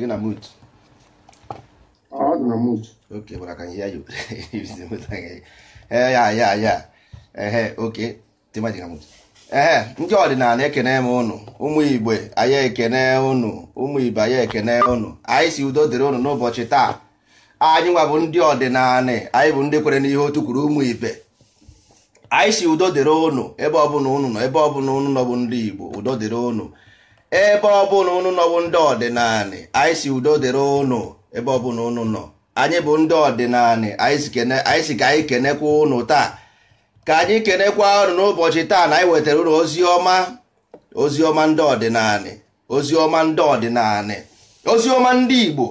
gị na mut ndị ọdịnala ekene m ụnụ ụmụ igbo anyị ekene ụnụ ụmụ ibe anyị ekene ụnụ anyị si udo dịrị ụnụ n'ụbọchị taa anyị nwa bụ ndị ọdịnala anyị bụ ndị kwere n'ihe otu kwuru ụmụ ibe anyị si udo dịrị ụnụ ebe ọbụla ụnụ nọ ebe ọbụla ụnụ nọ bụ ndị igbo udo dịrị ụnụ ebe ọbụla unu nọwụ ndị ọdịnala anyị si udo dịrị ụnụ, ebe ọbụla unu nọ anyị bụ ndị ọdịnala anyị si ka anyị kenekwa ụnụ taa ka anyị kenekwa ụnụ n'ụbọchị taa na anyị wetara ụnụ, ozi ọma ozi ọma ndị ọdịnala ozi ọma ndị ọdịnala ozi ọma ndị Igbo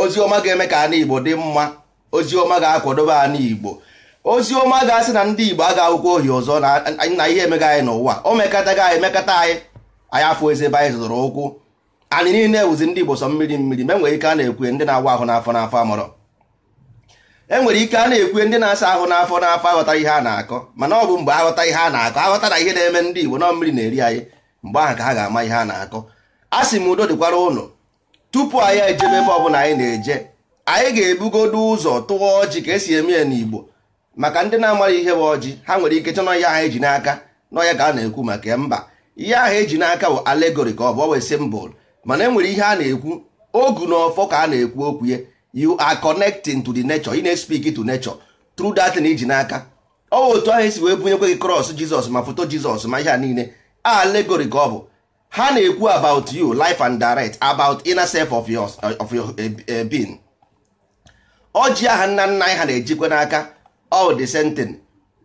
ozi ọma ga-eme ka anyị Igbo dị mma ozi ọma ga-akwadobe anyị Igbo ozi ọma ga-asị na ndị Igbo aga awụkwa ohi ọzọ na ihe emega anyị n'ụwa o mekata emekata anyị anya afọ eze ebe anyị zụtara ụkwụ anyị niile wụzi ndị Igbo sọ mmiri mmiri ma enwere ike a na-ekwe ndị na-awa ahụ n'afọ n'afọ amụrọ enwere ike a na-ekwe ndị na-asa ahụ n'afọ n'afọ aghọtara ihe a na-akọ mana ọ bụ mgbe aghọta ihe a na-akọ aghọta na ihe na-eme ndị Igbo nọ mmiri na-eri anyị mgbe ahụ ka ha ga-ama ihe a na-akọ a sị m udo dịkwara ụlọ tupu anyị ejebe ebe ọbụla anyị na-eje anyị ga-ebugodo ụzọ tụọ ọjị ka esi eme ya n'Igbo maka ndị na-amara ihe bụ ọjị ha nwere ike chọnọ ihe anyị ji n'aka n'ọya ka a na-ekwu maka mba ihe ahụ eji n'aka bụ alegori ka ọ bụ ọwe simbol mana e nwere ihe a na-ekwu ogu na ọfọ ka a na-ekwu okwu ya you are connecting to the nature you na-espik to nature through that na iji e n'aka ọwa otu ahụ esi wee bunyekwe gị cross jizọs ma foto jizọs ma ihe a niile alegori ka ọ bụ ha na-ekwu about you life and direct about inner self of your, of your eh, eh, being ọjị aha nna nna anyị ha na-ejikwa n'aka all the thing.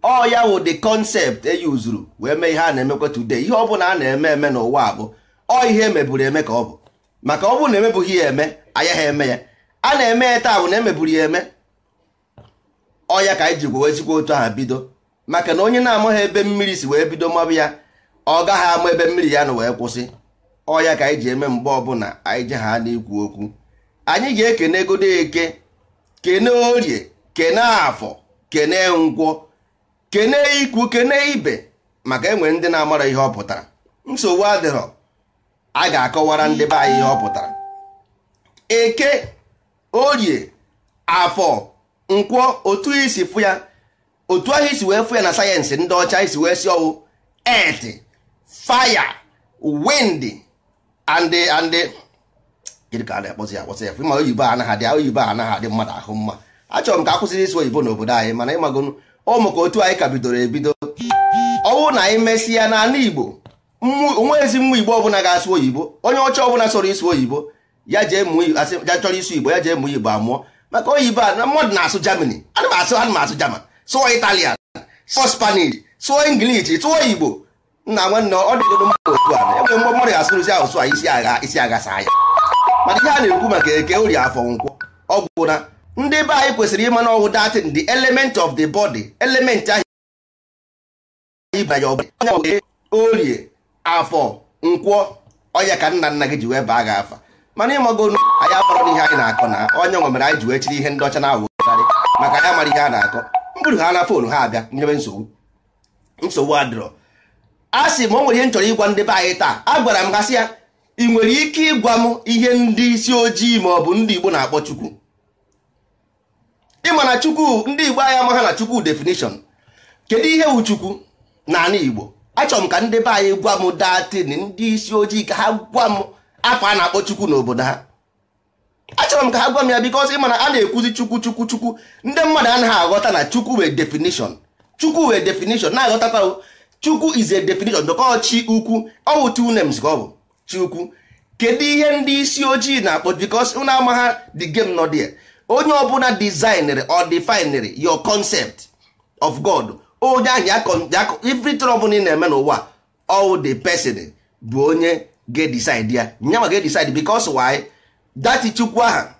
ọ ya wụ the concept e uzuru wee mee ihe a na-emekwa today ihe ọ bụla a na-eme eme n'ụwa bụ ọ ihe emeburu eme ka ọ bụ maka ọ bụrụ na emebughị ya eme anya ha eme ya a na-eme ya taa bụ na emeburu ya eme ọ ya ka anyị ji gwewe ezigbo otu aha bido maka na onye na-amaghị ebe mmiri si wee bido mabụ ya ọ gaghị ama ebe mmiri ya na wee kwụsị ọ ya ka anyị ji eme mgbe ọbụla anyị ji ha na-ekwu okwu anyị ga-ekene godo eke kene orie kene afọ kene nkwọ kene ikwu kene ibe maka enwe ndị na-amara ihe ọ pụtara nsogbu adịrọ a ga-akọwara ndị be anyị ihe ọ pụtara eke orie afọ nkwọ otu isi fụ ya otu ahụ isi wee fụ ya na sayensị ndị ọcha isi wee si ọwụ earth fire wind and and gịnị na-akpọzi akpọzi ya ma oyibo anaghị adị oyibo anaghị adị mmadụ ahụ mma achọrọ m ka a isi oyibo n'obodo anyị mana ịmagonu ụmụ ka otu anyị ka bidoro ebido ọwụ na anyị mesịa n'ala Igbo onwe ezi nwa Igbo ọbụla ga-asụ oyibo onye ọcha ọbụla sọrọ ịsụ oyibo ya jee ya chọrọ ịsụ Igbo ya jee mụọ Igbo amụọ maka oyibo a na mmadụ na-asụ Jamani. ana m asụ ana German sụọ Italian sụọ Spanish sụọ English sụọ Igbo nna nwanne ọ dịgodo mmadụ otu a enwere mgbe mmadụ asụrụzi asụsụ a isi agha isi agha saa ya mana ihe a na-ekwu maka eke ori afọ nkwọ ọgwụ na ndị be anyị kwesịrị ịma n'ọwụ datin the element of the body element ahụ ịbanye ọbara orie afọ nkwọ ọnya ka nna nna gị ji wee baa gị afa mana ịmago anyị akpọrọ n'ihe anyị na-akọ na onye nwe mere anyị ji wee chiri ihe ndị ọcha na-awụgharị maka anyị mara ihe a na-akọ mbụrụ ha na fonu ha abịa nyebe nsogbu nsogbu adịrọ a sị m o nwere ihe m chọrọ ịgwa ndị be anyị taa a gwara m gasị ya ị nwere ike ịgwa m ihe ndị isi ojii ma ọ bụ ndị Igbo na-akpọ Chukwu ịma na chukwu ndị igbo anyị amaghị na chukwu definition kedu ihe wu chukwu n'ala igbo achọrọ m ka ndị be anyị gwa m datin ndị isi ojii ka ha gwa m afọ a na-akpọ chukwu n'obodo ha achọrọ m ka ha gwa m ya because ịma na a na-ekwuzi chukwu chukwu chukwu ndị mmadụ anaghị aghọta na chukwu wee definition chukwu wee definition na-aghọtakwa chukwu is a definition dọkọ chi ukwu ọ bụ two names ka ọ bụ chi ukwu kedu ihe ndị isi ojii na-akpọ because unu amaghị the game nọ there onye ọbụla designere or definere your concept of god onye ahụ ya everything ọbụla ị na-eme n'ụwa all the person bụ onye ga ya nyanwa ga-decide because why dati chukwu ha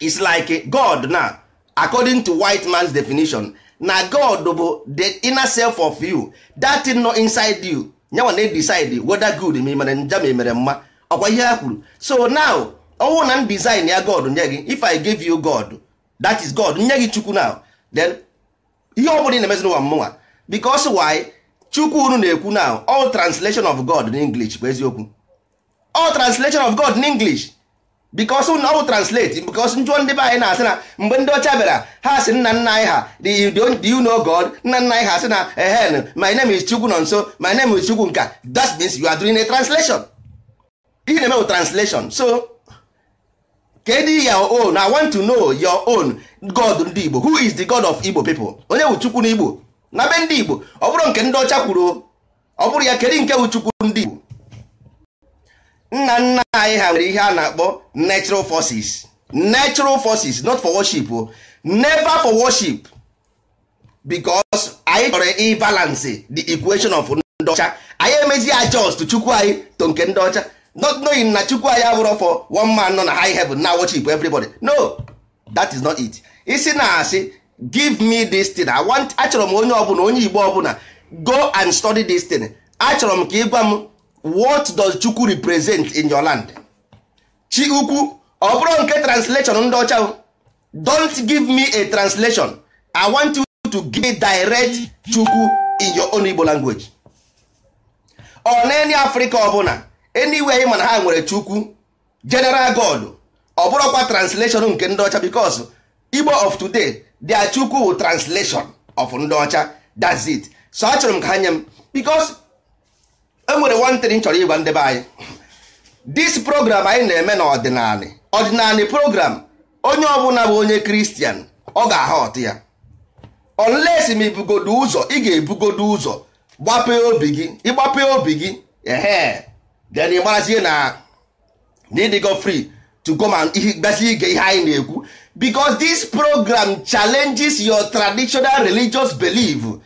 is like god na according to white man's definition na god bụ the inner self of you that thing inside you nyanwa na-decide whether good ma mere mma ọkwa ihe ha kwuru so now ọnwụ na design ya god nye gị if i give you god that is god nye gị chukwu now then ihe ọ bụla ị na-emezi n'ụwa mmụnwa because why chukwu unu na-ekwu now all translation of god in english bụ eziokwu all translation of god in english because na ọ bụ translate because njụọ ndị be anyị na-asị na mgbe ndị ọcha bịara ha sị nna nna anyị ha you know god nna nna anyị ha sị na ehen my name is chukwu nọ nso my name is chukwu nka that means you are doing a translation ihe na-eme bụ translation so kedu your own i want to know your own god ndị igbo who is the god of igbo people onye bụ n'igbo na be ndị igbo ọ bụrụ nke ndị kwuru ọ bụrụ ya kedu nke wụchukwu ndị igbo nna nna anyị ha nwere ihe a na-akpọ natural forces natural forces not for worship o oh. never for worship because anyị chọrọ ịbalance the equation of ndị ọcha anyị emezi adjust chukwu anyị to nke ndị ọcha not knowing na chukwu anyị abụrụ for one man nọ na high heaven na worship everybody no that is not it isi na asị give me this thing i want achọrọ m onye ọbụla onye igbo ọbụla go and study this thing achọrọ m ka ị gwa m what does chukwu represent in your land chi ukwu ọ bụrụ nke translation ndị ọcha don't give me a translation i want you to give direct chukwu in your own igbo language ọ na any africa ọbụla anyway anyị mana ha nwere chukwu general god ọ bụrụkwa translation nke ndị ọcha bikos igbo of today dia chukwu wụ translation of ndị ọcha that's it so achọrọ m ka ha nye m because enwere one thing chọrọ ịgwa ndebe anyị this program anyị na-eme na ọdịnala program onye ọbụla bụ onye kristian ọ ga-aha ọtụ ya unless m ibugodo ụzọ ị ga-ebugodo ụzọ gbapee obi gị ịgbapee obi gị ehe then ị marazie na go free to go and gbasi ige ihe anyị na-ekwu because this program challenges your traditional religious belief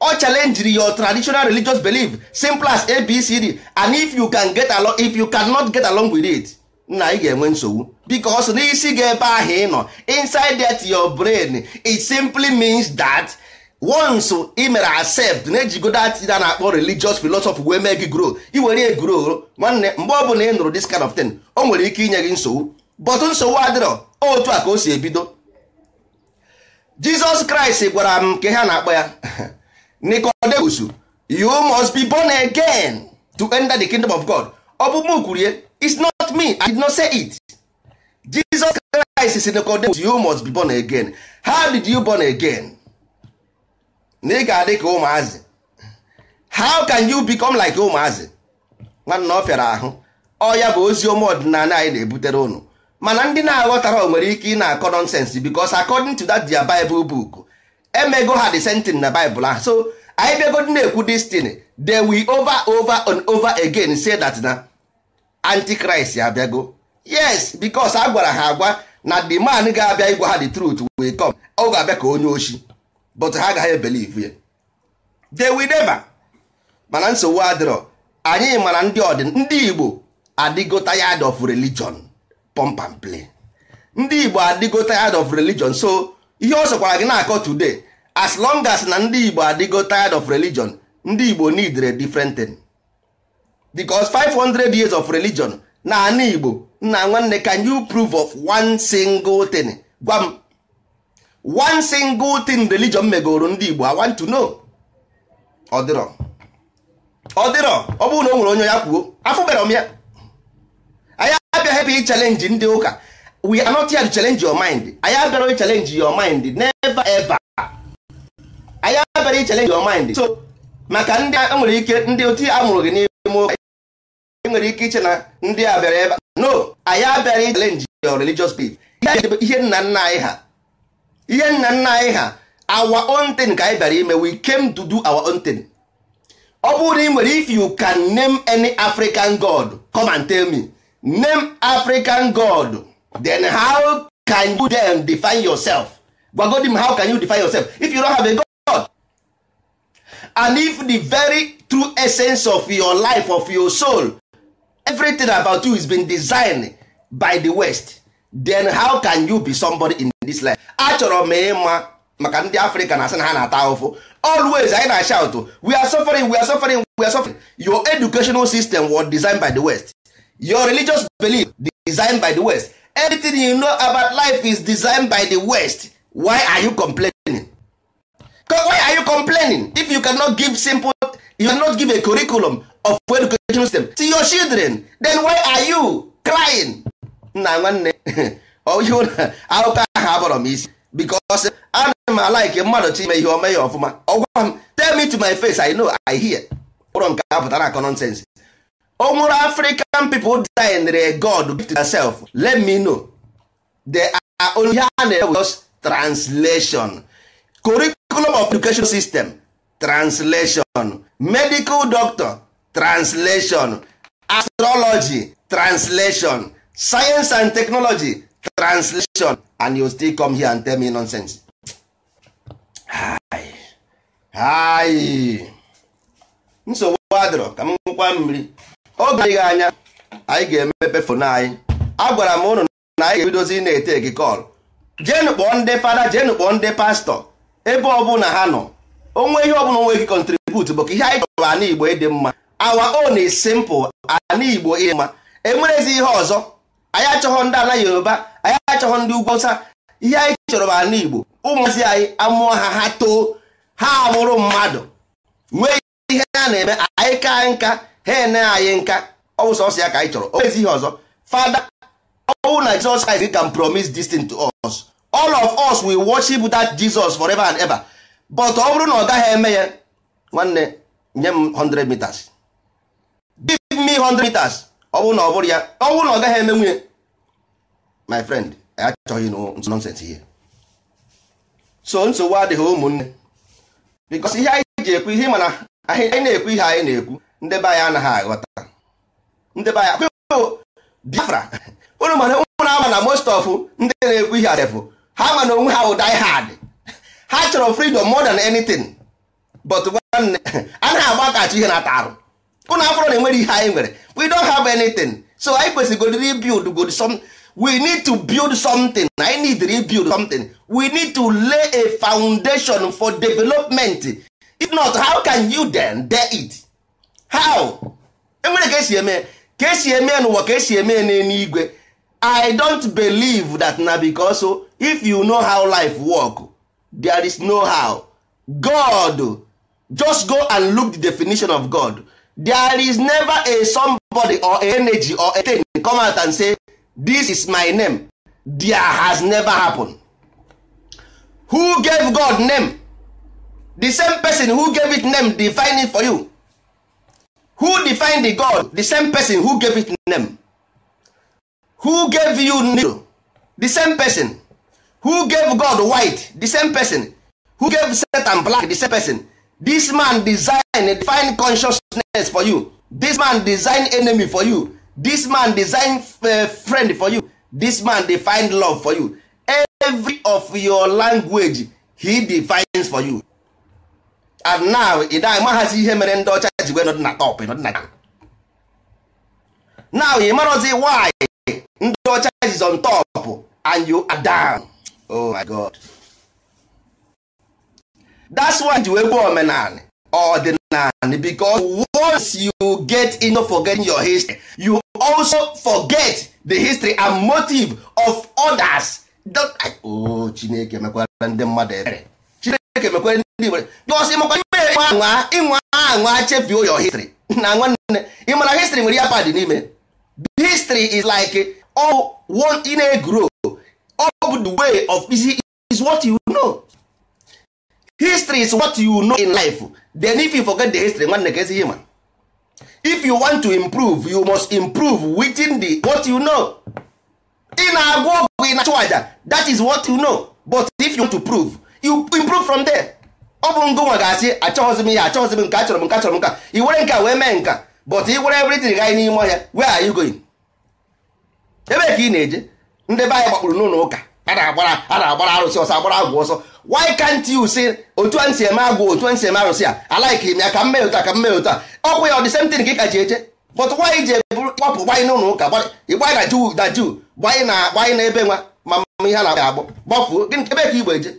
ọ challenge your traditional religious belief simple as abcd and if you can get along if you cannot get along with it na ị ga-enwe nsogbu because n'isi gị ebe ahụ ị nọ inside that your brain it simply means that once ị mere accept na-ejigodo atida na-akpọ religious philosophy wee mee gị grow iwere egro nwanne mgbe ọ bụla ị nụrụ this kind of thing o nwere ike inye gị nsogbu but nsogbu adịrọ otu a ka o si ebido Jizọs Kraịst gwara m nke ha na-akpọ ya Nicodemus you must be born again to enter the kingdom of God ọ bụ m kwurie it's not me I did not say it Jesus Christ si Nicodemus you must be born again how did you born again na ị ga-adị ka ụmụazị how can you become like ụmụazị nwanna ọ fịara ahụ ọ ya bụ ozi ọma ọdịnala anyị na-ebutere ụnụ mana ndị na-aghọtara o nwere ike ị na-akọ nonsense because according to that their Bible book emego ha the sentin na Bible ahụ so anyị bịagodi na-ekwu destiny they will over over and over again say that na antichrist abịago yes because a gwara ha agwa na the man ga-abịa ịgwa ha the truth will come ọ ga-abịa ka onye oshi but ha agaghị ebelive ya they will never mana nsogbu adịrọ anyị mara ndị ọdịn ndị Igbo adịgo tired of religion pump and play ndị Igbo adịgo tired of religion so ihe ọ sọkwara gị na-akọ today as long as na ndị Igbo adịgo tired of religion ndị Igbo need different thing because 500 years of religion na ana Igbo nna nwanne can you prove of one single thing gwa m one single thing religion megoro ndị Igbo I want to know ọ dịrọ ọ dịrọ ọ bụrụ na o nwere onye ya kwuo afụbere m ya anyị abịa hebe i challenge ndị ụka we are not here to challenge your mind anyị abịara i challenge your mind never ever anyị abịara i challenge your mind so maka ndị a e nwere ike ndị otu a mụrụ gị n'ime ụka e nwere ike iche na ndị a bịara ebe no anyị abịara i challenge your religious belief ihe nna nna anyị ha ihe nna nna anyị ha our own thing ka anyị bịara ime we came to do our own thing ọ bụrụ na ị nwere if you can name any African god come and tell me name African god then how can you then define yourself gwagodi m how can you define yourself if you don't have a god and if the very true essence of your life of your soul everything about you is been designed by the West then how can you be somebody in this life achọrọ m ịma maka ndị afrịka na asị na ha na-ata always anyị na shout we are suffering we are suffering we are suffering your educational system was designed by the west your religious belief designed by the west everything you know about life is designed by the west why are you complaining why are you complaining if you cannot give simple you cannot give a curriculum of educational system to your children then why are you crying na nwanne ihe akụkọ ahụ abọrọ m isi because am m alaike mmadụ chi ime ihe ome ya ọfụma ọgwa m tell me to my face i know i hear ụrọ nke a pụtara akọ nonsense o nwere african people dinere god gift herself let me know they are only ha na-ewe just translation curriculum of education system translation medical doctor translation astrology translation science and technology translation and you still come here and tell me nonsense hayi nsogbu adịrọ ka m nwekwa mmiri oge adịghị anya anyị ga-emepe fon anyị agwara m ụnụ na anyị ga-ebidozi na-ete gị kọl jenu kpọọ ndị fada jenu kpọọ ndị pastọ ebe ọbụla ha nọ onwe ihe ọbụla onwe gị kọntribut bụ ka ihe anyị chọrọ ana igbo ịdị mma awa on is simple ana igbo ịdị mma enwerezi ihe ọzọ anyị achọghọ ndị ala yoruba anyị achọghọ ndị ugwu ọsa ihe anyị chọrọ bụ ala igbo ụmụazị anyị amụọ ha ha too ha amụrụ mmadụ nwee ihe ha na-eme anyị ka nka ha ene anyị nka ọ bụ sọsọ ya ka anyị chọrọ o ezi ihe ọzọ fada ọwụ na Jesus Christ can promise this thing to us all of us will worship that Jesus forever and ever but ọ bụrụ na ọ gaghị eme ya nwanne nye m 100 meters give me 100 meters ọ bụrụ na ọ bụrụ ya ọ bụrụ na ọ gaghị eme nwunye my friend achọghị nọnsensị ihe so nsogbu adịghị ụmụnne bikos ihe anyị ji ekwu ihe mana anyị na-ekwu ihe anyị na-ekwu ndebe anyị anaghị aghọta ndị be anyị Biafra unu mana ụmụ na ama na most of ndị na-ekwu ihe adefụ ha ma na onwe ha wụ die hard ha chọrọ freedom more than anything but nwanne anaghị agbakachi ihe na-ata arụ ụnụ afọrọ na enwere ihe anyị nwere we don have anything so anyị kwesịgodịrị go good some we need to build something anyị need to build something we need to lay a foundation for development if not how can you then dare it how enwere ka esi eme ka esi eme n'ụwa ka esi eme n'eluigwe i don't believe that na because if you know how life work there is no how god just go and look the definition of god there is never a somebody or energy or a thing come out and say this is my name there has never happened who gave god name the same person who gave it name define it for you who defined the god the same person who gave it name who gave you new the same person who gave god white the same person who gave satan black the same person this man design define consciousness for you this man design enemy for you this man design uh, friend for you this man define love for you every of your language he defines for you and now ị da amaghazi ihe mere ndị ọcha ji wee nọdị na top now ị marazi why ndị ọcha is on top and you are down oh my god that's why you wee gwa omenanị ọdịnanị because once you get into forgetting your history you also forget the history and motive of others o oh, chineke mekwara ndị mmadụ ebere chineke mekwara ndị ebere bikos ịmakwa ime ịnwa ịnwa anwa chefuo your history na nwanne ị history nwere ya pad n'ime history is like all oh, one in a grow up the way of isi is what you know history is what you know in life then if you forget the history nwanne ka ezighi ma if you want to improve you must improve within the what you know ị na-agwa ọgwụ ị na-achụ aja that is what you know but if you want to prove you improve from there ọ bụ ngụ nwa ga-asị achọghịzi m ihe achọghịzi m nke achọrọ m nke achọrọ m nka i were nka wee mee nka but i were everything gaa n'ime ọhịa where are you going ebe ka ị na-eje ndị be anyị gbakpụrụ n'ụlọ ụka a na-agbara arụsị ọsọ agbara agwụ ọsọ why can't you say otu a nsi eme agwụ otu a nsi eme arụsị a alaiki m ya ka mmee ụta ka mmee ụta ọkwụ ya ọ dị same thing ka ị ji eje but why ji eburu kpọpụ gbanye n'ụlọ ụka ịgbanye na juu na juu gbanye na gbanye na ebe nwa ma mma ihe na agbọ gbafuo gịnị ebe ka igbo eje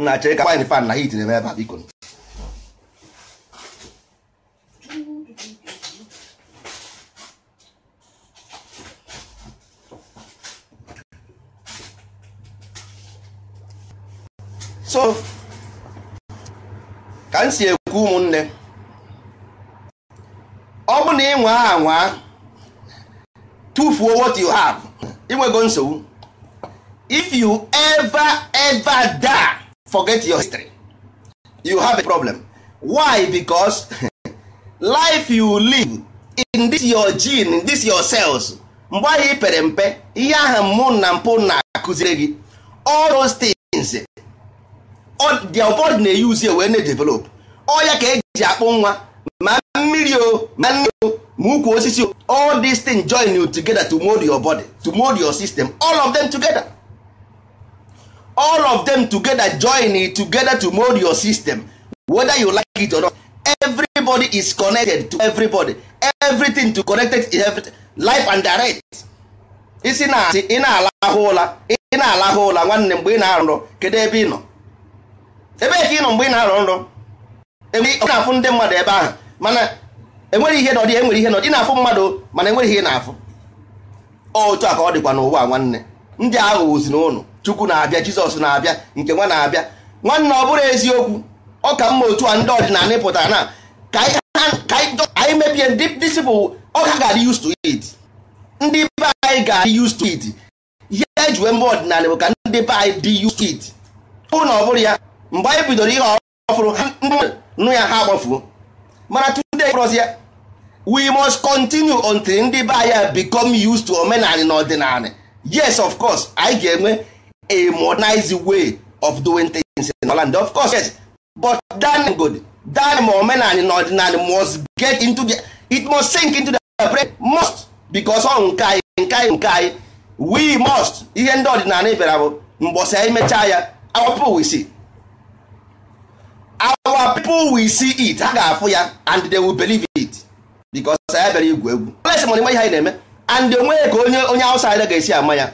nna chere ka gbanye fan na hit m ebe a biko ka m si ekwu ụmụnne ọ bụrụ na ị nwaa tufuo tụfuo what you have inwego nsogbu if you ever ever die forget your history you have a problem why because life you live in this your gene in this your cells mgbe ahụ i pere mpe ihe ahụ mụ na mpụ na-akụziri gị all those things their body na-eyuzi wee na-edevelop ọya ka eji akpụ nwa ma mmiri o ma nri o ma ukwu osisi o all these things join you together to mold your body to mold your system all of them together all of them together join it together to mold your system whether you like it or not everybody is connected to everybody everything to connected is everything. life and direct isi na asị ị na-alahụ ụla ị na-alahụ ụla nwanne mgbe ị na-arụrụ kedu ebe ị nọ ebe ka ị nọ mgbe ị na-arọ nrọ ọ na-afụ ndị mmadụ ebe ahụ mana enwere ihe nọdị enwere ihe nọdị na-afụ mmadụ mana enwere ihe na-afụ otu a ka ọ dịkwa n'ụwa nwanne ndị aghụghọzi na ụnụ chukwu na-abịa jizọs na-abịa nke nwa na-abịa nwanne ọ bụrụ eziokwu ọ ka mma otu a ndị ọdịnala pụtara na ka anyị mebie ndị disipụl ọka ka ga-adị used to it ndị be anyị ga-adị used to it ihe ejiwe mba ọdịnala bụ ka ndị be anyị dị used to it ọ na ọ bụrụ ya mgbe anyị bidoro ihe ọfụrụ nụ ya ha agbafuo mana today we must continue until ndị be anyị become used to omenala na ọdịnala yes of course anyị ga-enwe a modernized way of doing things in Holland of course yes but that good that ma omenala na ọdịnala must get into the it must sink into the brain must because ọ nke anyị nke anyị nke anyị we must ihe ndị ọdịnala bịara bụ mgbọsa anyị mechaa ya awapụ wisi our people will see it ha ga-afụ ya and they will believe it because ya bịara igwu egwu lesi mana ihe anyị na-eme and onweghị ka onye onye outsider ga-esi ama ya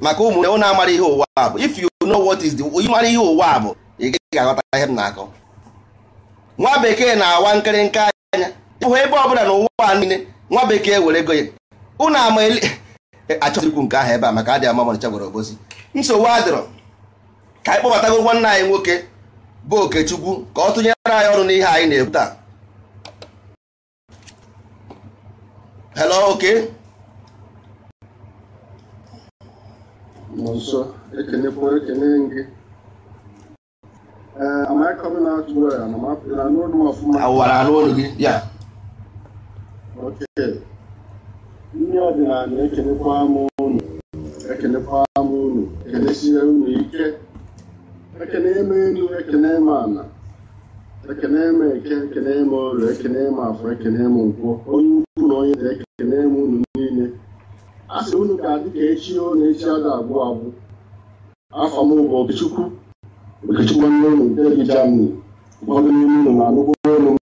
maka ụmụnne na amara ihe ụwa a bụ if you know what is the onye mara ihe ụwa bụ ị ga aghọta ihe na-akọ nwa bekee na-awa nkịrịnka anya ebe ọbụla na ụwa niile nwa bekee were ego ya ụnụ ama e, nke ahụ ebe a maka adị ama mana chagwara obosi nsogbu adịrọ ka anyị kpọbatago nwanne anyị nwoke bụ okechukwu ka ọ tụnyere anyị ọrụ n'ihe anyị na-ekwu taa hello oke nso ekenekwa gị anụ gị ya ndị ọdịnala ekenekwa m unu ekenekwa m unu ekenesie unu ike ekene m elu Ana m eke ekene m olu ekene afọ ekene nkwọ onye ukwu na onye na ekene unu niile a unu ga-adị ka echi o na echi ada agwụ agwụ afọ m bụ okechukwu okechukwu nwanne unu nke dị jamani ụfọdụ n'ime unu na-anụgbo olu m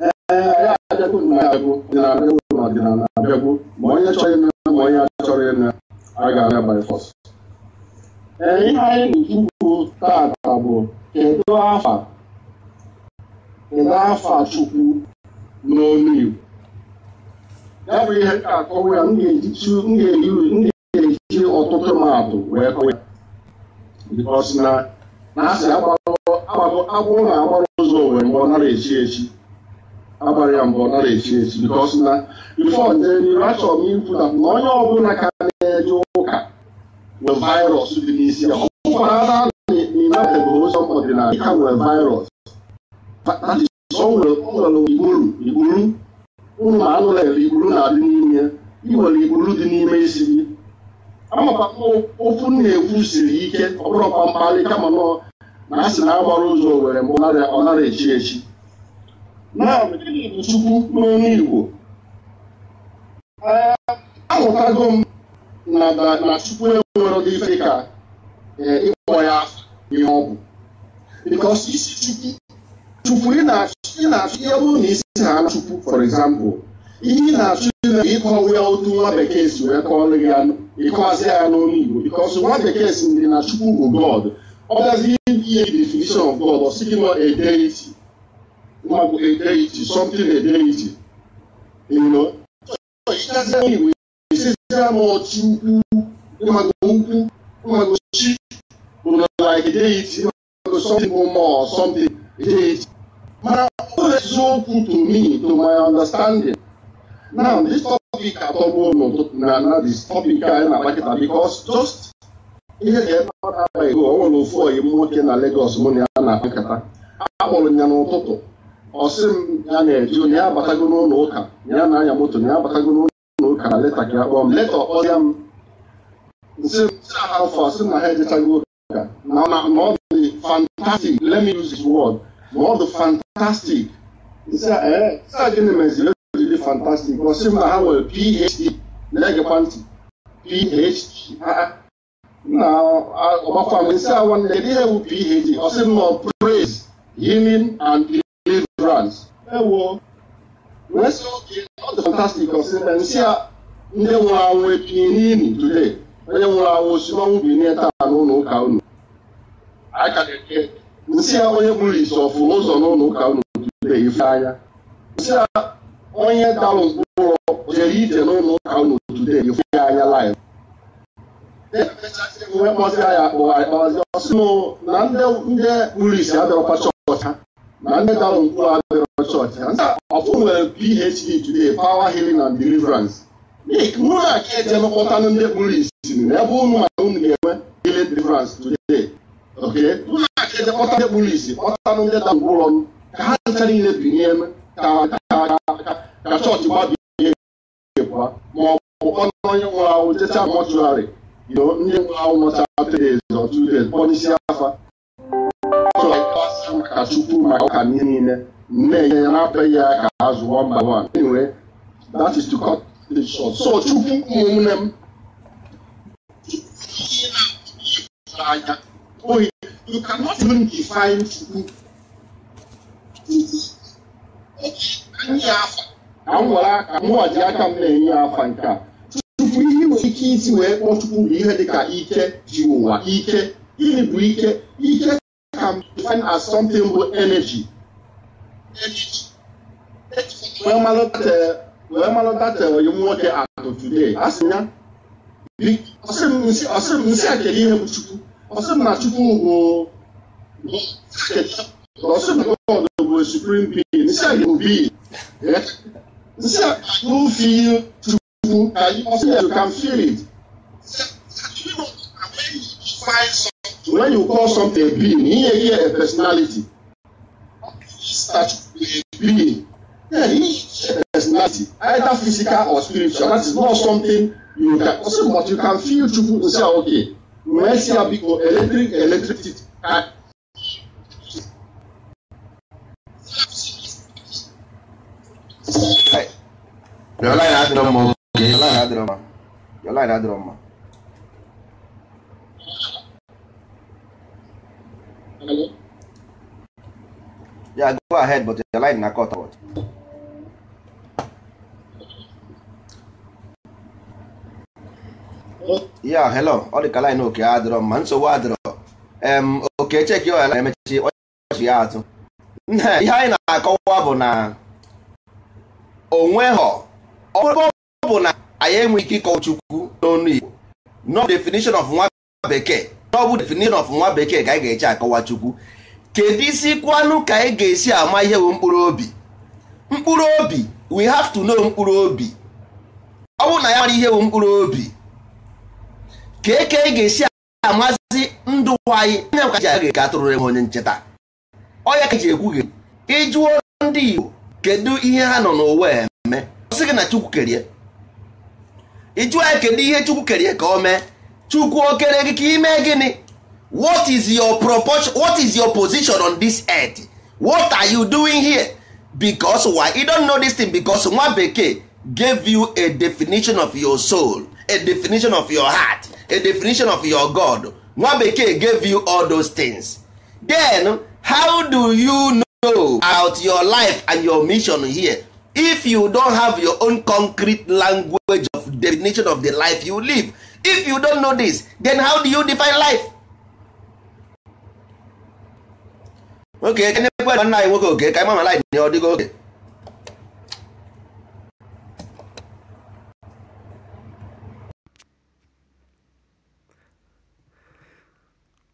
ee e, ya abịagwo na abịagwo na abịagwo na ọdịnala abịagwo ma onye chọrọ ịna ma onye achọrọ ịna a ga-abịa by ihe anyị na-ekwu taata bụ kedu afa kedu afa Chukwu n'olu ya bụ ihe akọwa ya m ga-eji ọtụtụ mmadụ wee kọwa ya bikọs na na-asị agwụ na agbara ụzọ owere mgbe ọ nara echi echi agbara ya mgbe ọ nara echi echi bikọs na bifọ nje n'iru achọrọ m ikwu na onye ọbụla ka na-eje ụka bụ vaịrọs dị for another United or somebody like can with virus. But that is somewhere ụlọ igburu ma anụ lere igburu na-adị n'ime ya iwere igburu dị n'ime isi gị amakwa ofu na-ekwu siri ike ọ bụrụ ọkwa mkpali kama nọ na a sị na agbara ụzọ were mgbe ọ nara echi echi na gịnị bụ chukwu n'ọnụ igbo ahụtago m na chukwu enwere dị ife ka Eh, ịkpọ ya ihe ọ bụ because isi chukwu chukwu ị na-achụ ihe bụrụ na isi ha chukwu for example ihe ị na-achụ ime ịkọwa ya otu nwa bekee si wee kọọlụ ya ịkọwazi ya n'olu Igbo because nwa bekee si ndị na chukwu bụ God ọ bịazi ihe definition of God ọ sị gị a deity maọbụ a deity something a deity you know ịchazie Igbo isizie m chukwu ụmụ ukwu ụmụ deity or something more or something deity. Mana eziokwu to me to my understanding. Now this topic atọgbu n'ụtụtụ na na this topic anyị na-akpakịta just ihe ga-ebe ego ọ nwere ofu oyi nwoke na mụ na ya na akpọrọ ya n'ụtụtụ ọ sị m na-eji onye ya abatago n'ụlọ na-anya moto na ya abatago leta ka ya m leta ya m nsị m afọ na ha Now, now, the fantastic, let me use this word, more the fantastic. Sị eh, a gịnị meziri ejiri fantastic? Gosi m na ha nwere PhD, na-egekwa ntị, PhD. Na ọgbakwa m nsị a nwanne kedu ihe bụ PhD? Ọ sị m nọ praise, healing and deliverance. Ewo, wee sị oge ọ dị fantastic, ọ sị na nsị a ndị nwụrụ anwụ today. onye nwụrụ anwụ osimiri mmanwụ bi taa n'ụlọ ụka unu nsị a onye gburu isi ọfụrụ ụzọ n'ụlọ ụka unu ife anya nsị a onye dalụ mkpụrụ jere ije n'ụlọ ụka unu tụtụbe ife anya laịf e e wee kpọzie ya akpọ akpazi ọsị na ndị gburu isi chọọchị na ndị dalụ mkpụrụ chọọchị ọfụ nwere Nnu a ka eji emekọta ndị kpuru isi ebe ụnụ ma unu ga-enwe village deliverance today okay nnu a ka kpọta ndị kpuru isi kpọtanụ ndị da ngwụrọ ka ha ncha niile binye ka chọọchị gbabie nwụrụ mọchụarị ndị nwụrụ kpọnisi afa ka chukwu maka ọka niile nne ya na-apịa ya ka azụ so chukwu ụmụnne m anya ohi you cannot even define chukwu ka m were aka mụwa ji aka m na-enye afa nke a tupu ihe nwere ike isi wee kpọọ chukwu bụ ihe dịka ike ji ụwa ike gịnị bụ ike ike can be as something bụ energy. wee malọta nwoke atụ today asị ya ọsị m nsị akele ihe bụ chukwu ọsị m na chukwu bụ ọsị m na god bụ supreme being nsị a bụ being nsị a bụ feel chukwu ọsị ya you can feel it when you call something a being ihe ihe a personality being yeah, personality, either physical or spiritual. That is not something you can also, but you can feel Chukwu to say, ah, okay, wee si ya biko eletrik eletrik Your line adịrọ mma oge your line adịrọ mma your line adịrọ mma Yeah, go ahead, but your line na cut out. ya hello ọ dịka um, line oke adịrọ ma nsogbu adịrọ oke cheki ya emechi ọchị ya atụ ihe anyị na-akọwa bụ na onweghọ ọ bụ na anyị enweghị ike ịkọwa chukwu n'onu igbo no definition of nwa bekee n'ọbụ definition of nwa bekee ka anyị ga-eche akọwa chukwu kedu isi kwanụ ka anyị ga-esi ama ihe bụ mkpụrụ obi mkpụrụ obi we have to know mkpụrụ obi ọ bụrụ na ya mara ihe bụ mkpụrụ obi ka eke ga-esi amazi ndụ anyị anya ka ji aga ka atụrụ enwe onye ncheta ọya ka ji ekwu gị ịjụọ ndị Igbo kedu ihe ha nọ n'ụwa eme ọsị gị na Chukwu kerie ịjụọ ya kedu ihe Chukwu kerie ka o mee Chukwu o kere gị ka ime gịnị what is your proportion what is your position on this earth what are you doing here because why you don't know this thing because nwa bekee gave you a definition of your soul a definition of your heart a definition of your god nwa bekee gave you all those things then how do you know about your life and your mission here if you don have your own concrete language of definition of the life you live if you don know this then how do you define life okay nwoke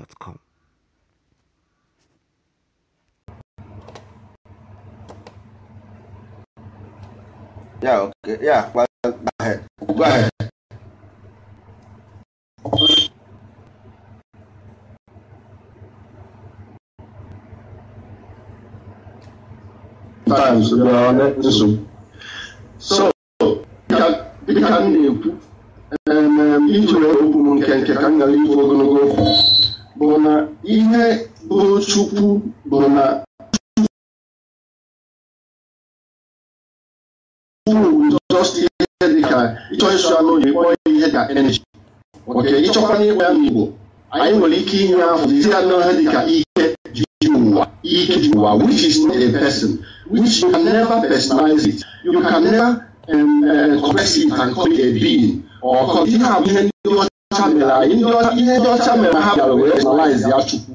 gmail.com. Yeah, okay. Yeah, well, go ahead. Go ahead. Times, So, we m na-ekwu iji wee okwu m nke nke ka m bụ na ihe bụrụ Chukwu bụ na just ịkpọ ihe ya n'Igbo anyị nwere ike inye ahụ dịka ya dị ka ike ụwa ike ji which is not a person which you can never personalize it you can never um, uh, it and call it a being or ihe ihe ọcha ihe ndị ọcha mere ha bịara wee personalize ya chukwu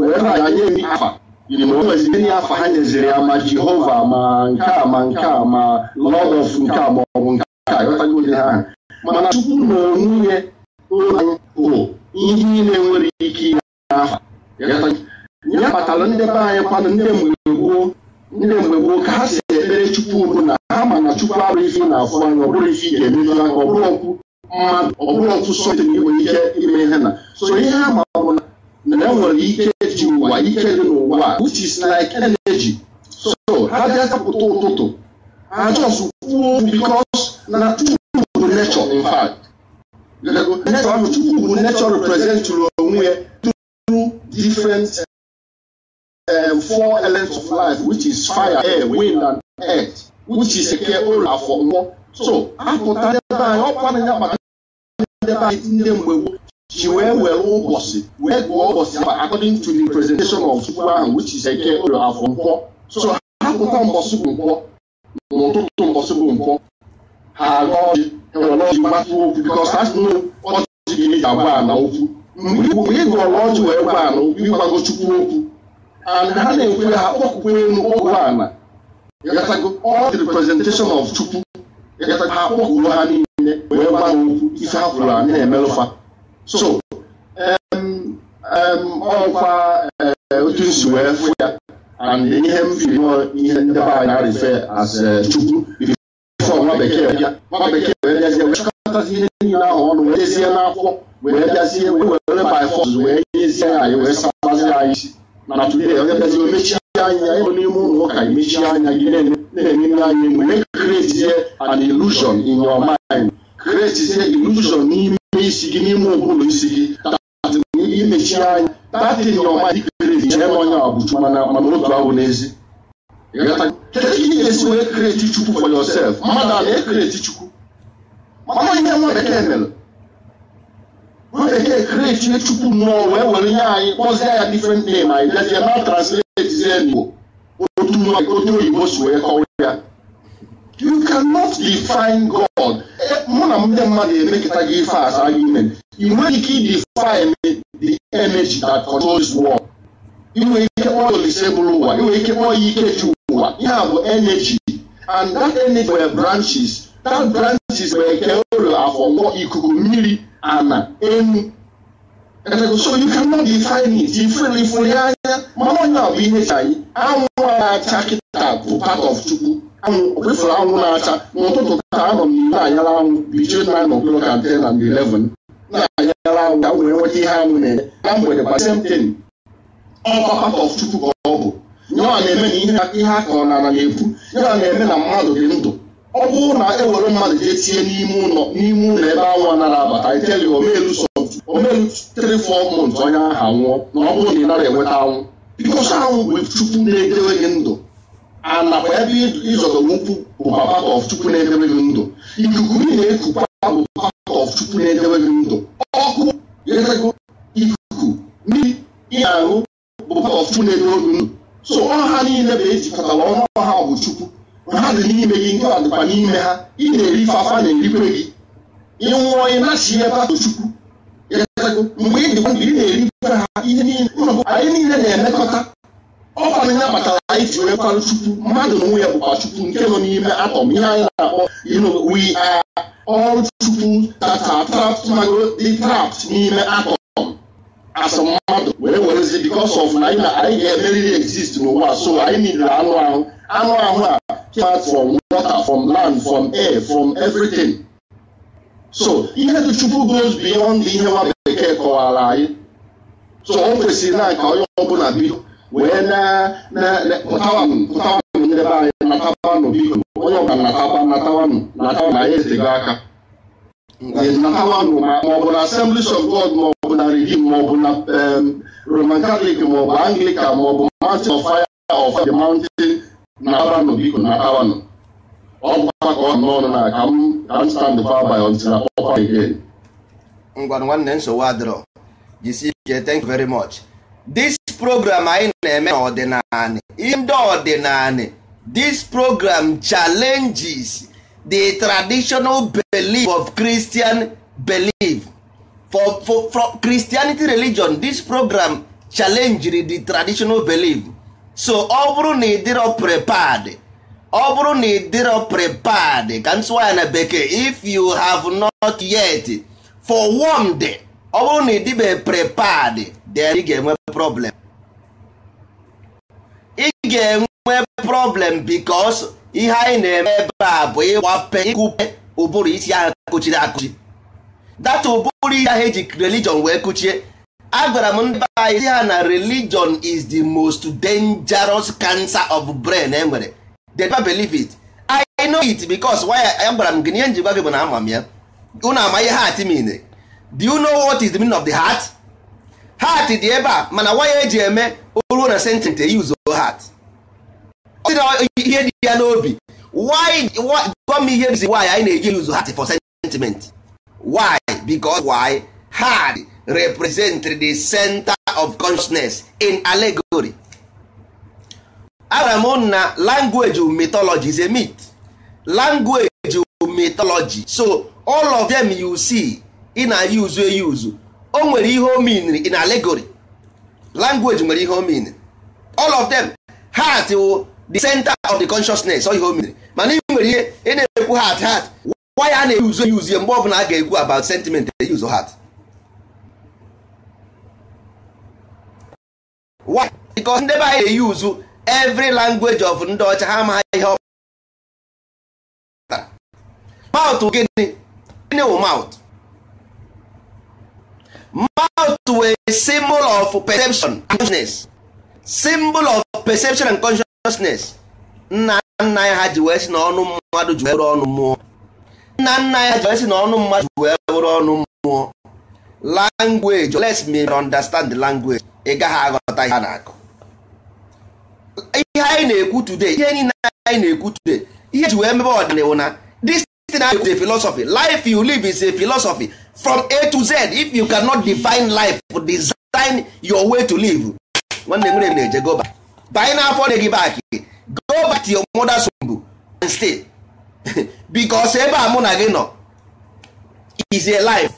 wee na ya nye ri afa yiri ma o nweziri ihe afa ha nyeziri ya ma jehova ma nke a ma nke a ma Lọd of nke a ma ọ nke a ịghọtago ihe ahụ mana chukwu na onwunye anyị bụ ihe niile nwere ike ime n'afa ya kpatara ndị be anyị kwanụ ndị mgbe gboo ndị mgbe gboo ka ha si ekpere chukwu bụ na ha ma na chukwu abụghị ife na-afụ anya ọ bụrụ ife ị ga-emeju aka ọ bụrụ okwu ọ bụrụ ọtụtụ ndị nwere ike ime ihe na so ihe ama ma bụ na enwere ike ji ụwa ike dị n'ụwa which is like energy so ha bịazapụta ụtụtụ ha just kwuo because na Chukwu bụ nature in fact nature ahụ Chukwu bụ nature representụrụ onwe ya through different uh, four elements of life which is fire, air, wind and earth which is eke ụlọ afọ mkpọ. so apụta ndebe anyị ọkwa na ya maka ndị ebe anyị ndị mgbe gboo ji wee were ụbọchị wee gụọ ụbọchị aba according to the presentation of chukwu ahụ which is eke ụlọ afọ nkwọ so ha pụta mbọsị bụ nkwọ n'ụtụtụ mbọsị bụ nkwọ ha aga ọjị ewere ọjị gbatụ okwu bikọs asị na ọjị gị eji agwa ana okwu mgbe ị gụọrọ ọjị wee gwa ana okwu ịgwago chukwu okwu and ha na-ekwe ha kpọkwukwe enu ọgwụ ana ọ dị presentation of chukwu ha kpọkuru ha niile wee gwa ha okwu ife ha kwuru anyị na-emelụfa so ọkwa eh, otu nsi e wee fụ ya and ihe m firi ihe ndị be anyị na-arife as eh, chukwu bifọ nwa bekee bịa nwa bekee wee bịazie wee chọkọtazi ihe niile ahụ ọnụ wee dezie n'akwụkwọ wee bịazie wee were by force wee nyezie anyị wee sabazi anyị isi na today onye bịazie omechie anya ịbụ n'ime ụlọ ụka imechie anya gị na-eme ihe anyị enwe create an illusion in your mind create illusion n'ime isi gị n'ime ụbụrụ isi gị imechi anya chee na onye abụchu mana mana otu ahụ n'ezi esi wee create chukwu for yourself mmadụ a na-ekreti chukwu mana ihe nwa bekee mere nwa bekee chukwu mmụọ wee were anyị kpọzie ya different name anyị bịazie na translate zie n'igbo otu oyibo si wee you cannot define God eh, mụ na ndị mmadụ emekọta gị ife as argument ị nweghị ike define the energy that controls world ị nwere ike kpọọ ya olise bụrụ ụwa ị ike kpọọ ya ike ji ụwa ihe a bụ energy and that energy were branches that branches were nke ụlọ e afọ ikuku mmiri ana enu so you cannot define it ifere ifere anya mana onye ọ bụ ihe chi anyị anwụ na-acha kịta bụ part of Chukwu kpefuru anwụ na-acha n'ụtụtụ ka anọ m n'iwu anyala anwụ bichie na anọ blok and ten and eleven na-anyara anwụ ka m wee nweta ihe anwụ na eme na mgbede kwa semten ọkpakpata ọchukwu ka ọ bụ nyewa na-eme na ihe a kọrọ na ala na-epu nyewa na-eme na mmadụ dị ndụ ọ bụrụ na ewere mmadụ jee tie n'ime ụlọ n'ime ụlọ ebe anwụ anara abata iteli omeluso omelu 3 months onye ahụ anwụọ na ọ bụrụ na ị nara enweta anwụ bikosi anwụ bụ chukwu na-edewe gị ndụ a nakwa ebe ịzọdọgbu nkwụ bụ part of Chukwu na edebeghị ndụ ikuku ị na-ekukwa bụ part of Chukwu na edebeghị ndụ ọkụ ikuku mmiri ị na-aṅụ bụ part of Chukwu na-edebe gị ndụ so ọha niile bụ ejikọtara ọrụ ọha bụ Chukwu ha dị n'ime gị nke dịkwa n'ime ha ị na-eri fafa na-erikwe gị ịnwụọ ị na-achị ebe atụ Chukwu mgbe ị dịkwa ndụ ị na-erikwe ha ihe niile anyị niile na-emekọta ọ bụ anyị kpatara anyị ji wee kwarụ chukwu mmadụ na onwe ya bụkwa chukwu nke nọ n'ime atọm ihe anyị na-akpọ you know we are all chukwu that are trapped n'ime atọm as mmadụ were werezi because of na anyị ga-emeriri exist n'ụwa so anyị niile anụ ahụ anụ ahụ a came from water from land from air from everything so ihe dị chukwu goes beyond ihe nwa bekee kọwara anyị so o kwesịrị na ka onye ọbụla bido wee na-pụtawa nyere be anyị natawanụ biko onye ọbụla natawa natawanụ natawa na anyị ezego aka natawanụ maọbụ na Assemblies of God maọbụ na Redeem maọbụ na Roman Catholic maọbụ Anglican maọbụ Mountain of Fire of the Mountain natawanụ biko natawanụ ọ bụkwa ka ọ n'ọnụ na ka m ka m stand by by until I pop up again. ngwa nwanne nsogbu adịrọ jisie ike thank you very much. This program anyị na-eme n'ọdịnala ihe ndị ọdịnala this program challenges the traditional belief of Christian belief for, for, for Christianity religion this program challenges the traditional belief so ọ bụrụ na ị dịrọ prepared ọ bụrụ na ị prepared ka na bekee if you have not yet for one day ọ bụrụ na ị prepared then ị ga-enwe problem ga-enwe problem bikos ihe anyị na-eme ebe a bụ ịgbape ịkụpe ụbụrụ isi ahụ kụchiri akụchi data ụbụrụ isi ahụ eji religion wee kụchie agwara m ndị anyị si ha na religion is the most dangerous cancer of brain e nwere they never believe it I know it because why agwara m gị na njikwa gị bụ na ama m ya unu ama ihe heart mean do you know what is the meaning of the heart heart dị ebe a mana waya eji eme ruo na sentence e use heart ọ ihe dị ya n'obi why gwa m ihe bụzi why anyị na-eji use heart for sentiment why because why heart represent the center of consciousness in allegory agwara m na language mythology is a myth language mythology so all of them you see in na-use use o nwere ihe o mean in allegory language nwere ihe o mean all of them heart wụ the center of the consciousness ihe o mere mana ị nwere ihe ị na-ekwu heart heart why a na-eyuzu eyuzie mgbe ọbụla a ga-ekwu about sentiment use heart why because ndị be anyị na-eyuzu every language of ndị ọcha ha amaghị ihe ọ pụtara mouth gịnị gịnị wụ mouth mouth wee symbol of perception and consciousness symbol of perception and consciousness consciousness nna nna ha ji wee si na mmadụ ji ọnụ mmụọ nna nna ha ji wee si na mmadụ ji wee bụrụ ọnụ mmụọ language let me understand the language ị gaghị aghọta ihe na-akụ ihe anyị na-ekwu today ihe niile anyị na-ekwu today ihe ji wee mebe ọdịnihu na this thing I is a philosophy life you live is a philosophy from A to Z if you cannot define life design your way to live nwanne nwere m na-eje goba na-afọ dị gị back go back to your mother's womb and stay because ebe a mụ na gị nọ is a life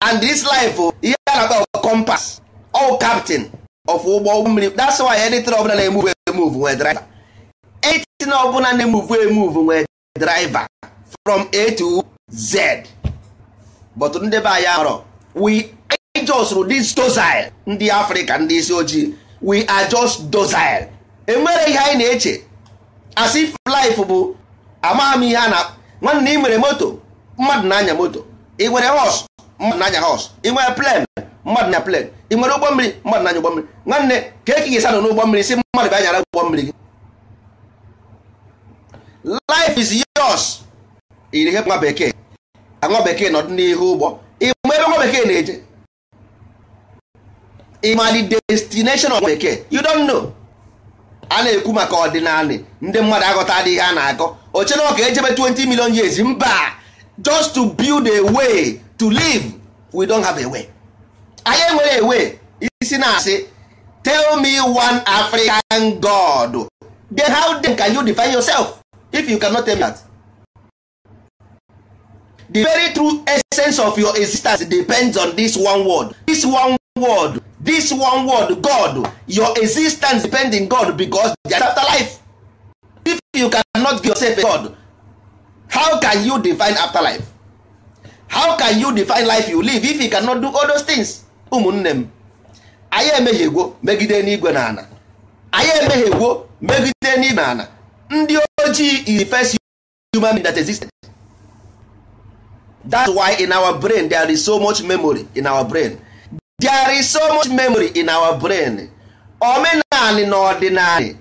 and this life oh, ihe a na-akpọ compass all captain of ụgbọ mmiri that's why anything ọbụla na-emuvu emuvu nwee driver anything ọbụla na-emuvu emuvu nwee driver from A to Z but ndị be anyị arọ we just this docile ndị Africa ndị isi ojii we are just docile enwere ihe anyị na-eche as if life bụ amaghị m ihe a na nwanne ị nwere moto mmadụ na-anya moto ị nwere hos mmadụ na-anya hos ị nwere plen mmadụ na plen ị nwere ụgbọ mmiri mmadụ na-anya ụgbọ mmiri nwanne ka eke gị sanọ n'ụgbọ mmiri si mmadụ bịa nyara ụgbọ mmiri gị life is yos. iri ihe nwa bekee nwa bekee nọdụ n'ihu ụgbọ ị ma ebe nwa bekee na-eje ịmali destination of bekee you don't know a na-ekwu maka ọdịnala ndị mmadụ aghọta adịghị ha na-agọ oche na ọka ejebe 20 million years mba just to build a way to live we don't have a way anyị enwere ewe isi na-asị tell me one african god then how then can you define yourself if you cannot tell me that the very true essence of your existence depends on this one word this one word this one word god your existence depend in god because they are afterlife if you cannot give yourself a god how can you define afterlife how can you define life you live if you cannot do all those things ụmụnne m anyị emehiegwo megide n'igwe na ana anyị emehiegwo megide n'igwe na ana ndị ojii is the first human being that existed that's why in our brain there is so much memory in our brain there is so much memory in our brain Omenaali na ọdịnali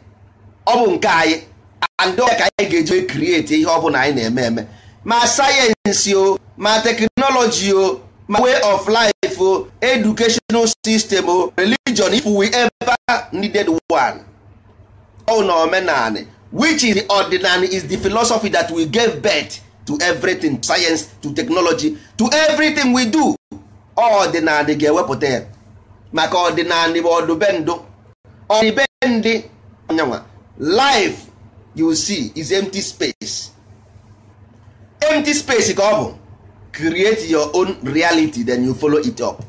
ọ bụ nke anyị and ka anyị ga-eji create ihe ọ bụla anyị na-eme eme ma sayensị o ma teknọlọji o ma way of life o educational system o religion if we ever needed one ọ na omenanị which is the ordinary is the philosophy that we gave birth to everything science to technology to everything we do ọdịnadị ga-ewepụta ya maka ọdịnadị bụ ọdụbendụ ọdịbendị anyanwa life you see is empty space empty space ka ọ bụ create your own reality then you follow it up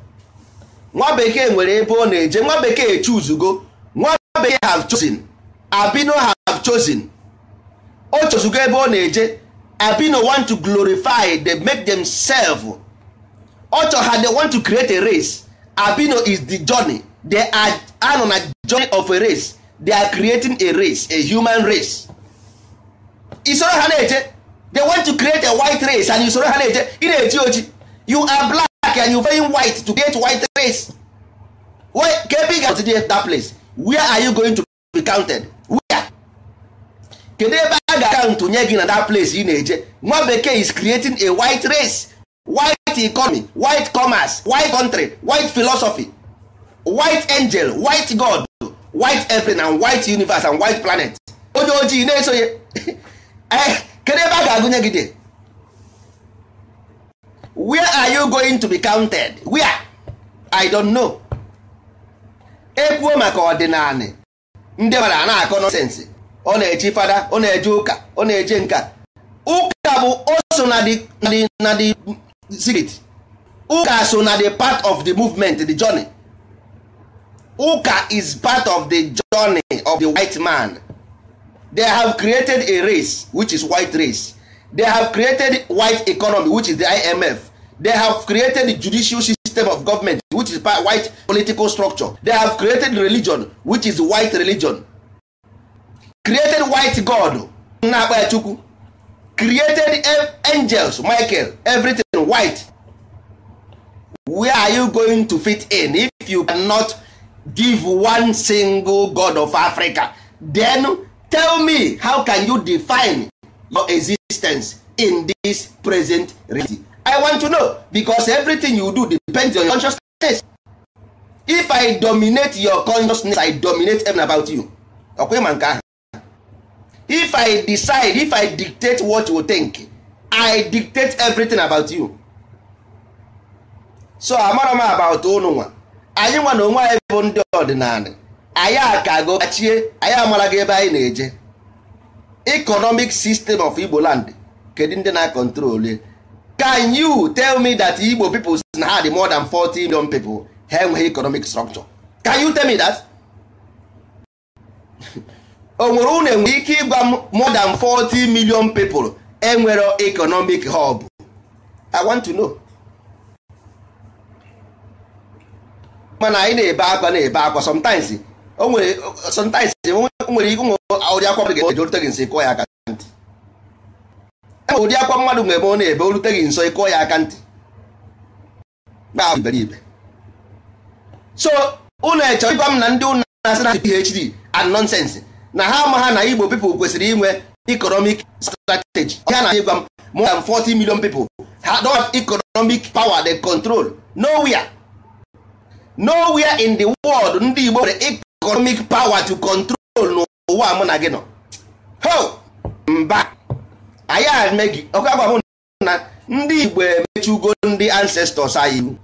nwa bekee nwere ebe ọ na-eje nwa bekee chuzugo nwa bekee have chosen abino have chosen o chozugo ebe ọ na-eje abino want to glorify the make serve. ọchọ ha they want to create a race abino is the journey they are anọ na journey of a race they are creating a race a human race isoro ha na-eje they want to create a white race and isoro ha na-eje ị na-eji oji you are black and you very white to create white race Where ka ebe continue ga-atụdị that place where are you going to be counted where kedu ebe a ga-akaụntụ nye gị na that place ị na-eje nwa bekee is creating a white race white white economy white commerce white country white philosophy white angel white god white everything and white universe and white planet onye ojii na esoye eh, kedu ebe a ga-agụnye gị dị where are you going to be counted where i don't know ekwuo maka ọdịnala ndị mara a na-akọ nọsensị ọ na-eji fada ọ na-eje ụka ọ na-eje nka ụka bụ oso na dị spirit ụka so na the part of the movement the journey ụka is part of the journey of the white man they have created a race which is white race they have created white economy which is the imf they have created judicial system of government which is white political structure they have created religion which is white religion created white god na-akpa ya chukwu created angels michael everything white where are you going to fit in if you cannot give one single god of africa then tell me how can you define your existence in this present reality i want to know because everything you do depends on your consciousness if i dominate your consciousness i dominate everything about you ọkwa ịma if i decide if i dictate what you think i dictate everything about you so amara m about unu nwa anyị nwa na onwe anyị bụ ndị ọdịnala anyị akago gachie anyị amara gị ebe anyị na-eje economic system of igbo land kedu ndị na-akọntrol can you tell me that igbo people na ha more than 40 million people ha enweghị economic structure can you tell me that o nwere unu enwere ike ịgwa m more than 40 million people enwere economic hub I want to know mana anyị na-ebe akwa na-ebe akwa sometimes o nwere sometimes nwere ụmụ ụdị akwa mmadụ ga-eje orute gị nso ịkụọ ya aka ntị enwere ụdị akwa mmadụ nwere ebe ọ na-ebe orute gị nso ịkụọ ya aka ntị na iberibe so unu echọrọ ịgwa m na ndị ụnụ na-asị na PhD and nonsense na ha ama ha na igbo pipo kwesịrị inwe economic strategy ha na ịgwa m more than 40 million people ha do have economic power they control nowhere nowhere in the world ndị igbo nwere economic power to control n'ụwa mụ na gị nọ ho mba anyị ame gị ọkwa gwa na ndị igbo emechugo ndị ancestors anyị iwu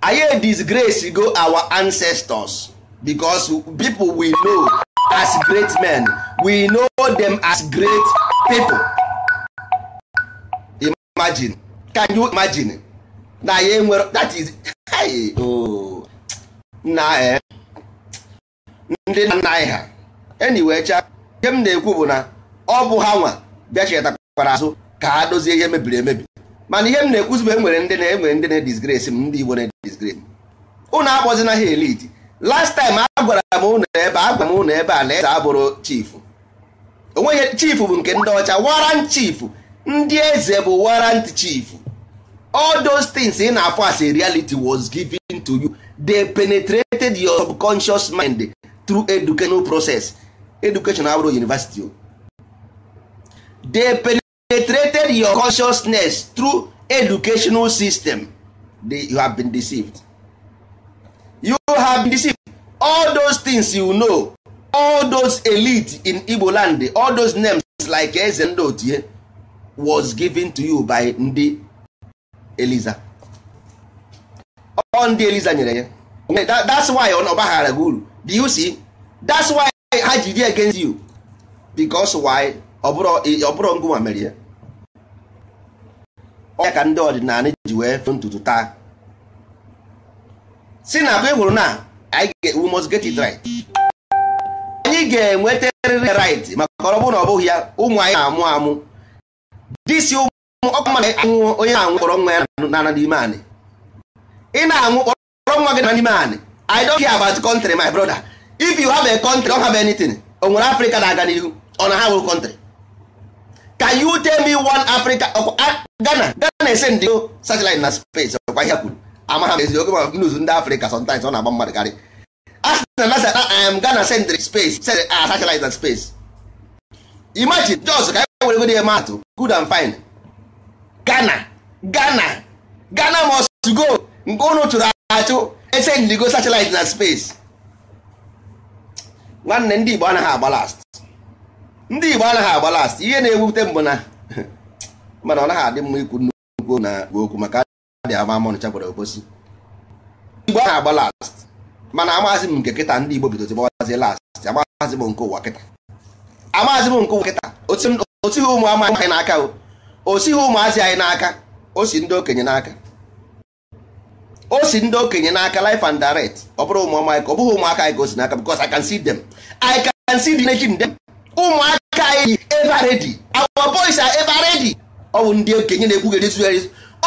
anyị disgrace go our ancestors because people we know as great men we know them as great people imagine can you imagine na ya enwere that is hey oh na eh. ndị nna anyị ha anyway ihe m na-ekwu bụ na ọ bụ ha nwa bịa chetakwara azụ ka ha dozie ihe mebiri emebi mana ihe m na-ekwuzi bụ enwere ndị na-enwere ndị na-edisgrace m ndị Igbo na-edisgrace m ụnụ akpọzina ha elite last time a gwara m ụnụ ebe a gwara m ụnụ ebe a na eze abụrụ chifu onweghị chifu bụ nke ndị ọcha warrant chief ndị eze bụ warrant chief all those things ị na afọ as a reality was given to you they penetrated your subconscious mind through educational process education abụrụ university they penetrated your consciousness through educational system they, you have been deceived you have been deceived all those things you know all those elite in igbo land all those names like eze ndị otie was given to you by ndị eliza ọ ndị eliza nyere ya that's why ọ ọbaghara gị uru do you see that's why ha ji dị against you because why ọ bụrụ ngụnwa mere ya ọ ya ka ndị ọdịnala ji wee fụ ntutu taa si na agba ịhụrụ na anyị ga-enwetarịrị right maka ọ na ọ bụghị ya ụmụ anyị na-amụ amụ disi ụmụ onye na-anwụ kpọrọ nwa ya na n'ime anị ị na-anwụ kpọrọ nwa na n'ime anị I don't care about country my brother if you have a country don't have anything o nwere na-aga n'ihu ọ na ha nwere country can you tell me one Africa Ghana Ghana ese ndị na ọkwa ihe kwuru amaghị m ezigbo oge ma news ndị afrịka sometimes ọ na-agba mmadụ karị asị na nasa am gana sentry space send a ah, satellite and space imagine jos ka anyị e were godi matụ good and fine gana gana gana must go nke ụnụ chụrụ achụ esendigo satellite na space nwanne ndị igbo anaghị agba last ndị igbo anaghị agba last ihe na-ewute mbụ na mana ọ naghị adị mma ikwu nnukwu na okwu maka dị ama amọnụcha gwara obosi igbo ahụ agba last mana amaghịzị m nke kịta ndị igbo bidozi gbawazie last amaghịzị m nke ụwa kịta amaghịzị m nke ụwa kịta osighị ụmụ amaghị anyị n'aka o osighị ụmụazị anyị n'aka o si ndị okenye n'aka o si ndị okenye n'aka and direct ụmụaka anyị bụ ndị okenye na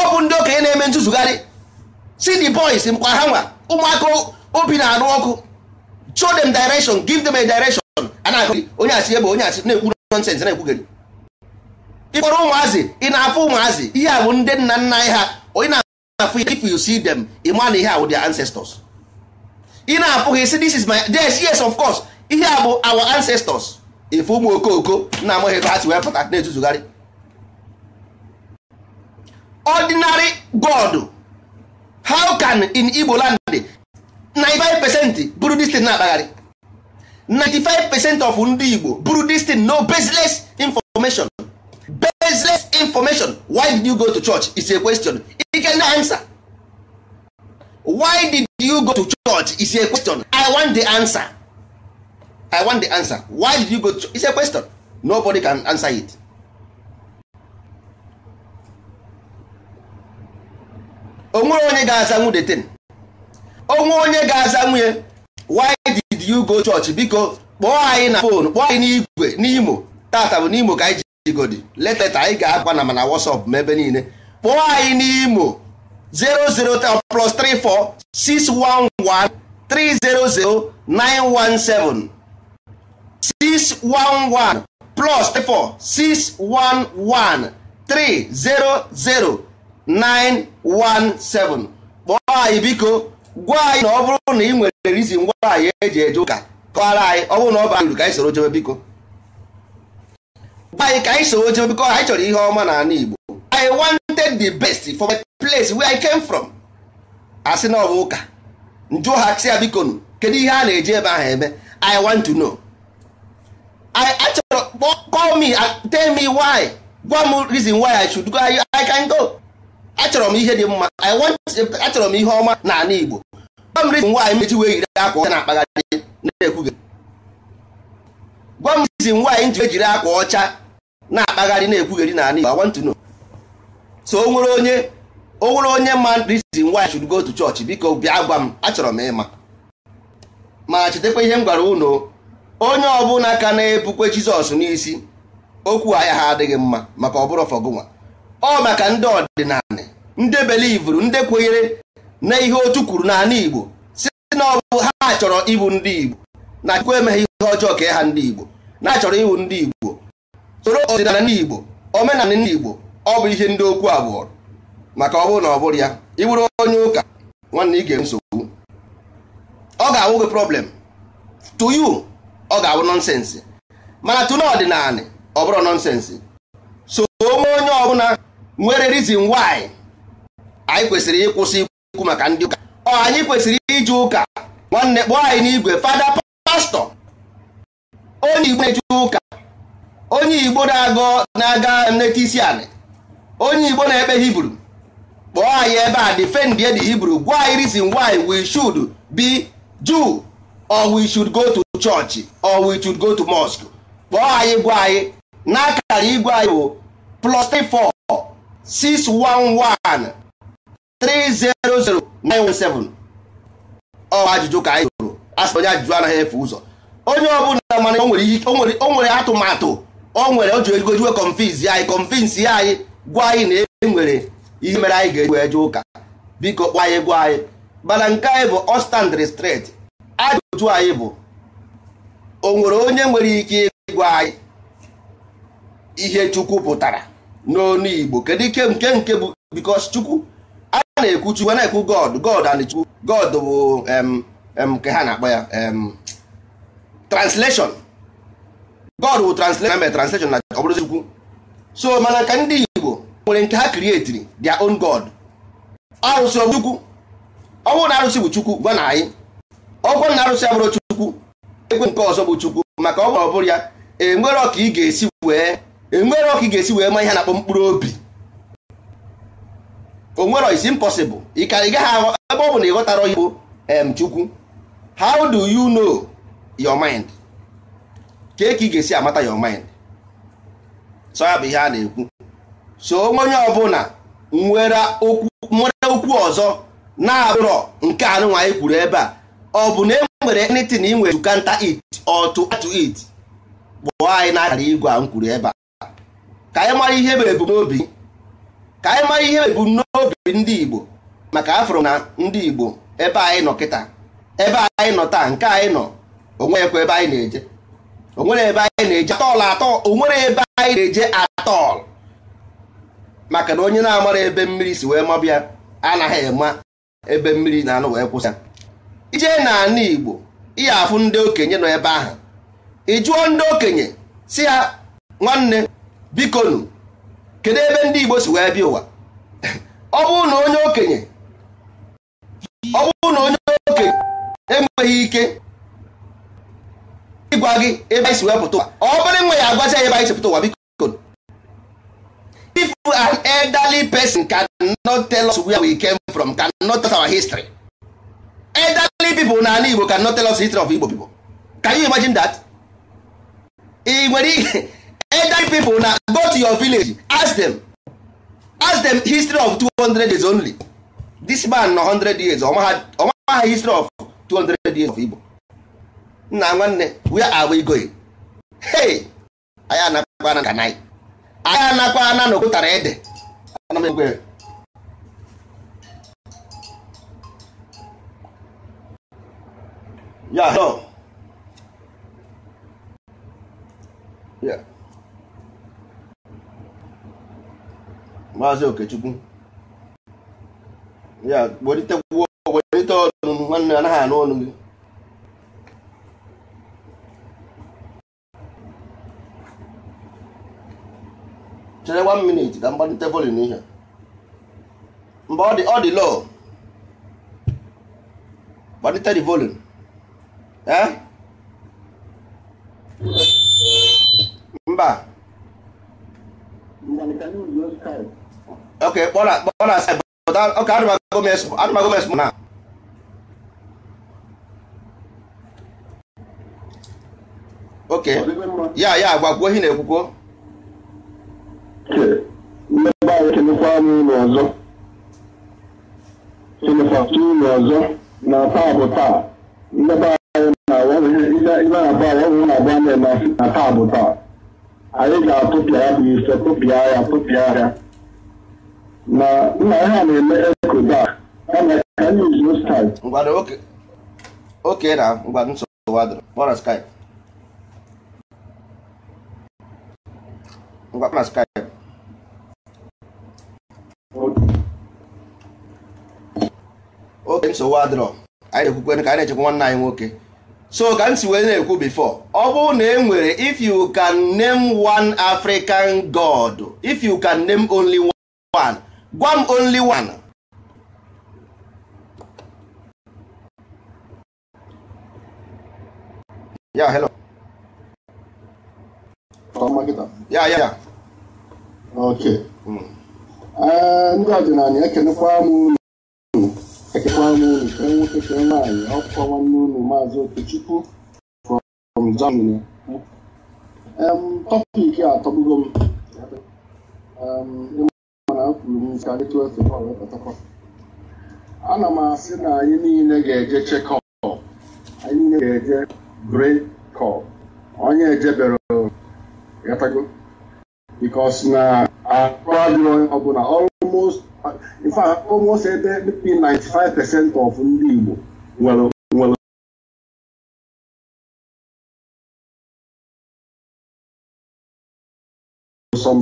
ọ bụ ndị okenye na-eme ntụzugharị si the boys mkpa ha nwa ụmụaka obi na-anụ ọkụ show them direction give them a direction a na-akụ onye asị ebe onye asị na-ekwu nonsense na-ekwugheri ịkpọrọ ụmụazị ị na-afụ ụmụazị ihe a bụ ndị nna nna anyị ha onye na-afụ if you see them ịma na ihe a bụ their ancestors ị na-afụ ha isi this is my yes yes of course ihe a bụ our ancestors ife ụmụ okooko na-amaghị ebe ha si wee pụta na-etuzugharị ordinary god how can in igbo land 95 percent buru this na-akpagharị 95 percent of ndị igbo buru this no baseless information baseless information why did you go to church is a question you can answer why did you go to church is a question i want the answer i want the answer why did you go to church? is a question nobody can answer it onwere onye ga-aza nwunye ten onwe onye ga-aza nwunye why did you go church biko kpọọ anyị na fon kpọọ anyị n'igwe n'imo tata bụ n'imo ka anyị ji leta taa anyị ga-agba na mana WhatsApp ma ebe niile kpọọ anyị n'imo 00 uh, plus 34 611 300 917 611 plus 34 611 300 917 kpọọ anyị biko gwa anyị na ọ bụrụ na ị nwere rizin ngwa anyị eji eje ụka kọwara anyị ọ bụrụ na ọ bara uru ka anyị soro jebe biko gwa anyị ka anyị soro jebe biko anyị chọrọ ihe ọma n'ala Igbo I wanted the best for my place where I came from asị na ọ bụ ụka njụ ha sị ya biko nụ kedu ihe a na-eji ebe ahụ eme I want to know I achọrọ call me tell me why gwa m reason why I should go I can go achọrọ m ihe dị mma i want achọrọ m ihe ọma n'ala Igbo gwa m nwaanyị mechi wee yiri akwa ọcha na-akpagharị na-ekwughị gwa m rizin nwaanyị ji ejiri akwa ọcha na-akpagharị na-ekwugheri n'ala Igbo I want to know so o nwere onye o nwere onye ma rizin nwaanyị should go to church biko bịa gwa m achọrọ m ịma ma chetakwa ihe m gwara unu onye ọbụla ka na-ebukwe Jizọs n'isi okwu ahịa ha adịghị mma maka ọ bụrụ fọgụnwa ọ maka ndị ọdịnala ndị belivuru ndị kwenyere na ihe otu kwuru n'ala Igbo si na ọ bụ ha chọrọ ịbụ ndị Igbo na Chukwu emeghị ihe ọjọọ ka ha ndị Igbo na achọrọ ịbụ ndị Igbo soro ọdịnala ndị Igbo omenala ndị Igbo ọ bụ ihe ndị okwu abụọ maka ọ bụrụ na ọ bụrụ ya ịbụrụ onye ụka nwanne ị ga-enwe nsogbu ọ ga-awụ gị problem to you ọ ga-awụ nọnsensị mana tụna ọdịnala ọ bụrụ nọnsensị so onye ọbụla nwere reason why anyị kwesịrị ịkwụsị ikwu maka ndị ụka ọ anyị kwesịrị iji ụka nwanne kpọọ anyị n'igwe fada pastọ onye igbo na-eje ụka onye igbo na-aga nleta isi anị onye igbo na-ekpe hibru kpọọ anyị ebe a defend the hibru gwa anyị reason why we should be Jew or we should go to church or we should go to mosque kpọọ anyị gwa anyị n'akara igwe anyị bụ plus 34 611300917 ọ ajụjụ ka anyị jụrụ asị onye ajụjụ anaghị efe ụzọ onye ọbụla mana o nwere atụmatụ o nwere o jụrụ egojiwe anyị kọnfiz ya anyị gwa anyị na e nwere ihe mere anyị ga-eji jụ ụka biko kpọ anyị gwa anyị mana nke anyị bụ ọstandri stret ajụjụ anyị bụ o nwere onye nwere ike ịgwa anyị ihe chukwu pụtara n'onu Igbo kedu ike nke nke bụ because Chukwu a na-ekwu Chukwu na-ekwu God God and Chukwu God bụ nke ha na-akpọ ya translation God bụ translation na translation na ọ Chukwu so mana ka ndị Igbo nwere nke ha creatiri their own God arụsị ọ Chukwu na arụsị bụ Chukwu gwa na anyị ọgwụ na arụsị abụrụ Chukwu ekwe nke ọzọ bụ Chukwu maka ọ ọbụrụ ya enwere ka ị ga-esi wee enwere ọka ị ga-esi wee ma ihe na-akpọ mkpụrụ obi onwere is impossible ị ka ị gaghị ebe ọ bụ na ị ghọtara Igbo em Chukwu how do you know your mind ka ka ị ga-esi amata your mind so ya bụ ihe a na-ekwu so onye ọbụla nwere okwu ọzọ na-abụrọ nke anụnwa anyị kwuru ebe a ọ bụ na e nwere anything ị nwere to counter it or to add to it gbụọ anyị n'akara igwe a m kwuru ebe a ka anyị mara ihe bụ ebumnobi ka anyị mara ihe ebumnobi ndị Igbo maka afro na ndị Igbo ebe anyị nọ kịta ebe anyị nọ taa nke anyị nọ onwekwa ebe anyị na-eje onwere ebe anyị na-eje atọl atọ onwere ebe anyị na-eje atọl maka na onye na-amara ebe mmiri si wee mabịa anaghị ema ebe mmiri na-anụ wee kwụsị ijee na ana Igbo ihe afụ ndị okenye nọ ebe ahụ ị jụọ ndị okenye si ya nwanne bikonu. kedu ebe ndị Igbo si wee bịa ụwa ọ bụrụ na onye okenye ọ bụrụ na onye okenye enweghị ike ịgwa gị ebe anyị si wee pụta ụwa ọ bụrụ nwe ya agwazi ebe anyị si pụta ụwa bikonu. if an elderly person not tell us where we came from can not tell us our history elderly people na ala Igbo not tell us history of Igbo people can you imagine that? ị nwere ihe elderly people na go to your village ask them ask them history of 200 years only this man no 100 years ọma ha history of 200 years of Igbo nna nwanne where are we going hey anyị anakwa ana kanai na ede ana ya yeah. maazị okechukwu ya welite ọnụ nwanne anaghị anụ ọnụ gị chere one minute ka mgbalite volin ihe mgbe ọ dị ọ dị lọọ. gbalite the volin mba ok, kpọrọ kpọrọ asị but okay adịmago m na okay ya ya agwagwo ihe na-ekwukwo mmebe anyị ụlọ ọzọ ọzọ na taa bụ taa mmebe anyị na-abụ awọhụ na-abụ anya na taa bụ taa anyị ga-atụpịa ya bụ ife ya na nna ha na-eme ekoda oke na ngwado nsogbu adịrị kpọrọ skype ngwa kpọrọ skype oke nsogbu adịrọ anyị na-ekwukwe ka anyị na-echekwa nwanne anyị nwoke so ka m si wee na-ekwu before ọ bụrụ na e nwere if you can name one African god if you can name only one gwa m only one hmm. eh, ya hello ya ya ya okay ndị ọdịnala ekenekwa m unu ekenekwa m unu ke nwoke ke nwaanyị ọkwa nwanne unu maazị okechukwu from germany eh, tọpik a tọgbugo m eh, na anyị tụọ efe ana m asị na anyị niile ga-eje chekọp anyị niile ga-eje brekọp kọp onye ejebere gatago bikos na akụ onye ọbụla almost in fact almost ebe 95% of ndị Igbo nwere nwere some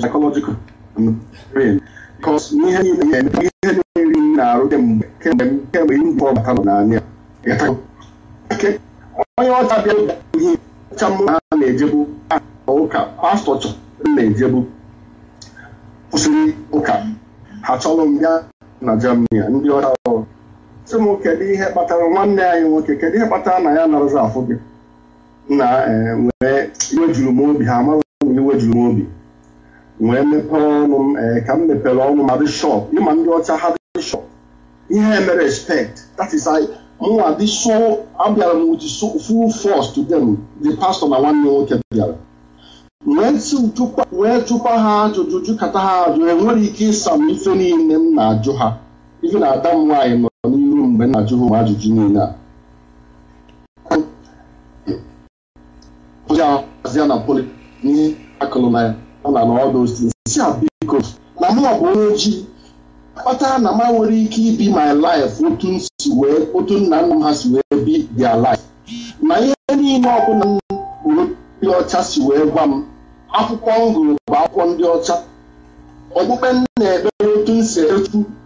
because ihe niile ihe niile na-arụ kemgbe kemgbe m kemgbe ihe mbụ ọbata nọ n'anya onye ọcha bịa ihe ọcha mmụọ ha na-ejebu ụka pastọ chọrọ na-ejebu kwụsịrị ụka ha chọrọ m bịa na Germany ndị ọcha ọrụ sị m kedu ihe kpatara nwanne anyị nwoke kedu ihe kpatara na ya narazi afụ gị na wee iwe juru m obi ha amaghị iwe juru m obi wee mepee ọnụ m ee eh, ka m mepere ọnụ m adị ịma ndị ọcha ha dị ihe mere respect that is I mụnwa dị so abịara m with full force to them the pastor na nwanne nwoke bịara wee jụkwa ha ajụjụ jụkata ha ajụ enwere eh, ike ịsa m ife niile m na-ajụ ha ife na ada m nwaanyị nọ n'iru mgbe m na-ajụ ha ụmụ ajụjụ niile a ozi na poli n'ihe akụlụ na ya na ọdụ si na mụ bụ onye ojii kpatara na ma nwere ike ibi my life otu nna nna m ha si wee bi dia life na ihe niile ọbụla m bụrụ ndị ọcha si wee gwa m akwụkwọ m gụrụ bụ akwụkwọ ndị ọcha okpukpe m na-ekpere otu m si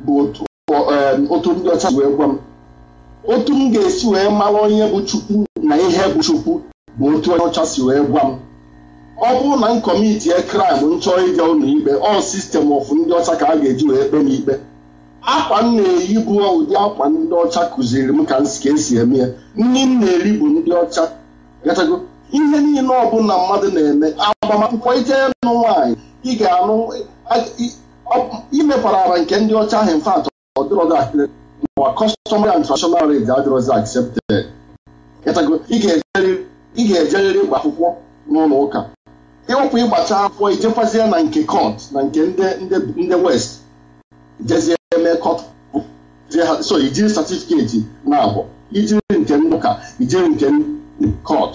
bụ um, otu ndị ọcha si wee gwa m otu m ga-esi wee mara onye bụ chukwu na ihe bụ chukwu bụ otu onye ọcha si wee gwa m ọ bụrụ na m kọmitie kraịm nchọ ịga ụlọ ikpe ọ sistem of ndị ọcha ka a ga-eji wee kpe m ikpe akwa m na-eyi bụ ụdị akwa ndị ọcha kụziri m ka m ka esi eme ya nri m na-eri bụ ndị ọcha gatago ihe niile ọbụla mmadụ na-eme agbamakwụkwọ ije nụ nwaanyị ị ga-anụ ara nke ndị ọcha ahụ mfe atọ ọdịrọdakịrị ma kọstọm adịrọzi accepted ị ga ejeriri ịgba akwụkwọ n'ụlọ ụka ịwụkwụ ịgbacha akwụkwọ ijekwazie na nke kọt na nke ndị west jezie eme kọt so ijiri satifiketi na-abụ ijiri nke ndị ụka ijiri nke kọt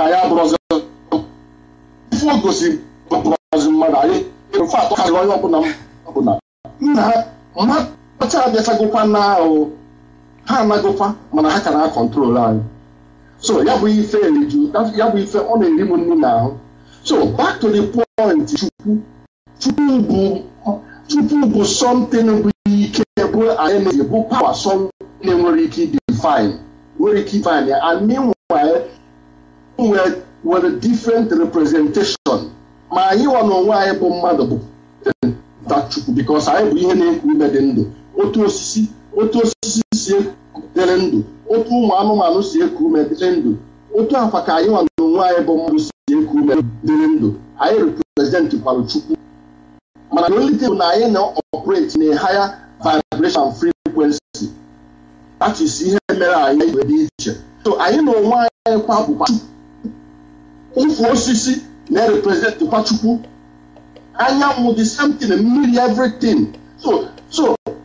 anyị abụrụzi ife ogosi bụrụzi mmadụ anyị mfe atọ karịrị onye ọbụla ọbụla nna ha mmadụ ọcha abịachagokwa na ahụ ha anagokwa mana ha ka na-akọntrol anyị so ya bụ ife eriju ya bụ ife ọ na-eri m nnu n'ahụ so back to the point chukwu chukwu bụ chukwu bụ something bụ ike bụ energy bụ power something nwere ike define nwere ike define ya and meanwhile nwere different representation ma anyị nwa n'onwe anyị bụ mmadụ bụ chukwu because anyị bụ ihe na-ekwu ime dị ndụ otu osisi otu osisi si dịrị ndụ otu ụmụ anụmanụ si eku ume dịrị ndụ otu akwa ka anyị nwa anyị bụ mmadụ si eku ume dịrị ndụ anyị reprezentị kwalụ chukwu mana na olite bụ na anyị na-operate na higher vibration frequency that is ihe mere anyị iwe dị iche anyị na onwe anyị kwa bụkwa ụfụ osisi na Kwa chukwu anyanwụ the same mmiri everything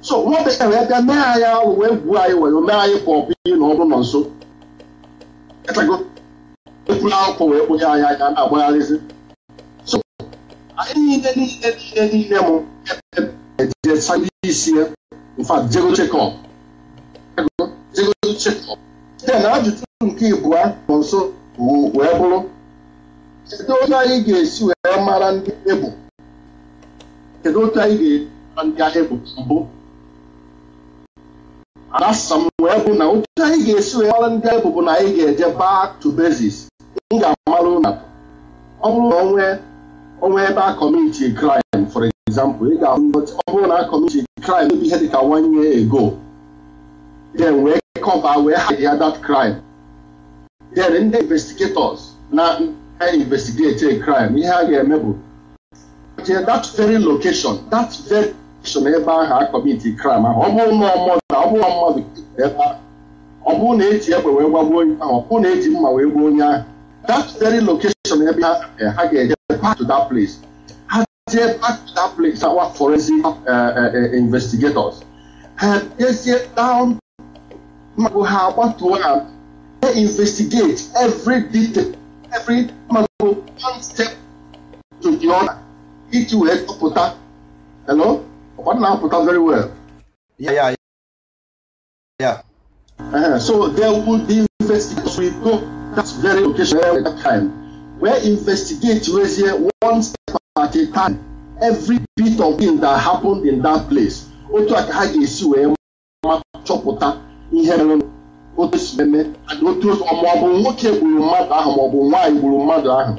so nwata ya wee bịa mee anya wee gwuo anyị were mee anyị ka bụ na ọ bụrụ nọ nso ekwula akwụkwọ wee kpụnye anyị anya na-agbagharịzi so anyị niile niile niile niile m isi mfa ajụjụ nke ịbụa nọ nso wee bụrụ kedu otu anyị ga-esi wee mara ndị ebụ kedu otu anyị mbụ adasa m wee kwụ na otu anyị ga-esi wee mara ndị anyị bụbụ na anyị ga-eje back to basis m ga-amarụ na ọ bụrụ na onwe onwe ebe a kọmiti crime for example ị ga-ahụ ọ bụrụ na a kọmiti crime ebe ihe dịka one year ago then wee cover wee hide ya that crime then ndị investigators na investigate a crime ihe a ga-eme bụ that very location that very location ebe ahụ a kọmiti crime ahụ ọ bụrụ na ọmọ ọ bụrụ mmadụ ebe a ọ bụrụ na eji egbe wee gbagbuo onye ahụ ọ bụrụ na eji mma wee gbuo onye ahụ that very location ebe eh, ha ga-eje back to that place ha jee back to that place awa forensic eh, eh, investigators ha jezie down magụ ha gbatuo ha they investigate every detail every magụ one step to the other iji wee tụpụta hello ọ na-apụta very well yeah, yeah, Yeah. Uh, so there would be investigators we go that's very location at that time. Where investigate here one step at a time. Every bit of thing that happened in that place. Otu ha ga-esi wee ma chọpụta ihe mere otu si meme otu maọbụ nwoke gburu mmadụ ahụ maọbụ nwaanyị gburu mmadụ ahụ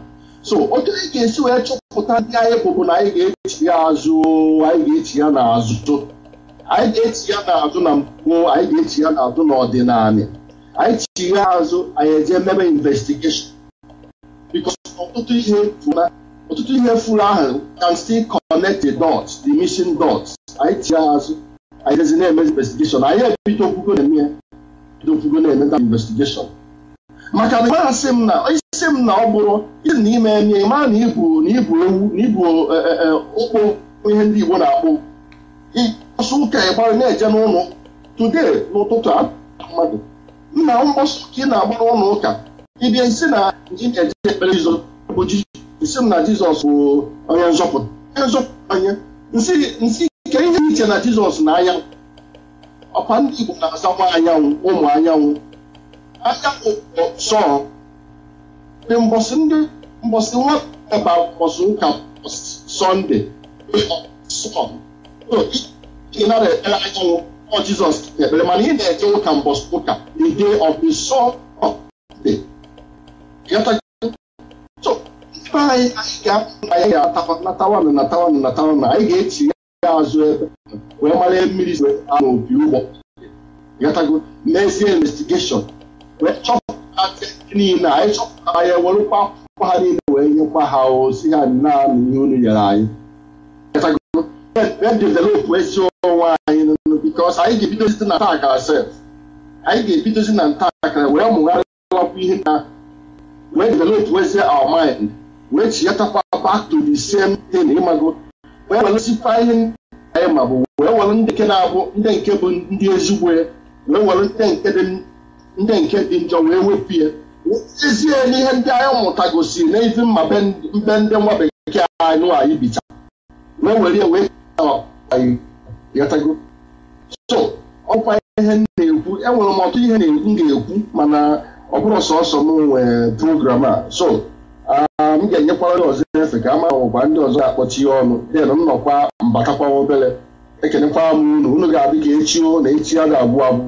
so otu anyị ga-esi wee chọpụta ndị na anyị ga-echi ya azụ anyị ga-echi ya n'azụ anyị ga-echi ya n'azụ na mgbo anyị ga-echi ya n'azụ n'ọdịnala anyị chi ya azụ anyị eje mebe investigeshọn bikos ọtụtụ ihe ọtụtụ ihe furu ahụ can still connect the dots the missing anyị chi ya azụ anyị jezi na-eme investigeshọn anyị ebido okwugo na-eme bido okwugo na-emeta investigeshọn maka na masị m na isi m na ọ bụrụ isi na ime eme ma na ibu na ibu ewu na ibu okpo e, e, e, ihe ndị Igbo na akpụ ịkpọsụ ụka ịgbara na-eje n'ụlọ tude n'ụtụtụ mmadụ nna mgbọsọ ka ị na agbara ụlọ ụka ịbịa isi na ji na-eje ekpere izo bụ isi m na jizọs bụ onye nzọpụta onye nzọpụta onye nsị ike ihe iche na jizọs na anya ọkwa ndị igbo na-aza nwa anyanwụ ụmụ anyanwụ anyanwụ sọọ dị mbọsị ndị mbọsị nwa ọba mbọsị ụka sọnde sọ ị ọ Jizọs ekpere mana ị na-eje ụka mbọsị ụka the day of the soul of the ebe anyị anyị ga-apụ anyị ga na natawanụ na natawanụ anyị ga-echi ya azụ ebe wee mara mmiri si a n'obi ụgbọ gatago n'ezie investigeshọn wee chọpụta niile anyị chọpụtara ya werụkwa akwụkwọ ha niile wee nyekwa ha ozi ha naanị ihe unu nyere anyị na-edevelopụ ezi anyị bikos anyị ga-ebidozi na ntaakara sef anyị ga-ebidozi na ntaakara wee mụgharịwapụ ihe na wee developụ ezi our mind wee chiyatakwa back to the same thing ịmago wee welụsikwa ihe ndị na-abụ ndị bụ wee were ndị nke dị wepụ ya ezie n'ihe ndị anyị mụta gosiri na ndị nwa anyị ghọtago so ọkwa ihe na-ekwu enwere m ọtụ ihe na-ekwu ga-ekwu mana ọ bụrụ sọsọ m nwee program a so ah, m ga-enyekwara ndị ọzọ efe ka ama ụba ndị ọzọ ga akpọchi ya ọnụ den nnọkwa mbatakwa obere ekelekwara m unu unu ga-adị ka echi na echi a ga-abụ abụ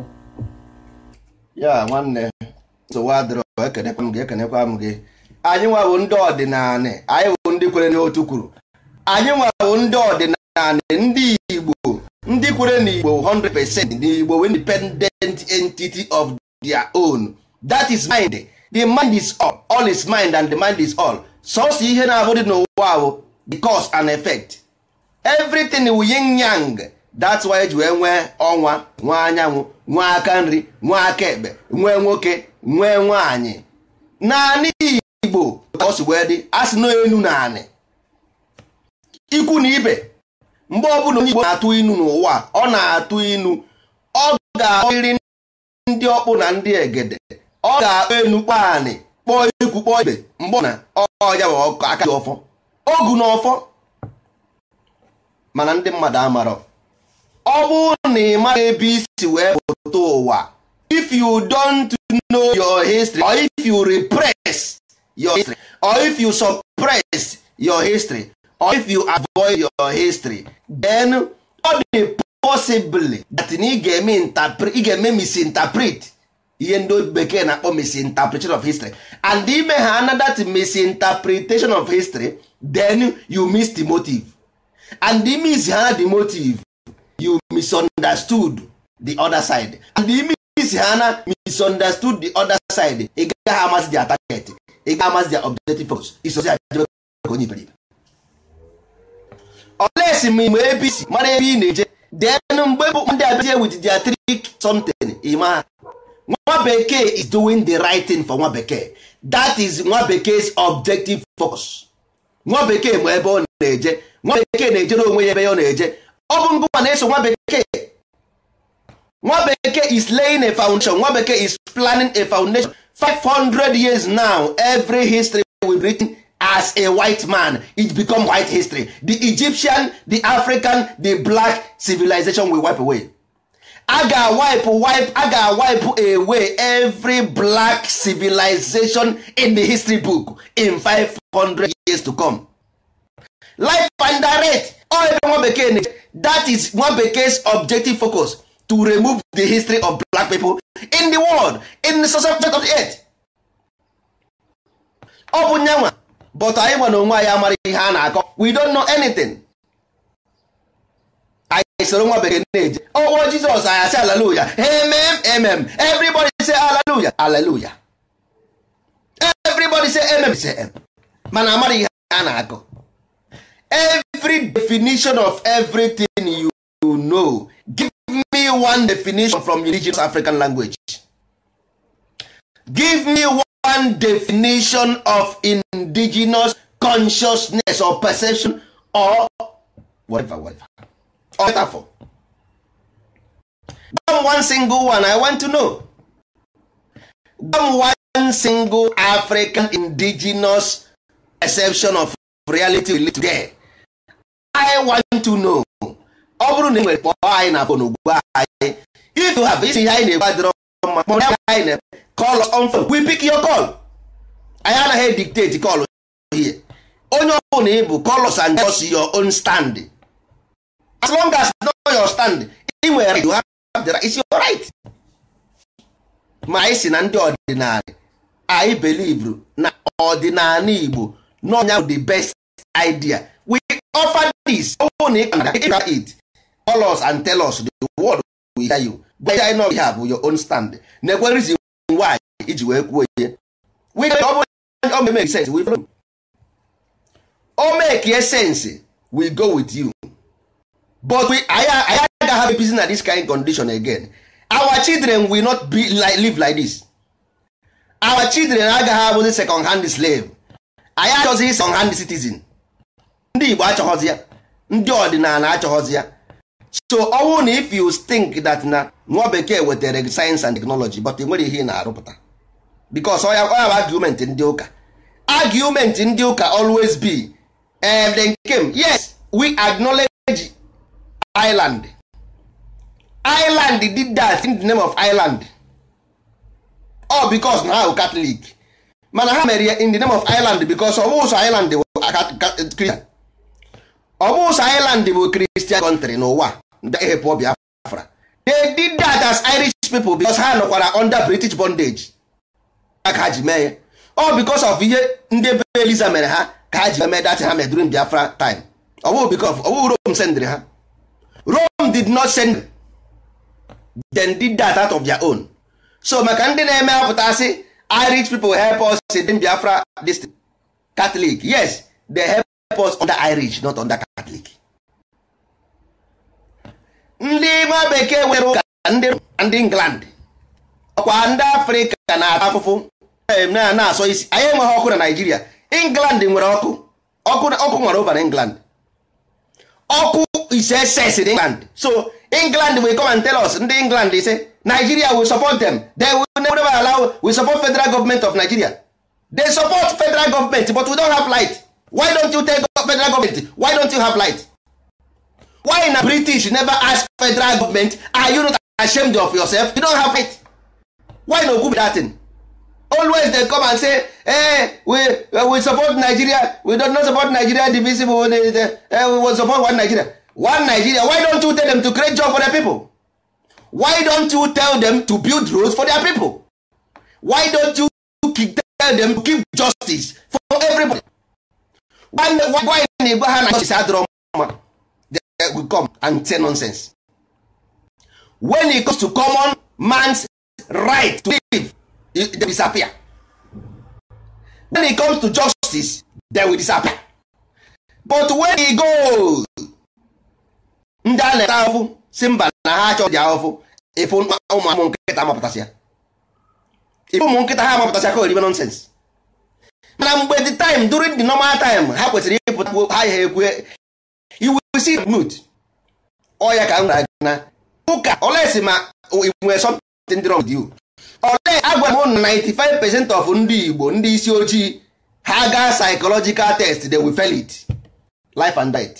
ya nwanne nsogbu adịrọ ekenekwa m gị ekenekwa m gị anyị nwa bụ ndị ọdịnala anyị bụ ndị kwere n'otu kwuru anyị nwa bụ ndị ọdịnala and ndị Igbo ndị kwere na Igbo 100% n'igbo independent entity of their own that is mind the mind is all all is mind and the mind is all sọsọ ihe na-abụ dị n'ụwa ahụ the cause and effect everything wu yin yang that's why eji wee nwee ọnwa nwee anyanwụ nwee aka nri nwee aka ekpe nwee nwoke nwee nwaanyị naanị Igbo ka ọ si wee dị asị na enu naanị ikwu na ibe mgbe ọbụla onye Igbo na-atụ inu n'ụwa ọ na-atụ inu ọ ga-akpọrịrị ndị ọkpụ na ndị egede ọ ga-akpọ enu kpọọ anị kpọọ ikwu kpọọ ibe mgbe ọ na ọya bụ aka dị ọfọ ogu na ọfọ mana ndị mmadụ amarọ ọ bụrụ na ị maghị ebe isi wee pụta ụwa if you don't know your history or if you repress your history or if you suppress your history or if you avoid your history then ọ dị possibly that na ị ga-eme misinterpret ihe ndị bekee na-akpọ misinterpretation of history and ime ha another that misinterpretation of history then you miss the motive and the miss ha the motive you misunderstood the other side and the miss ha na misunderstood the other side ị gaghị amasị their target ị gaghị amasị their objective focus isozi ajebe ka onye iberibe olesi ma ime apc mara ebe ị na-eje denu mgbe bụ ndị abazie with their trick something ima nwa bekee is doing the right thing for nwa bekee that is nwa bekee's objective focus nwa bekee ma ebe ọ na-eje nwa bekee na-ejere onwe ya ebe ọ na-eje ọ bụ ngụwa na-eso nwa bekee nwa bekee is laying a foundation nwa bekee is planning a foundation 500 years now every history will be written as a white man it become white history the Egyptian the African the black civilization will wipe away a ga wipe a ga away every black civilization in the history book in 500 years to come life and all ebe one bekee na that is nwa bekee's objective focus to remove the history of black people in the world in the subject of the earth ọ bụ nyanwa but anyị nwa na onwe anyị amara ihe a na-akọ we don't know anything anyị soro nwa bekee na-eje ọwụwa oh, oh, jizọs anyị asị aleluya emem emem everybody say aleluya aleluya everybody say emem say em mana amara ihe a na-akọ every definition of everything you know give me one definition from indigenous African language give me one definition of indigenous consciousness or perception or whatever whatever or metaphor gwa m one single one i want to know gwa one single african indigenous perception of reality we live today i want to know ọ bụrụ na ị nwere kpọọ anyị na fon ugbu anyị if you have isi ihe anyị na-egbu adịrọ mma kpọrọ anyị na call on phone we pick your call anyị anaghị dictate call here onye ọbụla ị bụ call us and just your own stand as long as know your stand ị nwere right you have the right is your right ma anyị si na ndị ọdịnala anyị belivru na ọdịnala Igbo n'ọnya the best idea we offer this ọbụna ị kana ịga it call us and tell us the word we hear you gwa anyị na ọ bụ your own stand na-ekwe reason nwaanyị iji wee kwuo ihe o sense we go with you but we anyị agaghị have peace na this kind condition again our children will not be like, live like this our children agaghị abụzi second hand slave anyị achọghị second hand citizen ndị Igbo achọghọzi ya ndị ọdịnala achọghọzi ya so ọwụ na if you think that na nwa bekee wetere science and technology but e nwere ihe ị na-arụpụta because ọ ya bụ argument ndị ụka argument ndị ụka always be um, the nkem yes we acknowledge Ireland Ireland did that in the name of Ireland all because na ha Catholic mana ha mere in the name of Ireland because ọ bụ ụzọ Ireland Christian ọ bụ ụsọ Ireland bụ Christian country n'ụwa ehepụ Biafra they did that as Irish people because ha nọkwara under British bondage ka ha ji mee ya ọ because of ihe ndị be Eliza mere ha ka ha ji mee that ha mere during Biafra time ọ bụ because ọ bụ Rome sendịrị ha Rome did not send them did that out of their own so maka ndị na-eme apụta sị Irish people help us in Biafra district Catholic yes they help us under Irish not under Catholic ndị nwa bekee nwere ụka ndị England ọkwa ndị Afrịka na-ata afụfụ na-asọ isi anyị enweghị ọkụ na Naịjirịa England nwere ọkụ ọkụ nwere over na England ọkụ is excess in England so England will come and tell us ndị England ise Nigeria will support them they will never allow we support federal government of Nigeria they support federal government but we don't have why don't you up federal government why don't you have light why na british never ask federal government are you not ashamed of yourself you don't have light why no good that thing? always dem come and say hey, eh, we eh, we support nigeria we don't not support nigeria divisible we, they, eh we support one nigeria one nigeria why don't you tell them to create job for their people why don't you tell them to build roads for their people why don't you tell them to keep justice for everybody nwanne nwaanyị na-ebu ha na chọchịsị adịrọ mma will come and say nonsense when it comes to common man's right to live they disappear when it comes to justice they will disappear but when he goes ndị a na-eta ahụfụ si mba na ha achọ dị ahụfụ ife ụmụ nkịta ha mapụtasịa ife ụmụ nkịta ha mapụtasịa ka oribe nonsense na mgbe the time during the normal time ha kwesịrị ịpụta ha ya ekwe iwusi mut ọya ka m gwara gị na ụka olesi ma nwere something wrong with you ole agwara m na 95 percent of ndị Igbo ndị isi ojii ha gaa psychological test they will fail it life and death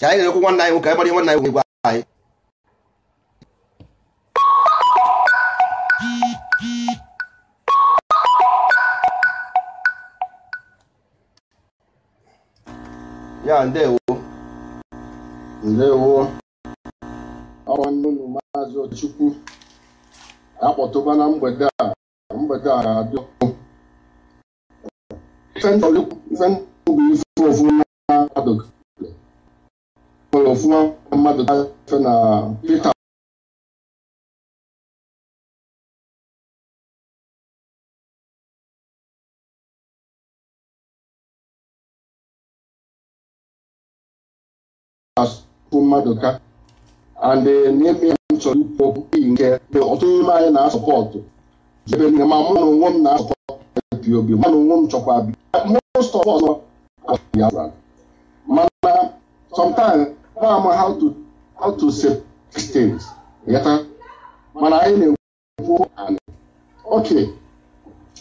ka anyị na-ekwu nwanne anyị nwoke anyị gbara nwanne anyị nwoke gwa anyị ya ndewo ndewo nwanne unu maazị Ochukwu akpọtụba na mgbede a mgbede a ga-adị ọkụ ife ndụ bụ ife ofu mmadụ mmadụ na mmadụ ka and n'ime ya m chọrọ ikwu okwu iyi nke ọtụtụ n'ime anyị na-asọpọtụ ebe nne ma mụ na onwe m na-asọpọtụ pop mụ na onwe m chọkwa bi most of us ya mana sometimes ma how to how to say things yata mana anyị na-ekwu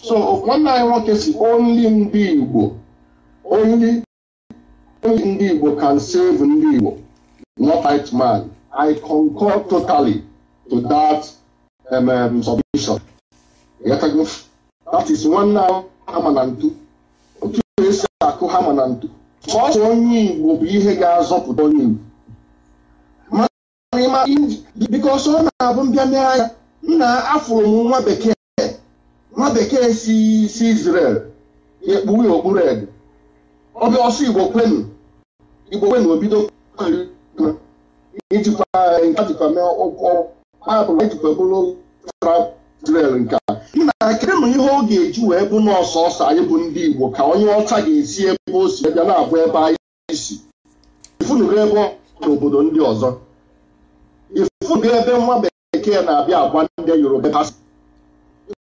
so nwanne anyị nwoke si ndị Igbo ndị Igbo save ndị Igbo not man. I concur totally to that um, um, submission. That is one now ama na ntu. Otu esi akụ hama na ntu. Sọsọ onye Igbo bụ ihe ga-azọpụta onye Igbo. Mana ọ sọ na-abụ mbịa anya nna afụrụ m nwa bekee nwa bekee si si Israel ekpuwe okpuru ede. Ọbịa ọsọ Igbo kwenu Igbo kwenu obido kwenu ijikwa nke jikwa mee ụkwụ baịbụl ejikwa bụrụ Israel nke a na kedụ m ihe ọ ga-eji wee bụ n'ọsọsọ anyị bụ ndị Igbo ka onye ọcha ga-esi ebe o si bịa na-abụ ebe anyị si ifunugo ebe n'obodo ndị ọzọ ifunugo ebe nwa bekee na-abịa agwa ndị Yoruba ebe ha si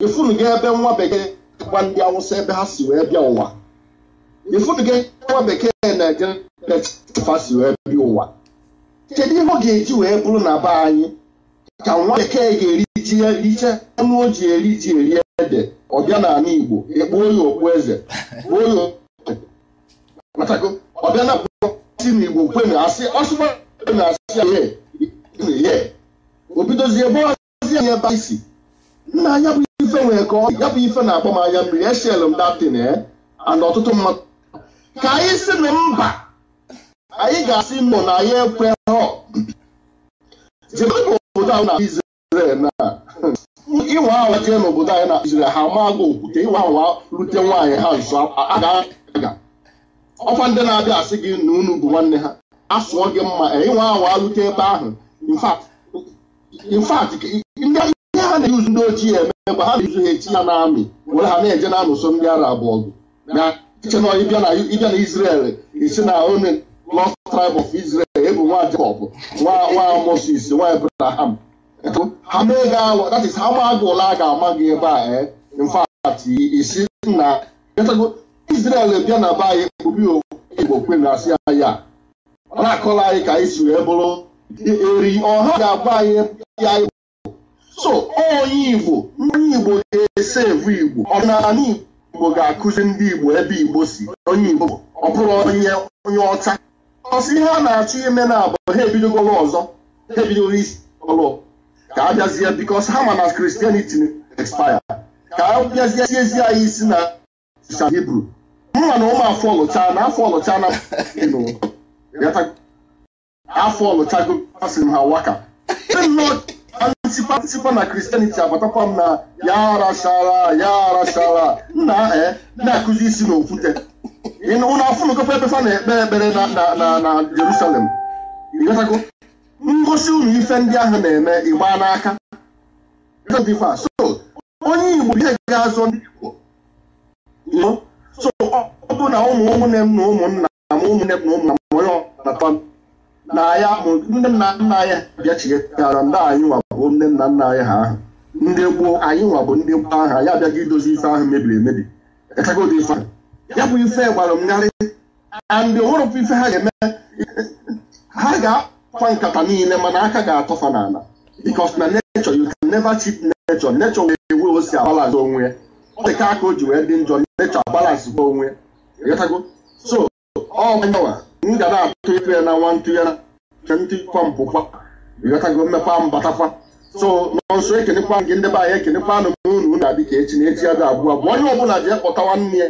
ifunugo ebe nwa bekee agwa ndị Awụsa ebe ha si wee bịa ụwa ifunugo ebe nwa bekee na-eje ha si wee bịa ụwa kedu ihe ọ ga-eji wee bụrụ na be anyị ka nwa bekee ga-eriji riche ọnụ o ji eri ji eri ede ọbịa n'ala Igbo ekpuo ya okpu eze kpuo ọbịa na si na Igbo kwe na asị na e asị ya obidozie ọzi anya ebe isi nna anya bụ ife ka ọ ya bụ ife na-akpọ m anya mmiri m datin eh, and ọtụtụ mmadụ ka anyị si na mba anyị ga-asị mụ na ya ekwe hụ zigbanye obodo ahụ na Izrel na ịwa awa jee n'obodo anyị na Izrel ha maagụ okwute ịwa awa rute nwaanyị ha nso aga ọkwa ndị na-abịa asị gị na unu bụ nwanne ha asụọ gị mma ịnwa e, awa rute ebe ahụ infat ndị ihe ha na-eyuzu ndị ochie eme mgbe ha na-eyuzu ha echi ya n'amị were ha na-eje na-anụso ndị ara abụọ gị na iche na ịbịa na Izrel esi na onye lost tribe of Israel ebu nwa Jacob nwa Moses nwa Abraham ha that is a ga-ama gị ebe a in fact isi na Israel bịa na be anyị kpubi Igbo kwe na ya ọ na anyị ka anyị si wee bụrụ eri ọha ga-agba anyị ya so onye Igbo ndị Igbo ga-ese Igbo ọdịnala Igbo ga-akụzi ndị Igbo ebe Igbo si onye Igbo ọ bụrụ onye ọcha ọsị ihe a na-achọ ime na abụ ha ebidogoro ọzọ ha ebidoro isi ọlụ ka a bịazie bikos ha ma na kristianity expire ka a bịazie siezi anyị isi na sa hibru mma na ụmụ afọ ọlụcha na afọ ọlụcha na afọ ọlụchago asị m ha waka ntịpa na kristianity abatakwa m na ya arachara ya arachara nna eh, na-akụzi isi na okwute unu afụnụkọkwa ebe fa na-ekpere ekpere na Jerusalem ngosi unu ife ndị ahụ na-eme ịgba n'aka so onye Igbo ihe ga-azụ ndị Igbo so ọ bụ na ụmụ ụmụnne m na ụmụnna m ụmụnne m na ụmụnna m onye ọnata na ya bụ ndị nna nna anyị bịachighara ndị anyị nwa ndị nna nna anyị ha ahụ ndị gboo anyị nwa ndị gboo ahụ anyị abịaghị idozi ife ahụ mebiri emebi ya bụ ife gbara m narị andị onwerụkwa ife ha ga-eme ha ga-akwa nkata niile mana aka ga-atọfa n'ala because na nature you can never cheat nature nature wee ewe o si agbalazị onwe ya ọ dịka aka o ji wee dị njọ nature gwa onwe ịghọtago so ọ manyawa m ga na-atụ ịtụ ya na nwa ntụ ya na ntụ kwa mpụkwa ịghọtago mmekwa mbatakwa so nọnso ekenekwa gị ndị be anyị ekenekwa anụ m unu na-adị ka echi na echi ya ga abụọ abụọ onye ọbụla ji ekpọta nwanne ya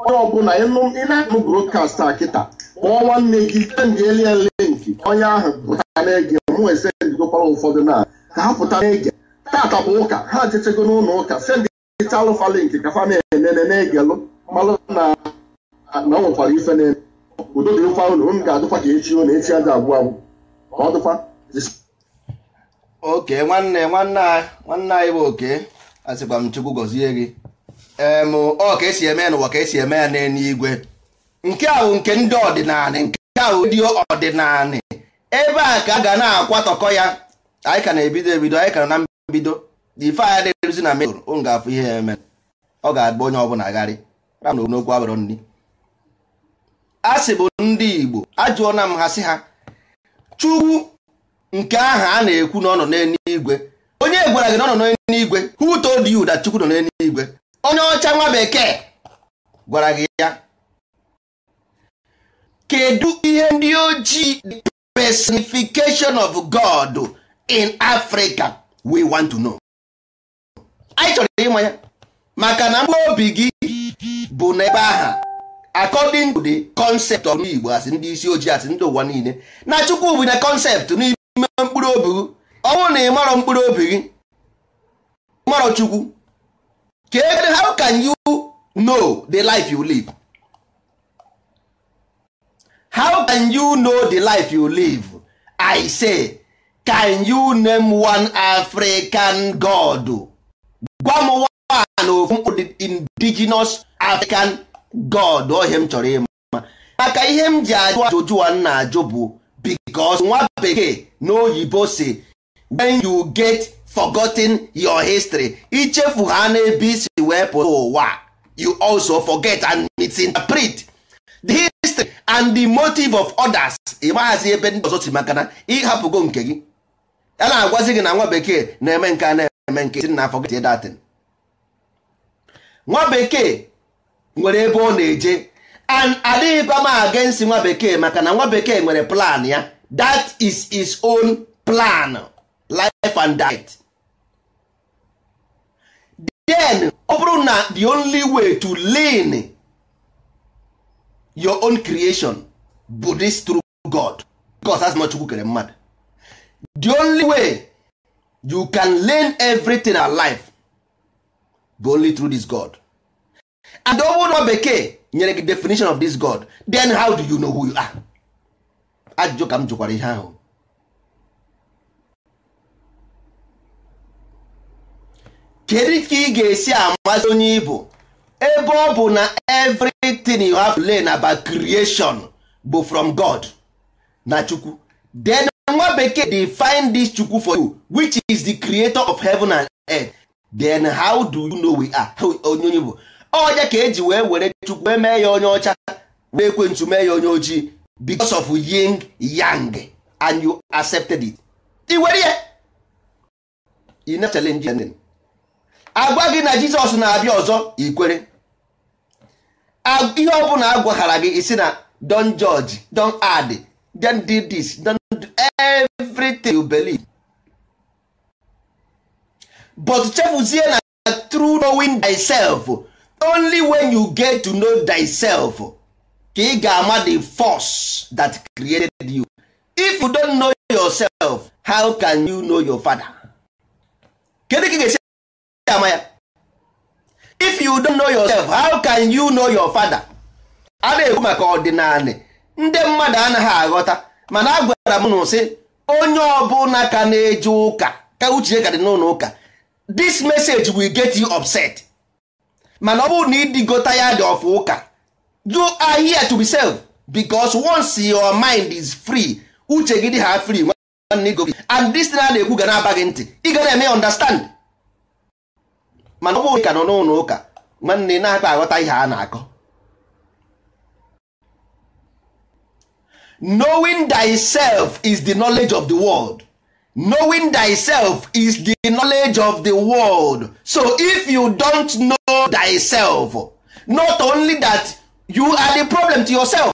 onye ọbụla ị na-anụ brokast a kịta kpọọ nwanne gị sendịeli ya nke onye ahụ pụtara na-ege mụ esendigokwara ụfọdụ na ka ha pụta na-ege tata bụ ụka ha jechego n'ụlọ ụka sendịta alụfa linki ka fa na-enene na-egelụ malụ na na ọ nwekwara ife na udo dị mkpa ụlọ m ga-adụkwa ka echi ụlọ echi aja agwụ agwụ ka ọ dụkwa oke nwanne nwanne anyị nwanne anyị bụ oke asịkwa m chukwu gọzie gị ọ ka esi eme ya n'ụwa ka esi eme ya n'eluigwe nke ahụ nke ndị ọdịnala nke ahụ ndị ọdịnala ebe a ka a ga na-akwatọkọ ya anyị ka na-ebido ebido anyị ka na mbido ife anya na-eruzi na mejọr ụ ga-afụ ihe ya eme ọ ga-agba onye ọbụla gharị ram na okwu abụrụ nri a sị bụ ndị Igbo ajụọna m ha sị ha Chukwu nke ahụ a na-ekwu na ọ nọ n'eluigwe onye gwara gị na ọ nọ n'eluigwe who told you that Chukwu nọ n'eluigwe onye ọcha nwa bekee gwara gị ya kedu ihe ndị ojii the personification of God in Africa we want to know anyị chọrọ ịma ya maka na mkpụrụ obi gị bụ n'ebe aha according to the concept of Igbo asị ndị isi ojii asị ndị ụwa niile na Chukwu bụ na concept n'ime mkpụrụ obi gị ọ bụrụ na ị marọ mkpụrụ obi gị marọ Chukwu kedu how can you know the life you live how can you know the life you live i say can you name one african god gwa m one ofu indigenous african god ohe m chọrọ ịma maka ihe m ji ajụ ajụjụ a na-ajụ bụ because nwa bekee na oyibo si when you get forgotten your history ichefu ha n'ebe isi wee pụta ụwa you also forget and misinterpret the history and the motive of others ịmaghazi ebe ndị ọzọ si maka na ịhapụgo nke gị a na-agwazi gị na nwa bekee na-eme nke a na-eme nke si na forget that nwa bekee nwere ebe ọ na-eje and adịghịkwa m against nwa bekee maka na nwa bekee nwere plan ya that is his own plan life and death then ọ bụrụ na the only way to lean your own creation bụ this true God because as not kere mmadụ the only way you can lean everything alive bụ only through this God and ọ bụrụ na bekee nyere gị definition of this God then how do you know who you are ajụjụ ka m jụkwara ihe ahụ kedu ka ị ga-esi amazi onye ibo ebe ọ bụ na everything you have learned about creation bụ from God na chukwu then nwa bekee find this chukwu for you which is the creator of heaven and earth then how do you know we are onye onye bụ ọja ka eji wee were chukwu wee mee ya onye ọcha wee ekwentu mee ya onye ojii because of yin yang and you accepted it i were ya ị na challenge agwa gị na jizọs na-abịa ọzọ ikwere ihe ọbụla agwaghara gị isi na don judge don add don do this don do everything you believe but chefuzie na through knowing thyself only when you get to know thyself ka ị ga-ama the force that created you if you don't know yourself how can you know your father kedu ka ị ga-esi ama ya if you don't know yourself how can you know your father a na-ekwu maka ọdịnala ndị mmadụ anaghị aghọta mana a gwara m na sị onye ọbụla ka na-eje ụka ka uche ka dị n'ụlọ ụka this message will get you upset mana ọ bụrụ na ịdịgota ya dị ọfụ ụka you are here to be self because once your mind is free uche gị dị ha free and this na na-ekwu ga na-aba gị ntị ị ga na-eme understand mana ọ bụghị ka nọ n'ụlọ ụka nwanne na-akpa aghọta ihe a na-akọ knowing thyself is the knowledge of the world knowing thyself is the knowledge of the world so if you don't know thyself not only that you are the problem to yourself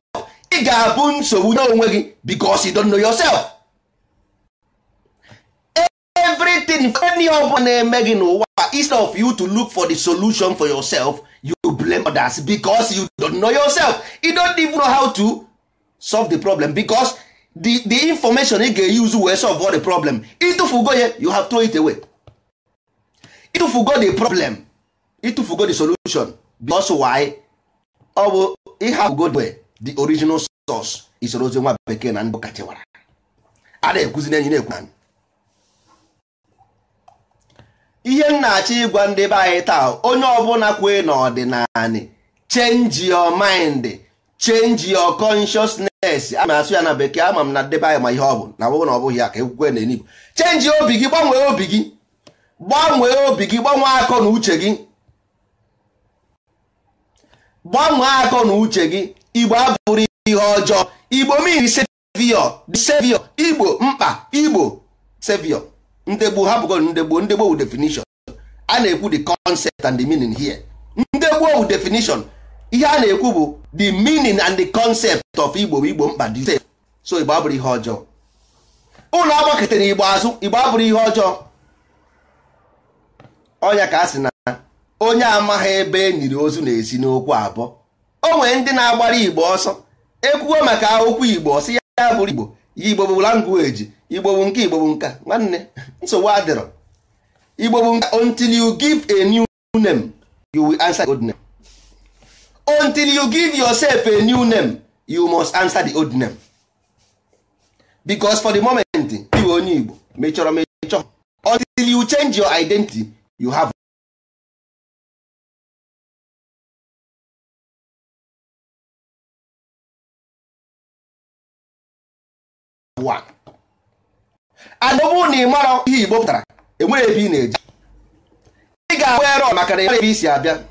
ị ga-abụ nsogbu n'onwe gị because you don't know yourself. anything any ọbụla na-eme gị n'ụwa instead of you to look for the solution for yourself you blame others because you don't know yourself you don't even know how to solve the problem because the, the information ị ga-use wee solve all the problem ịtụfugo ya you have throw it away ịtụfugo the problem ịtụfugo the solution because why ọ bụ ịhapụgo the way the original source isorozi nwa bekee na ndụ kachewara a na-ekwuzi na-ekwu ihe m na-achọ ịgwa ndị be anyị taa onye ọbụla kwee n'ọdịnala change your mind change your consciousness a na-asụ ya na bekee ama m na ndị anyị ma ihe ọ bụ na ọ na ọbụghị bụghị ya ka ekwukwe na enigbo change obi gị gbanwee obi gị gbanwee obi gị gbanwee akọ na uche gị gbanwee akọ na uche gị igbo abụrụ ihe ọjọọ igbo mmiri sevio sevio igbo mkpa igbo sevio ndegbo hapụgo ndegbo ndegbo wu definition a na-ekwu the concept and the meaning here ndegbo wu definition ihe a na-ekwu bụ the meaning and the concept of igbo igbo mkpa dị so igbo abụrụ ihe ọjọọ ụlọ agbakọtara igbo azụ igbo abụrụ ihe ọjọọ ọnya ka a sị na onye amaghị ebe e nyiri ozu na-esi n'okwu abụọ o nwere ndị na-agbara igbo ọsọ ekwugo maka okwu igbo ọsị ya abụrụ igbo ya igbo bụ language igbo nke igbo nka nwanne nsogbu adịrọ igbo nka until you give a new name you will answer the old name until you give yourself a new name you must answer the old name because for the moment iwe onye igbo mechọrọ mechọ until you change your identity you have one. adọbụ na ị mara ihe igbo pụtara enwere ebe ị na-eji ị ga-ahụ erọ maka na ebe isi abịa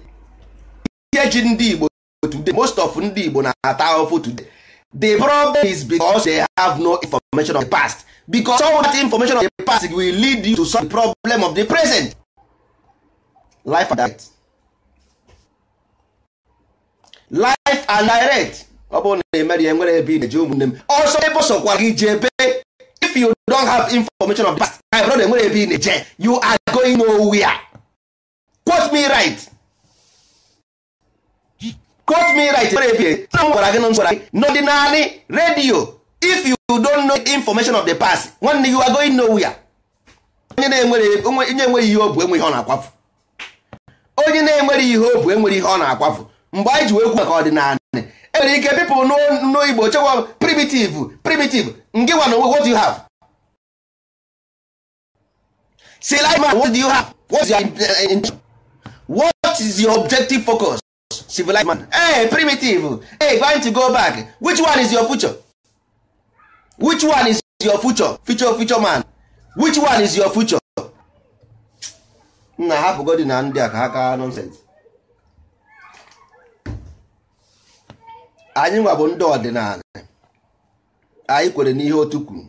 ihe ji ndị igbo today most of ndị igbo na-ata ahụhụ today the problem is because they have no information of the past because all that information of the past will lead you to solve the problem of the present life and direct life and direct ọ bụrụ na emerie nwere ebe ị na-eji ụmụnne m ọsọ ebe sọkwara gị ji ebe you don't have information of the past my brother enwere ebe ị na-eje you are going nowhere quote me right quote me right enwere ebe na gwara gị na gwara redio if you don't know information of the past nwanne you are going nowhere onye na-enwere ihe ọ bụ enweghị ihe ọ na-akwafu onye na-enwere ihe ọ bụ enwere ihe ọ na-akwafu mgbe anyị ji wee kwu maka enwere ike people n'igbo chekwa primitive primitive ngịwa na onwe what you have say like man what do you have what's your intention uh, what is your objective focus civilized man hey primitive hey going to go back which one is your future which one is your future future future man which one is your future nna hapụ godi na ndị a ka ha kaa nonsense anyị nwa bụ ndị ọdịnala anyị kwere n'ihe otu kwuru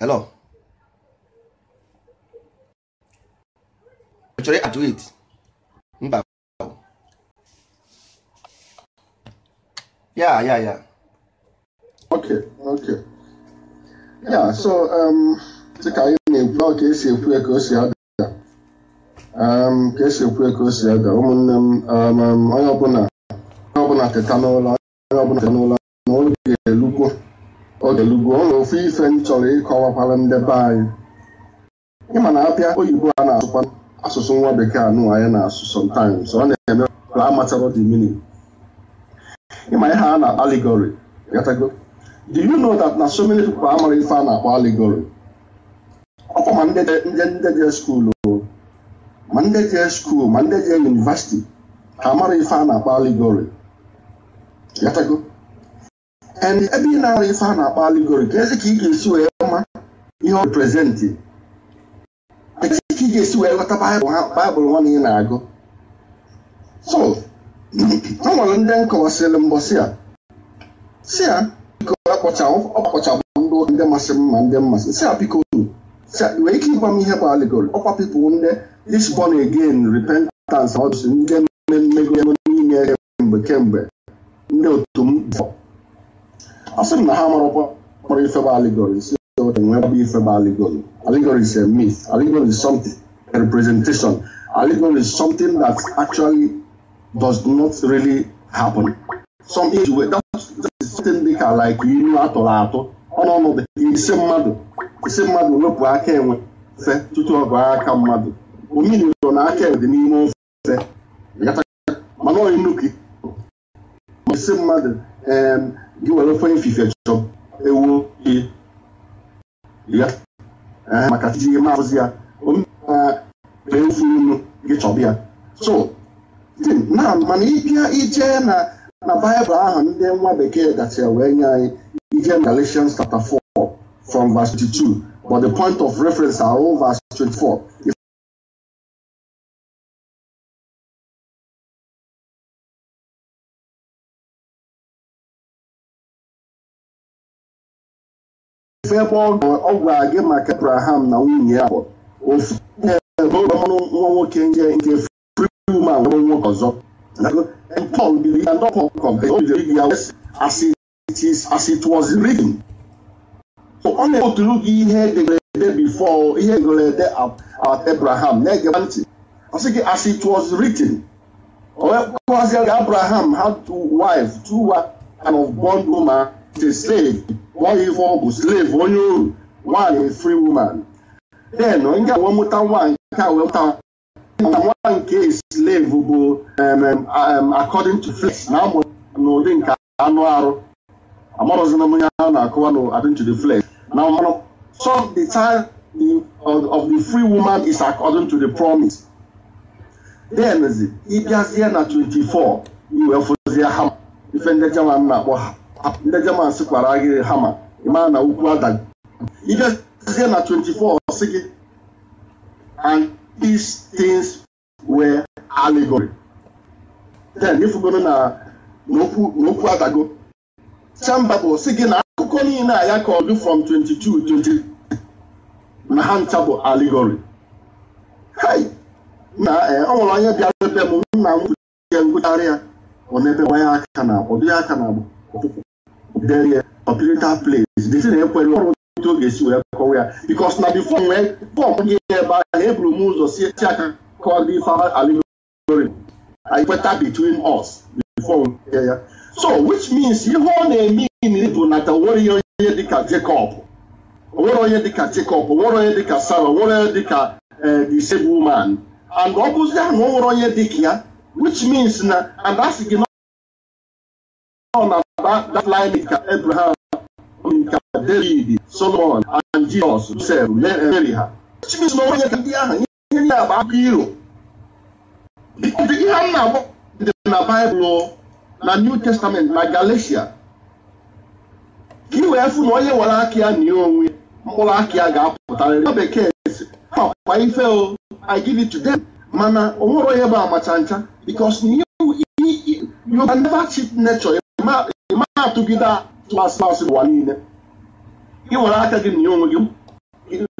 hello chọrọ ajụ it mba ya ya ya okay okay ya so um, ka anyị na-ekwu ka esi ekwu ka o si ada um, ka esi ekwu ka o si ada ụmụnne m um, onye ọbụla onye ọbụla teta n'ụlọ onye ọbụla teta n'ụlọ na oge elugwo oge elugwo ọ ofu ife m chọrọ ịkọwakwara ndebe be anyị ịma na apịa oyibo a na-asụkwa asụsụ nwa bekee anụ anyị na-asụ sometimes ọ na-eme ka a matara the meaning ịma ihe a na-akpa allegory gatago do you know that na so many people amara ife a na-akpọ allegory ọkwa ma ndị je skuul ma ndị je skuul ma ndị je yunivasiti ha amara ife a na-akpọ allegory gatago and ebe ị na-ara ife a na-akpọ allegory ka ezi ka ị ga-esi wee ma ihe ọ reprezentị ga-esi wee ghọta baịbụl nwa na ị na-agụ so o nwere ndị nkọwasịrị mbọsị a si ya biko ọkpọchabụ ndị ụka ndị masị m ma ndị mmasị si ya biko nwere ike ịgwa m ihe bụ aligori ọkwa pipụl ndị isbon again repentance ọdụsị ndị mmego n'ime kemgbe kemgbe ndị otu m ọ sị m na ha marụkwa kpọrọ ife bụ aligori si otu e nwee bụ ife bụ aligori aligori is a myth aligori is something representation. Alignment is something that actually does not really happen. Some age that is something they like ilu atọrọ atọ ọnụọnụ mmadụ mmadụ wepụ aka enwe fe tutu ọ aka mmadụ na aka enwe dị n'ime ofe mana mmadụ gị were ofe ifife ewu ihe eh, maka uh, efu ofu unu gị chọba ya so na mana ịbịa ije na na baịbụl ahụ ndị nwa bekee gachara wee nye anyị ije na Galatians chapter 4 from verse 22 but the point of reference are all verse 24 ife ebe ọ gwara gị maka Abraham na nwunye ya ofu ọnụ nwa nwoke nje nke free woman nwa nwoke ọzọ biri ya ya as it ọ na-ebuturu gị ihe edegara ede before ihe edegara ede Abraham na-ege ntị ọ sị gị as it was written onyekwazịrị Abraham ha two two and of a slave nwa ife ọ bụ onye oru nwaanyị free woman then nga wee mụta nwa nke a wee mụta nwa nke slave bụ according to flesh na amụ n'ụdị nke anụ arụ m onye a na-akụwa to the flesh na mmanụ so the of the free woman is according to the promise then ịbịazie na 24 sị gị and these things were allegory then n'okwu adago bụ na akụkọ niile a ya kọrọ from 22 na allegory ọ nwere onye bịara ebe m nna a ya ọ aka na ọ dịghị aka na place ọnwụ ya because na before wee bọmbụ ya ebe ahụ eburu m ụzọ si call the father, ife aliri anyị kweta between us before ya ya so which means ihe ọ na-eme bụ ihe onye dịka Jacob nwere onye dịka Jacob nwere onye dịka Sarah nwere eh, disabled woman and ọ which means na and na that line Abraham David, Solomon, and Jesus, Joseph, Mary ha. Chineke na onye ka ndị ahụ ihe ndị agba akụ iro. Ihe m na-agba dị na Baịbụl na New Testament na Galatia. Ka i wee fụ na onye nwere aka ya nye onwe mkpụrụ aka ya ga-apụtarịrị. Na bekee si, ha kwa ife o, I give Mana o nwere onye bụ amacha ncha because na ihe you can never cheat nature. Ị atụgide atụ asị asị ụwa niile. ị were aka gị nye onwe gị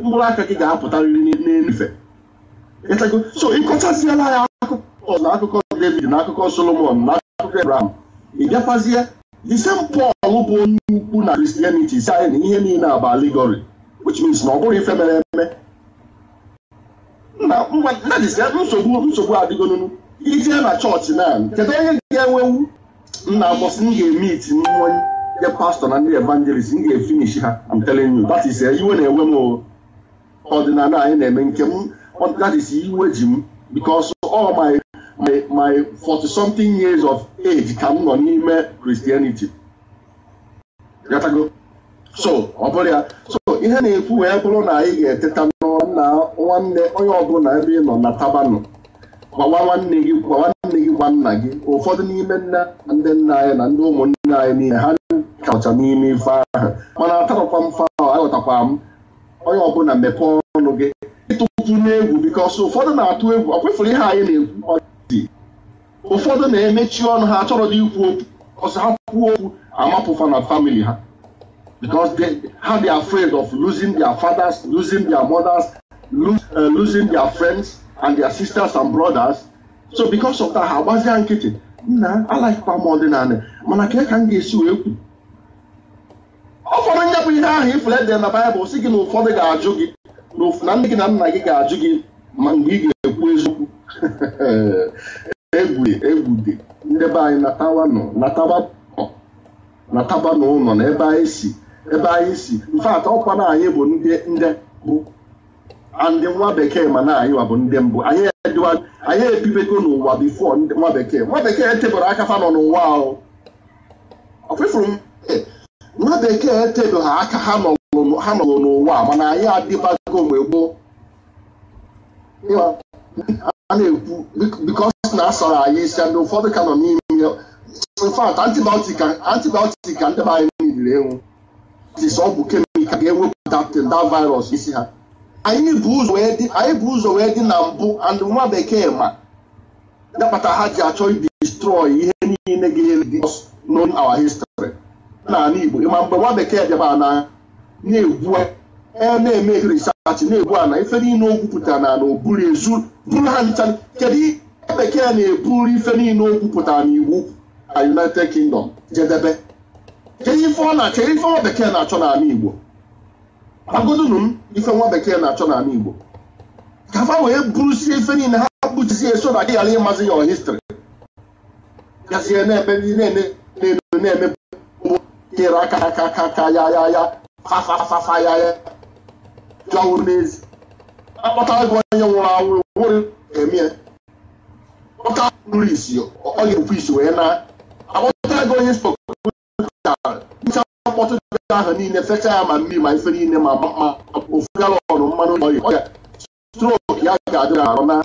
mkpụrụ aka gị ga-apụtarịrị n'elufe so ịkọchaziela ya akụkọ na akụkọ David na akụkọ Solomon na akụkọ Abraham ị bịakwazie the same bụ onye ukwu na Christianity si anyị na ihe niile a bụ aligori which means na ọ bụrụ ife mere eme nsogbu nsogbu adịgonunu ijee na chọọchị na kedu onye ga-enwewu nna bọsị m ga-eme iti nwenye ndị pastọ na ndị evangelist m ga-efinishi ha I'm telling you that is eh, iwe na-enwe m ọdịnala anyị na-eme nke m that is eh, iwe ji m because all my my my forty something years of age ka m nọ n'ime Christianity so ọ bụrụ ya so ihe na-ekwu wee bụrụ na anyị ga-eteta n'ọrụ na nwanne onye ọbụla ebe ị nọ na tabanụ nwanne gị gwa nna gị ụfọdụ n'ime nna ndị nna anyị na ndị ụmụnne anyị niile ha kacha n'ime ife ahụ mana atarọkwa mfe ahụ aghọtakwa m onye ọbụla mepee ọnụ gị ịtụtụ n'egwu bikos ụfọdụ na-atụ egwu ọkwefere ihe anyị na-ekwu ọdị ụfọdụ na-emechi ọnụ ha achọrọ dị ikwu okwu ọsọ ha kwuo okwu amapụfa na famili ha because they, how they are afraid of losing their fathers, losing their mothers, eh, losing their friends and their sisters and brothers so because of that ha agbazia nkịtị nna alaikpa m ọdịnala mana kee ka m ga-esi wee kwu ọ fọrọ ihe ahụ ifule dị na baịbụl si gị na ụfọdụ ga-ajụ gị na ndị gị na nna gị ga-ajụ gị ma mgbe ị ga-ekwu eziokwu egwu egwu dị ndị be anyị natawa nọ nataba n'ụlọ na ebe anyị si ebe anyị si mfe ọkwa na anyị bụ ndị ndị bụ ndị nwa bekee ma na anyị wa bụ ndị mbụ anyị edịwa anyị ebibego n'ụwa bifo nwa bekee nwa bekee etebere aka ha nọ n'ụwa ahụ ọfụfụrụ nwa bekee etebe ha aka ha nọ n'ụwa mana anyị adịbago mgbe gboo a na-ekwu bikos na asọrọ anyị isi ndị ụfọdụ ka nọ n'ime infat antibiotik ka ndị be anyị niile enwu ọ bụ kemikal ga-ewepụta da virus isi ha anyị bụ ụzọ wee dị na mbụ and nwa bekee ma ya ha ji achọ ibi destroy ihe niile ga-eri known our history n'ala Igbo ma mgbe nwa bekee bịaba na na-egbu e na-eme research na-egbu ana ife niile o gwupụtara na oburu ezu buru ha nchan kedu bekee na-eburu ife niile o gwupụtara na iwu na United Kingdom jedebe kedu ife ọ na-achọ ife nwa bekee na-achọ n'ala Igbo agụdunu m ife nwa bekee na-achọ n'ala Igbo ka fa wee burusie ife niile ha buchizie so na gị ghara ịmazi ya histrị gazie na-eme na-eme na-eme ere aka aka aka aka ya ya ya fafafafa ya ya jọwụrụ n'ezi akpọta gị onye nwụrụ anwụ nwere emie kpọta nri isi ọ ga-ekwu isi wee na akpọta gị onye spọkụrụ mkpọtụ ji ahụ niile fecha ya ma mmiri ma ife niile ma ma ofu galọn mmanụ ọya ọya strok ya ga-adị arụ na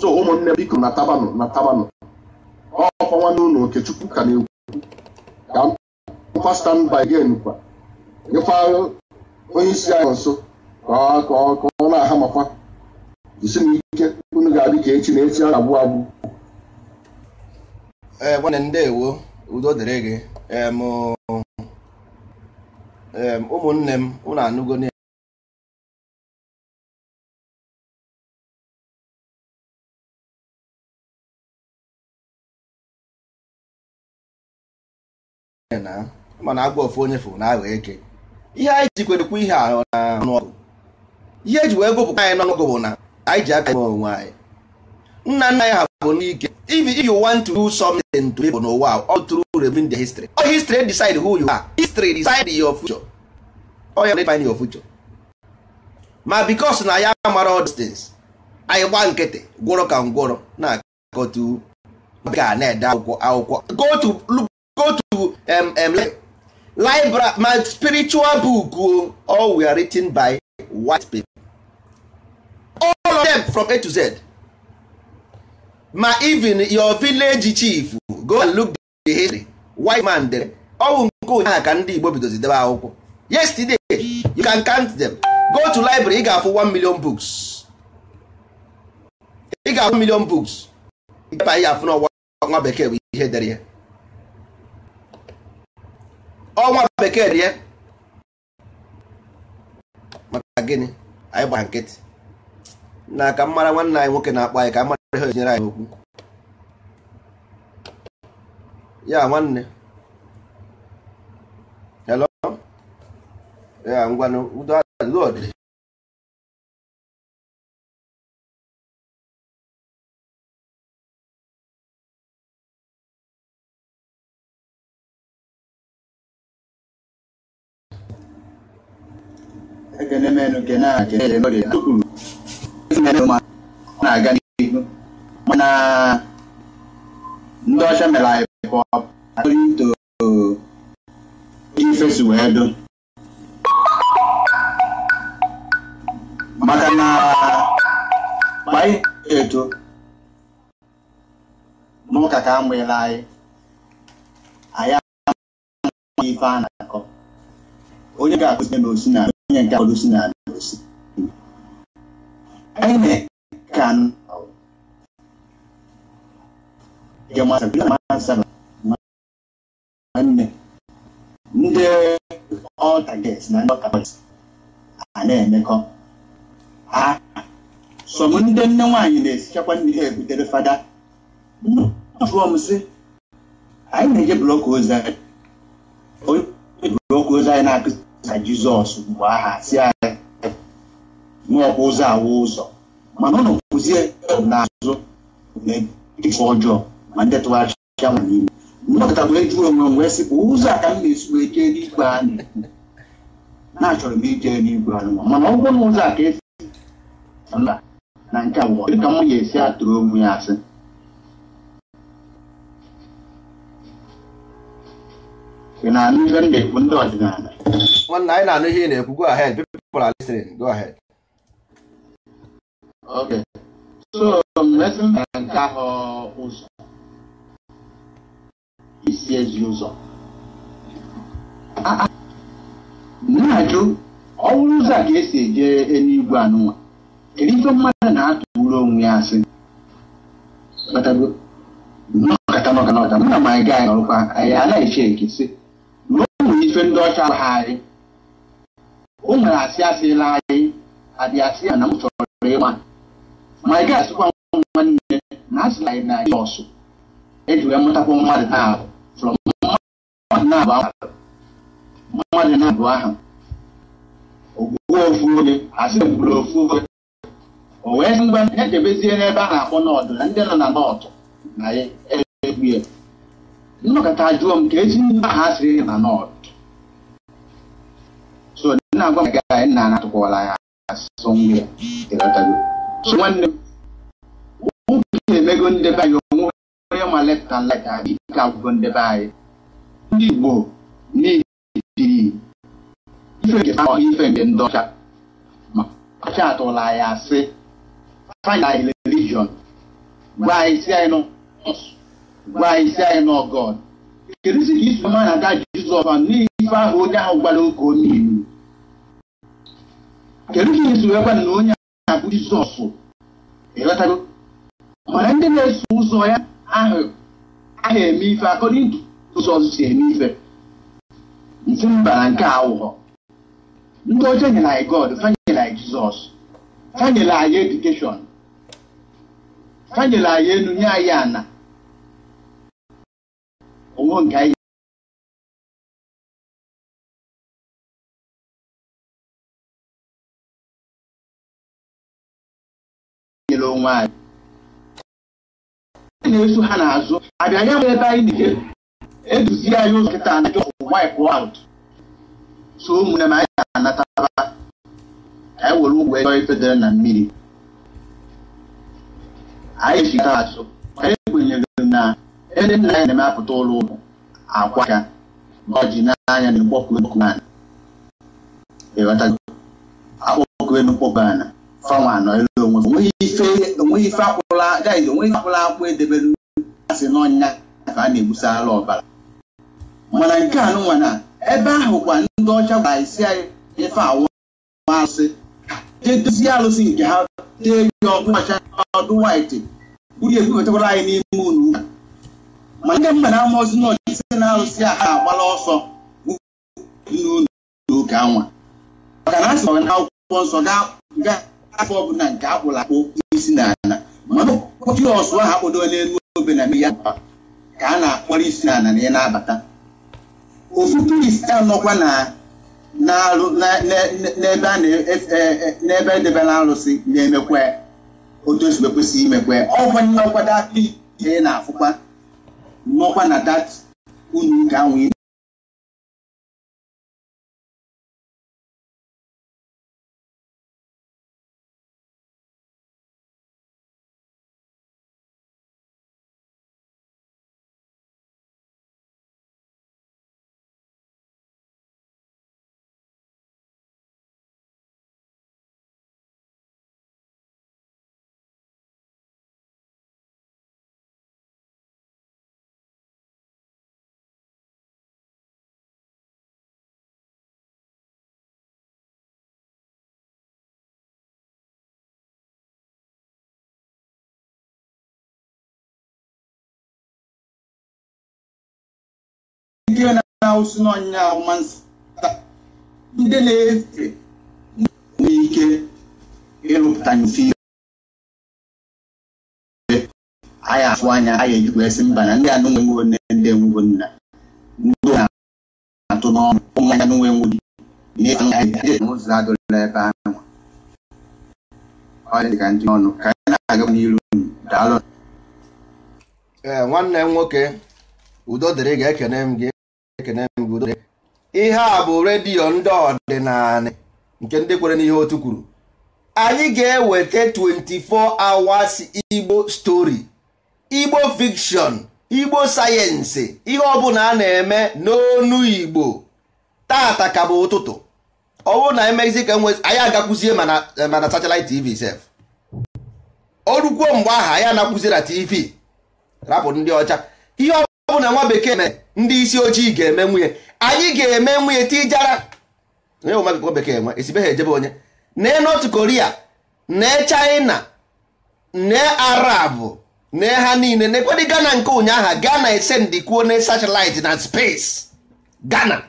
so ụmụnne biko na tabanụ na tabanụ ọkwa nwanne ụlọ okechukwu ka na-ekwu ka mkpa stand by again kwa nyekwa onye isi anyị nso ka ọ na-aha makwa jisi m ike unu ga-adị ka echi na echi a na-agbụ agbụ ee eh, nwanne ndewo udo dịrị gị eh, ụmụnne m unu anụgo na mana agwa ofu onye fụrụ na aghọ eke ihe anyị ji kwerekwa ihe a ọgụ. ihe eji wee gụpụta anyị n'ọnụgụ bụ na anyị ji aka onwe anyị nna nna anyị ha if you want to do something to people n'ụwa all through reviewing their history all history decide who you are history decide your future all you define your future ma because na ya mara all these things anyị gba nkịtị gwọrọ ka ngwọrọ na-akọtu ga na-ede akwụkwọ akwụkwọ go to go to um, um, library my spiritual book all we written by white people all of them from A to Z ma even your village chief go and look the history white man dere ọwụ nke ụnyaahụ ka ndị Igbo bidozidebe akwụkwọ yesterday you can count them go to library ị ga-afụ 1 million books ị ga-afụ million books ịgaba ya afụ n'ọnwa bekee bụ ihe dere ya ọnwa bekee dere ya maka gịnị anyị gbara nkịtị na aka mmara nwanne anyị nwoke na-akpọ anyị ka mara ha na anyị okwu ya nwanne hello ya ngwanụ udo lod ekene a kene na mana ndị ọcha mere anyị pọp according to ife si wee do maka na anyị eto n'ụka ka a mụnyere anyị anyị amaghị ife a na-akọ onye ga-akụzi na osi na onye nke akụzi na osi anyị na-eka nwanne ndị ọtaget na ndị ọtaget a na-emekọ ha sọm ndị nne nwaanyị na-esichakwa nri ha ebutere fada m sị anyị na-eje blọk ozi anyị onye blọk ozi anyị na-akụzisa jizọs mgbe aha si anyị nwaọkwa ụzọ awa ụzọ mana ụlọ kwụzie na azụ na-eji ọjọọ ma ndị tụgharịcha ya nwa n'ime mgbakọtakwara ejuru onwe m wee sị bụ ụzọ a ka m na-esi ike n'igwe anyị na-achọrọ m ije n'igwe anyị mana ọ bụrụ na ụzọ a ka esi mba na nke a nwụọ dịka m ga-esi atụrụ onwe ya asị ị na-anụ ihe m na-ekwu ndị ọdịnala nwanne anyị na-anụ ihe ị na-ekwu go ahead people are listening go ahead okay so mmezi mba nke ahụ ụzọ Ah, ah. esi ezi ụzọ na-ajụ ọ bụrụ ụzọ a ga-esi eje eluigwe anụnwa kedu mmadụ na-atụrụ onwe ya asị na ma anyị na ọrụkwa anyị anaghị eche ekesị na o nwere ife ndị ọcha ha anyị o nwere asị asị asịla anyị adị asị ya na m chọrọ ịma ma anyị gaghị asịkwa nwanne na asịla anyị na anyị ọsụ eji wee mụtakwa mmadụ taa ahụ na-abụ mmadụ na-abụ aha ogbuo ofu oge asị gburu ofu oge o wee sị ngwa na-echebezie n'ebe a na-akpọ n'ọdụ na ndị nọ na nọọtụ na egbu ya nnọkọta jụọ m ka esi ndị aha sịrị na nọọtụ so na-agwa m ga anyị na-anatụkwala ya asụsụ nwa ya so nwanne m ụbụ na emego ndebe anyị onwe onye ma left and right adịghị ka agwụgo ndebe anyị ndị Igbo na-etiri ife nke ọ ife nke ndị ọcha ọcha atụla ya asị find our religion gwa isi anyị nọ gwa isi anyị nọ God kedu si ka isi mmadụ aga Jizọs n'ife ahụ onye ahụ gwara oge onye iwu kedu ka isi wee gwa na onye ahụ abụ Jizọs ịghọtago mana ndị na-eso ụzọ ya ahụ eme ife akọrọ ụzọ ọzọ si eme ife nsi mba na nke awụghọ ndị ọcha nyere anyị god fanyere anyị jizọs fanyere anyị edukeshọn fanyere anyị elu nye anyị ana onwe nke anyị nyere onwe anyị na-eso ha n'azụ abịa nwere ebe anyị na eduzie anyị ụzọ nkịta na jọfụ wipe out so ụmụnne m anyị ga-anataba anyị were ụgwọ ego ifedere na mmiri anyị ji taa asụ maka ekwenyere na ebe nna anyị na-emepụta ụlọ ụlọ akwa ya na ọjị e e e n'anya na mkpọkụ enukwu ana akpọkụ enukwu ana fanwa anọ elu onwe onweghị ife akpụla gaghị onweghị akpụla akpụ edebere asị n'ọnya ka a na-egbusala ọbara mana nke a nụnwa na ebe ahụ kwa ndị ọcha gwara isi anyị ife awụ asị jee dozie alụsị nke ha tee ya ọkụ ọcha ọdụ waịtị uri ekwekọtakwara anyị n'ime unu ụka ma nke mba na-ama ozi na ọdịsị na alụsị a ha agbala ọsọ n'ụlọ ụka anwa maka na asị na akwụkwọ nsọ ga afọ ọbụla nke akpụrụ akpụ isi na ala mana ọsụ ahụ akpụdo n'elu obe na mmiri ya ka a na-akpọrọ isi na ala na ya na-abata ụfụtụ ise anọkwa n'ebe edebela arụsị na-emekwa otu ozugbo kwesịrị imekwe ọkwa nọkwa dat ị na-afụkwa nọkwa na dat unu ga-anwụ ndị na-awụsị n'ọnyịnya ahụmasị ndị na-efe nwere ike ịrụpụta nsi anyị afụ anya anyị ejikwa esi mba na ndị a nwenwo nne ndị nna ndị na-atụ n'ọnụ ụmụ anya nwenwo n'ụzọ ebe ahụ dị anyị na nwanne m nwoke udo dịrị ga-ekene m gị obodo ihe a bụ redio ndị ọdịnala nke ndị kwere n'ihe otu kwuru anyị ga-eweta 24 hours igbo stori igbo fiction igbo sayensị ihe ọ bụla a na-eme n'onu igbo tata ka bụ ụtụtụ ọ bụrụ na emezi ka nwe anyị agakwuzie mana eh, satellite tv sef o mgbe aha anyị anakwuzie na tv rapụ ndị ọcha ihe ọ bụ na nwa bekee na ndị isi ojii ga-eme nwunye anyị ga-eme nwunye tijara bekee nwa esibeghị ejebe onye nee North koria nee chaịna nee Arab nee ha niile nekwadị Ghana nke ụnyaahụ Ghana esendikwuo na satellite na space Ghana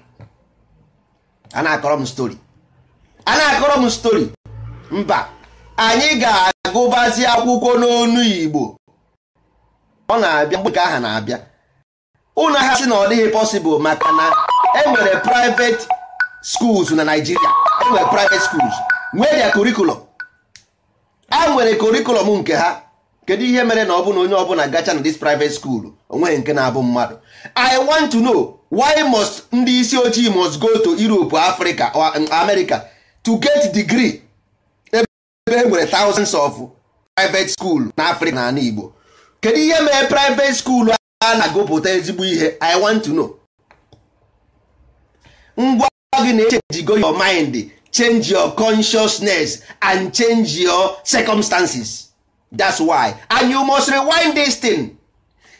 a na-akọrọ m stori a na-akọrọ m stori mba anyị ga-agụbazi akwụkwọ n'onu Igbo ọ na-abịa mgbe nke aha na-abịa ụlọ ha sị na ọ dịghị possible maka na enwere private schools na Nigeria enwere private schools nwee dia curriculum a e nwere curriculum nke ha kedu ihe mere na ọ na onye ọbụla gacha na dis private school onweghị nke na-abụ mmadụ I want to know why must ndị isi ojii must go to Europe Africa or um, America to get degree ebe e nwere thousands of private school na Africa na ala Igbo kedu ihe mere private school a na-agụpụta ezigbo ihe i want to know ngwa gị na-echenjigo your mind change your consciousness and change your circumstances that's why and you must rewind this thing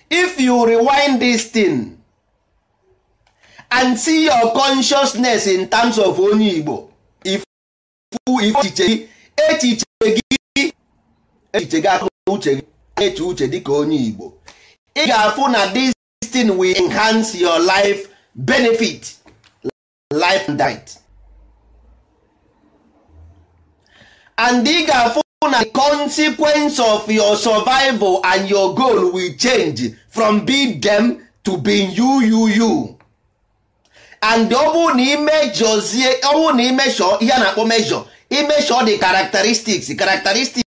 if you rewind this thing and see your consciousness in terms of onye Igbo echiche gị echiche gị akụrụ uche gị eche uche dịka onye Igbo ị ga-afụ na this thing will enhance your life benefit life and diet and ị ga-afụ na the consequence of your survival and your goal will change from being them to being you you you and ọ bụrụ na imejọzie ọ bụrụ na imejọ ihe a na-akpọ mejọ imejọ the characteristics characteristics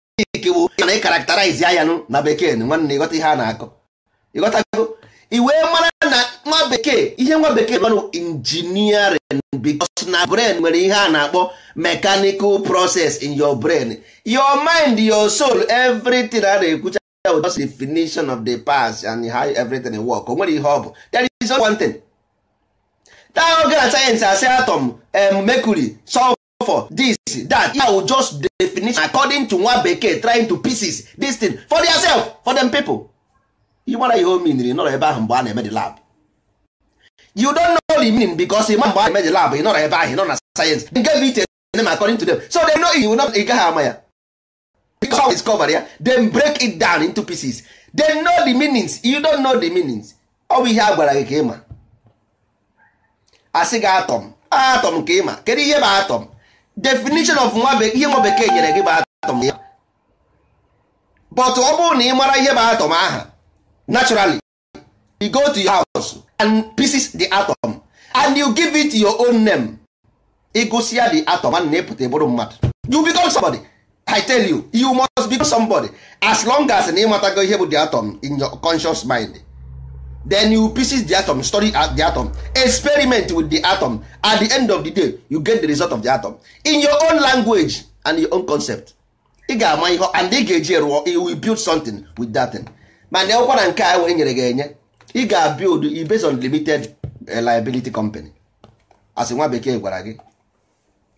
bụ na ị karakterize ya ya na bekee nwanne ịghọta ihe a na-akọ ịghọtago iwee mara na nwa bekee ihe nwa bekee manụ engineering because na brain nwere ihe a na-akpọ mechanical process in your brain your mind your soul everything a na-ekwucha just definition of the past and how everything work o nwere ihe ọ bụ there is one thing that oge na sayensị asị atom mercury sulfur this that ya just definition according to nwa bekee trying to pieces this thing for yourself for them people ị gbara ihe o miniri nọrọ ebe ahụ mgbe a na-eme the lab you don't know the meaning because ị ịma mgbe a na-eme the lab ị nọrọ ebe ahụ ị nọ na sayensị they gave it a name according to them so they know you not ị gaghị ama ya because how discover ya then break it down into pieces they know the meanings you don't know the meanings ọ bụ ihe a gwara gị ka ịma asị gị atọm atọm ka ịma kedu ihe bụ atọm definition of nwa ihe nwa bekee nyere gị bụ atọm ya but ọ bụrụ na ị mara ihe bụ atọm aha naturally you go to your house and pieces the atom and you give it your own name ịgụsịa the atom and na-epụta bụrụ mmadụ you become somebody i tell you you must become somebody as long as na ịmatago ihe bụ the atom in your conscious mind then you pieces the atom study the atom experiment with the atom at the end of the day you get the result of the atom in your own language and your own concept ị ga-ama ihe and ị ga-eji rụọ will build something with that thing. mana ọkwa na nke a e wee nyere gị enye ị ga-build based on limited eh, liability company asị nwa bekee gwara gị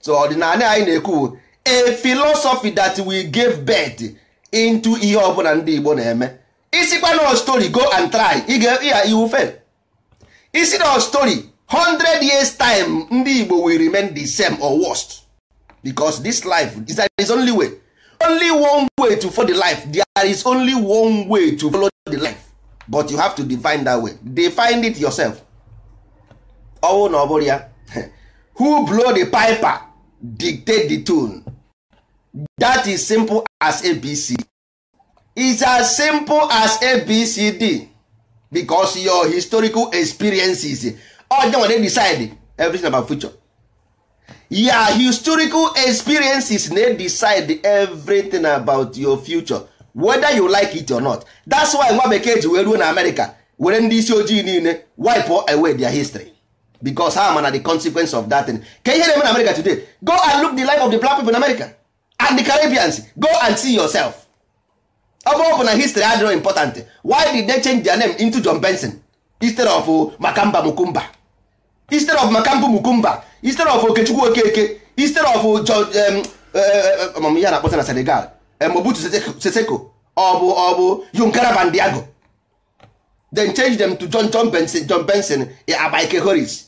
so ọdịnala anyị na-ekwu a philosophy that we give birth into ihe ọbụla ndị Igbo na-eme isikwa na story go and try ya iwu fail isi na story 100 years time ndị Igbo will remain the same or worst because this life is only way only one way to follow the life there is only one way to follow the life but you have to define that way define it yourself ọwụ na ọ bụrụ ya who blow the piper dictate the tune that is simple as abc is as simple as abcd because your historical experiences ọ dị decide everything about future ya historical experiences na decide everything about your future whether you like it or not that's why nwa bekee ji wee ruo na America were ndị isi ojii niile wipe away their history because ha mana the consequence of that thing ka ihe na-eme na America today go and look the life of the black people in America and the Caribbeans go and see yourself ọ bụ na history adịrọ important why did they change their name into John Benson instead of Makamba Mukumba instead of makamba Mukumba instead of okechukwu okeke instead of um, um, um, ya na-akpọta na senegal mobutu seseko ọ bụ ọ bụ yunkara then change them to john john benson john benson abike horis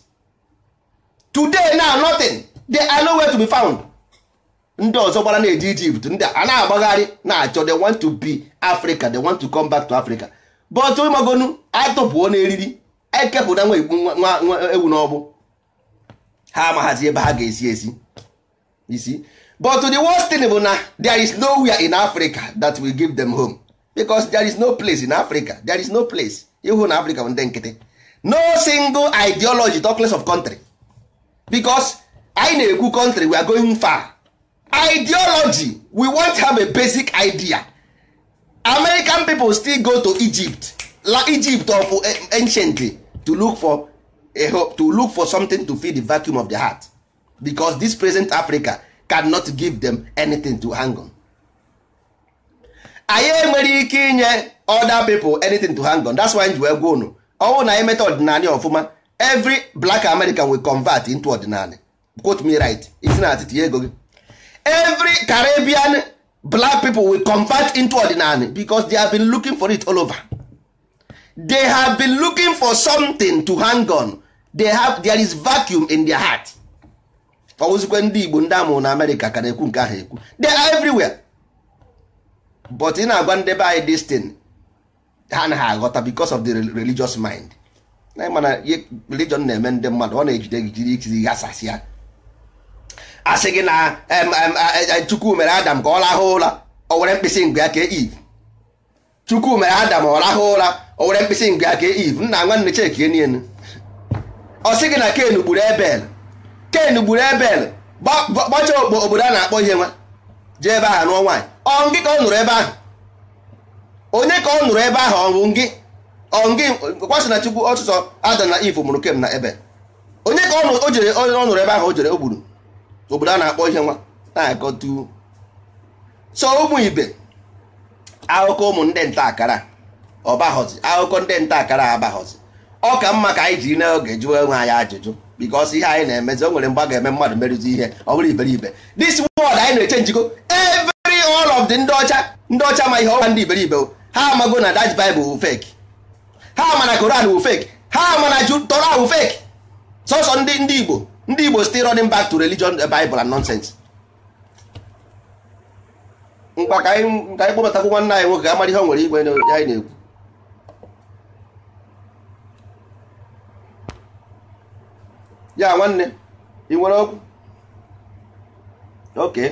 today now nothing they are nowhere to be found ndị ọzọ gbara na-eje Egypt ndị a na-agbagharị na-achọ they want to be Africa they want to come back to Africa but magonu atụpụo n'eriri ekepụta nwa egbu nwa ewu n'ọgbụ ha amaghazi ebe ha ga-esi esi isi but the worst thing bụ na there is nowhere in Africa that will give them home because there is no place in Africa there is no place ịhụ na Africa bụ ndị nkịtị no single ideology talkless of country because anyị na-ekwu country we are going far ideology we want have a basic idea American people still go to Egypt la Egypt of eh, ancient to look for to look for something to fill the vacuum of the heart because this present Africa cannot give them anything to hang on. anyị enwere ike inye other people anything to hang on that's why ji wee gwa unu ọnwụ na anyị meta ọdịnala ọfụma every black American will convert into ọdịnala quote me right isi na atịtị ego gị every Caribbean black people will convert into ọdịnala because they have been looking for it all over they have been looking for something to hang on they have there is vacuum in their heart ọwụzikwe ndị igbo ndị amụrụ na amerịka ka na-ekwu nke ahụ ekwu they are everywhere but ị na-agwa ndị be anyị destin ha na ha aghọta because of the religious mind na mana religion na-eme ndị mmadụ ọ na-ejide gị jiri ikiri ya asị gị na chukwu mere adam ka ọ rahụ ụra o were mkpịsị ngwe ya ka e eve chukwu mere adam ọ rahụ ụra o were mkpịsị ngwe ya ka e eve nna nwanne chekie nienu ọ gị na ken gburu ebel ken gburu ebel gbachaa obodo a na-akpọ ihe nwa jee ebe ahụ nụọ nwaanyị ọ ka ọ nụrụ ebe ahụ onye ka ọ nụrụ ebe ahụ ọnwụ ngị ọngị kwasị na chukwu ọtụtụ ada na ivu mụrụ kem na ebe onye ka ọ jere ọ nụrụ ebe ahụ o jere o gburu obodo a na-akpọ ihe nwa na-akọtu ah, so ụmụ ibe akụkọ ụmụ ndị nta akara ọbaghọzi akụkọ ndị nta akara abaghọzi ọ ka mma ka anyị jiri n'oge jụọ onwe anyị ajụjụ bikos ihe anyị na-emezi o nwere mgbe a ga-eme mmadụ merụzi ihe ọ bụrụ iberibe this word anyị na-eche njikọ every all of the ndị ọcha ndị ọcha ma ihe ọwa ndị iberibe ha amago na that bible wụ fek. ha mana koran wụ fek. ha mana na tora wu fake sọsọ ndị ndị igbo ndị igbo still running back to religion the eh, bible and nonsense mkpa ka anyị kpọbatakwu nwanne anyị nwoke ga amara ihe o nwere igwe ya anyị na-ekwu ya nwanne ị nwere okwu oke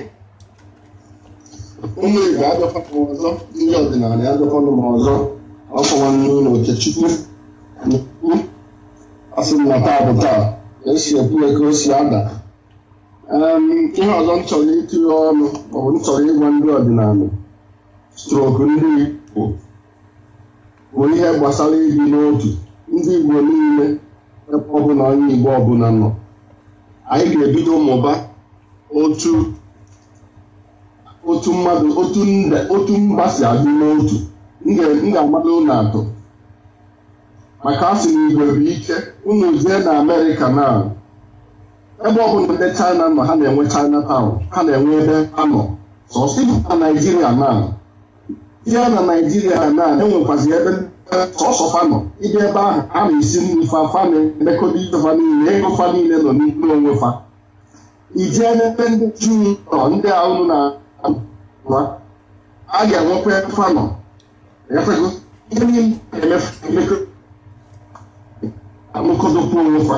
ụmụ igbo abịakwana ọzọ ndị ọdịnala abịakwana m ọzọ ọkụ nwanne ụlọ okechukwu n'ukwu asị na taa bụ taa esi ekwu ya ka si ada ihe ọzọ m chọrọ itinye ọnụ maọbụ m chọrọ ịgwa ndị ọdịnala strok ndị igbo bụ ihe gbasara ibi n'otu ndị igbo niile ebe ọbụla onye Igbo ọbụla nọ anyị ga-ebido mụba otu otu mmadụ otu mba si adị n'otu m ga-agbado ụlọ atọ maka a sị na igwe bụ ike unu jee na Amerịka na ebe ọbụla ndị China nọ ha na-enwe China taụn ha na-enwe ebe ha nọ sọsọ na Naijiria na ya na Naijiria na enwekwazi ebe sọsọ fa nọ ịdị ebe ahụ a na-esi nri fa fa na-emekọta ife fa niile ego fa niile nọ n'ime onwe fa ijee n'ebe ndị juu nọ ndị ahụ na wa a ga-enwekwa fa nọ efego ihe niile emekọdokwa onwe fa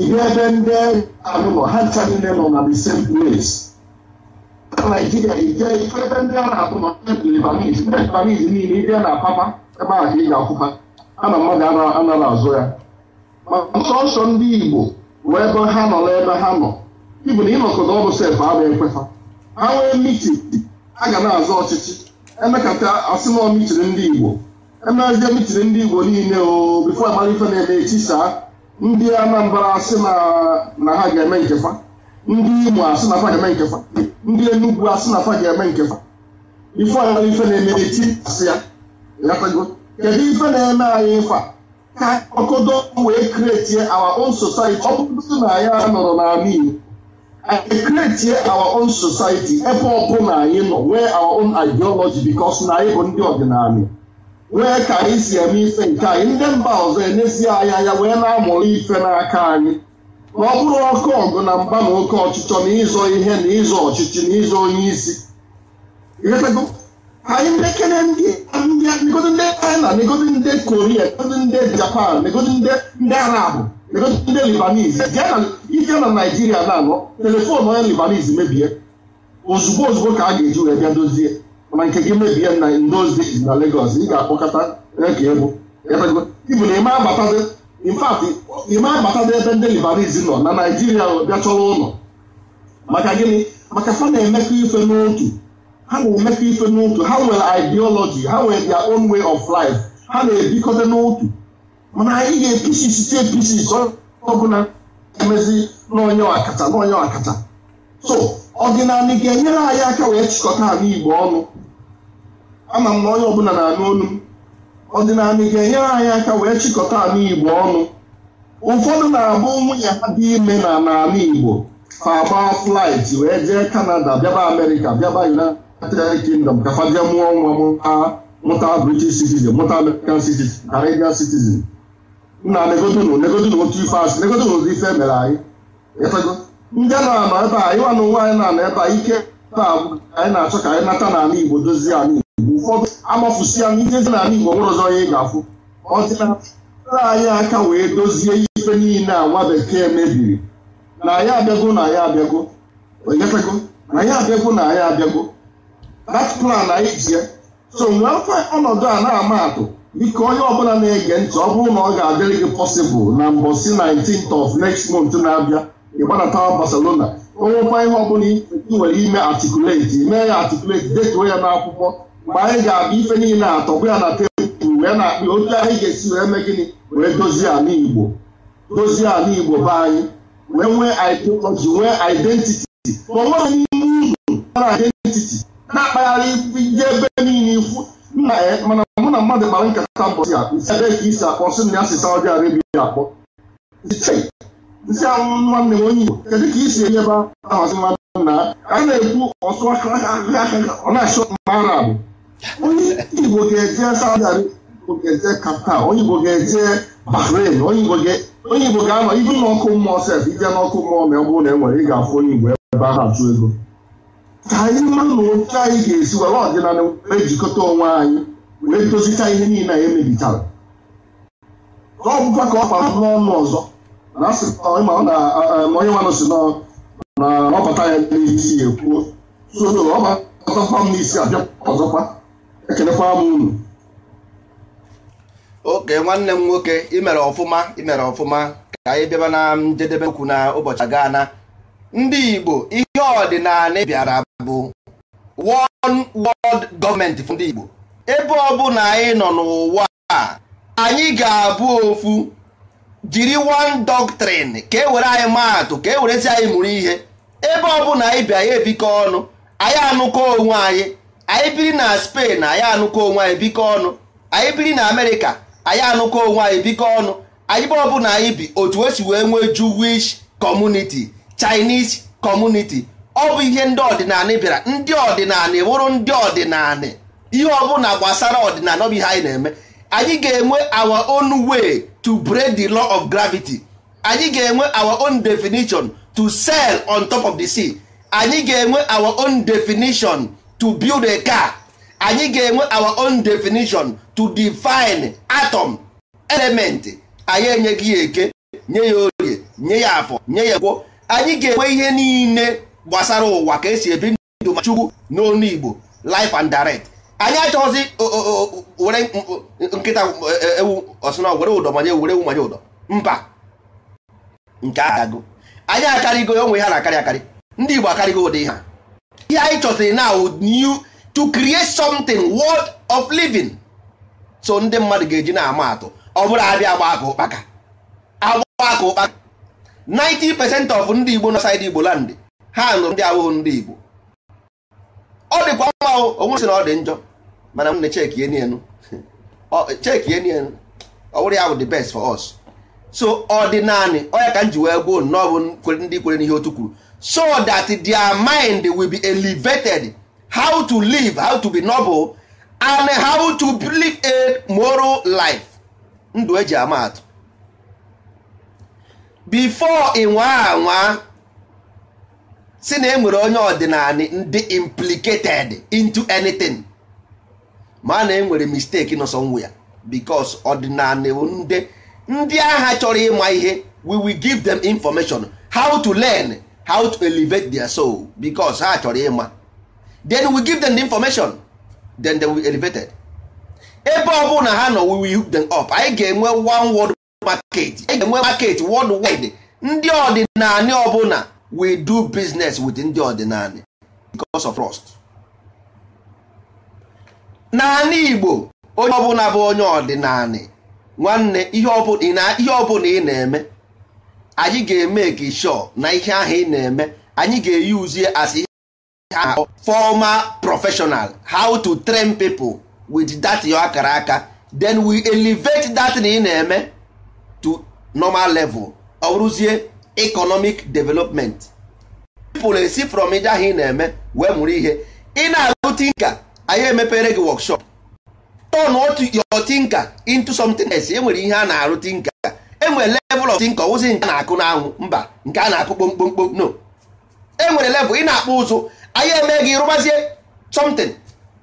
ịdị ebe ndị ahụ nọ ha ncha niile nọ na the same place na Naijiria ije ife ebe ndị a na-atụ nọ ndị Lebanese niile ịbịa na Papa ebe ahụ ka ị ga-akwụkwa ama mmadụ anara azụ ya ma nsọ ndị Igbo wee ebe ha nọ n'ebe ha nọ ibu na ịnọkọta ọbụ sef abụ ekwefa ha nwee miti a ga na azụ ọchịchị emekata asịnọ mitiri ndị Igbo emezie mitiri ndị Igbo niile o bifo amara ife na-eme etisaa ndị Anambra asị na ha ga-eme nkefa ndị Imo asị na fa ga-eme nkefa ndị Enugu asị na fa ga-eme nkefa ife amara ife na-eme eti asị kedu ife na-eme anyị ịkwa ka ọkọdọ wee kretie our own society ọ bụrụ na anyị anọrọ n'ala Igbo anyị kretie our own society ebe na anyị nọ nwee our own ideology bikos na anyị bụ ndị ọdịnala nwee ka anyị si eme ife nke anyị ndị mba ọzọ enesi anyị anya wee na-amụrụ ife n'aka anyị ma ọ bụrụ oke ọgụ na mba na oke ọchịchọ na ịzọ ihe na ịzọ ọchịchị na ịzọ onye isi anyị ndekere ndị negodi ndị china negodi ndị Korea negodi ndị japan negodi ndị arabụ negodi ndị libanese ije na naijiria na-anọ telefon onye libanese mebie ozugbo ozugbo ka a ga-eji wee bịa dozie mana nke gị mebie na ndozi na legos ị ga-akpọkọta ka egwu ibu na ime abatazi infat ime abatazi ebe ndị libanese nọ na naijiria bịa chọrọ ụlọ maka gịnị maka fa na-emekọ ife n'otu ha na-emefe ife n'otu ha nwere ideology ha nwere their own way of life ha na-ebikọta n'otu mana anyị ga-apc site apc ọbụla emezi n'onye ọkacha n'onye ọkacha so ọdịnala ga-enyere anyị aka wee chịkọta ala igbo ọnụ ama m na onye ọbụla na-anụ olu m ọdịnala ga-enyere anyị aka wee chịkọta ala igbo ọnụ ụfọdụ na-abụ nwunye ha dị ime na n'ala igbo fa agba flight wee jee kanada bịaba amerịka bịaba united United Kingdom ka mụọ nwa mụta British citizen mụta American citizen Canadian citizen nna negodunu negodunu otu ife asị negodunu ụdị ife eh. mere anyị ịfego ndị a na-anọ ebe a ịwa na ụwa anyị na-anọ ebe a ike ebe a bụ anyị na-achọ ka anyị nata n'ala Igbo dozie ala Igbo ụfọdụ amafusi ya ijezi n'ala Igbo nwere ọzọ ya ị ga-afụ ọdịnala anyị aka wee dozie ife niile a nwa bekee mebiri na ya abịago na ya abịago na ya abịago na ya abịago dat plan anyị ji so nwee afọ ọnọdụ a na-ama atụ biko onye ọbụla na-ege ntị ọ bụrụ na ọ ga-adịrị gị pọsịbụl na mbọsi 19th of next month na-abịa ịgbanatawa Barcelona onwekwa ihe ọbụla ị nwere ime atikuleti mee ya atikuleti detuo ya n'akwụkwọ mgbe anyị ga-abịa ife niile atọgbụ ya na tebụl wee na-akpị otu anyị ga-esi wee mee gịnị wee dozie ala Igbo dozie ala Igbo be anyị wee nwee ideology nwee identiti ma ọ n'ime uru na identiti. na-akpagharị ije ebe niile ikwu nna ya eh, mana mụ na mmadụ kpara nkata mbọsi a nsị ebe ka isi akpọ nsị na asị Saudi Arabia akpọ nsị anwụ nwanne m onye Igbo kedu ka isi enye ebe ahazi mmadụ na a na-ekwu ọsụ ọ na-achọ mma Arab onye Igbo ga-eje Saudi Arabia ga-eje Qatar onye Igbo ga-eje Bahrain onye Igbo ga-anọ ibu n'ọkụ mmụọ sef ije n'ọkụ mmụọ ma ọ bụrụ na e nwere ị ga-afụ onye Igbo ebe ahụ achụ ego ka anyị mara na otu anyị ga-esi were ọdịnala ejikọta onwe anyị wee dozicha ihe niile anyị emebichara ka ọ bụkwa ka ọ kpara n'ọnụ ọzọ na onye nwanụ si na ọbata ya n'ihe isi ya ekwuo soro ọbatakwa m n'isi abịa ọzọkwa ekelekwa m unu oke nwanne m nwoke imere ọfụma imere ọfụma ka anyị bịaba na njedebe okwu na ụbọchị aga na ndị Igbo ihe ọdịnala bịara bụ one world gọọmenti fọ ndị Igbo ebe ọbụla anyị nọ n'ụwa a anyị ga-abụ ofu jiri one doctrin ka e were anyị maatụ ka e werezi anyị mụrụ ihe ebe ọbụla anyị bi anyị ebikọ ọnụ anyị anụkọ onwe anyị anyị biri na Spain anyị anụkọ onwe anyị bikọ ọnụ anyị biri na Amerịka anyị anụkọ onwe anyị bikọ ọnụ anyị be ọbụla anyị bi otu esi wee nwee Jewish community Chinese community ọ bụ ihe ndị ọdịnala bịara ndị ọdịnala wụrụ ndị ọdịnala ihe ọbụla gbasara ọdịnala ọ bụ ihe anyị na-eme anyị ga-enwe our own way to break the law of gravity anyị ga-enwe our own definition to sail on top of the sea anyị ga-enwe our own definition to build a car anyị ga-enwe our own definition to define atom element anyị enyeghị ya eke nye ya nye ya afọ nye ya anyị ga-enwe ihe niile gbasara ụwa ka esi ebi ndụ ma chukwu n'onu igbo life and direct anyị achọghịzi were nkịta e, e, ewu ọsụna were ụdọ manye were ewu manye ụdọ mba nke agago anyị akarịgo onwe ha na-akarị akarị ndị igbo akarịgo ụdị ha. ihe anyị chọsịrị na new to create something world of living so ndị mmadụ ga-eji na-ama atụ ọ bụrụ abịa agba aka ụkpaka agba aka ụkpaka 90 percent of ndị igbo na saịdị igbo landị ha nụrụ ndị awụghụ ndị Igbo ọ dịkwa mma onwe sị na ọ dị njọ mana m na cheki eni enu cheki eni enu ọ ya bụ the best for us so ọ dị naanị onye ka m ji wee gboo nnọọ bụ ndị kwere n'ihe otu kwuru so that their mind will be elevated how to live how to be noble and how to live a moral life ndụ eji ama atụ before ị nwa si na enwere onye ọdịnala ndị implicated into anything ma na enwere mistake nọ somewhere because ọdịnala ndị ndị agha chọrọ ịma ihe we will give them information how to learn how to elevate their soul because ha chọrọ ịma then we give them the information then they will be elevated ebe ọ bụla ha nọ we will hook them up anyị ga-enwe one world market anyị ga-enwe market worldwide ndị ọdịnala ọbụla we do business with ndị ọdịnala because of trust naanị igbo onye ọbụla bụ onye ọdịnala nwanne ihe ọbụla ị na-eme anyị ga-eme gị sure na ihe ahụ ị na-eme anyị ga-eyuzie as ihe former professional how to train people with that yo akara aka then we elevate that na ị na-eme to normal level ọ bụrụzie economic development people esi from ije ahụ ị na-eme wee mụrụ ihe ị na-alụ tinka anyị emepere gị wọkshọp. workshop turn your tinka into something else e nwere ihe a na-arụ tinka E nwere level of tinka ọwụzi nke a na-akụ n'anwụ mba nke a na-akụ kpomkpomkpom no e nwere level ị na-akpụ ụzụ anyị eme gị rụbazie something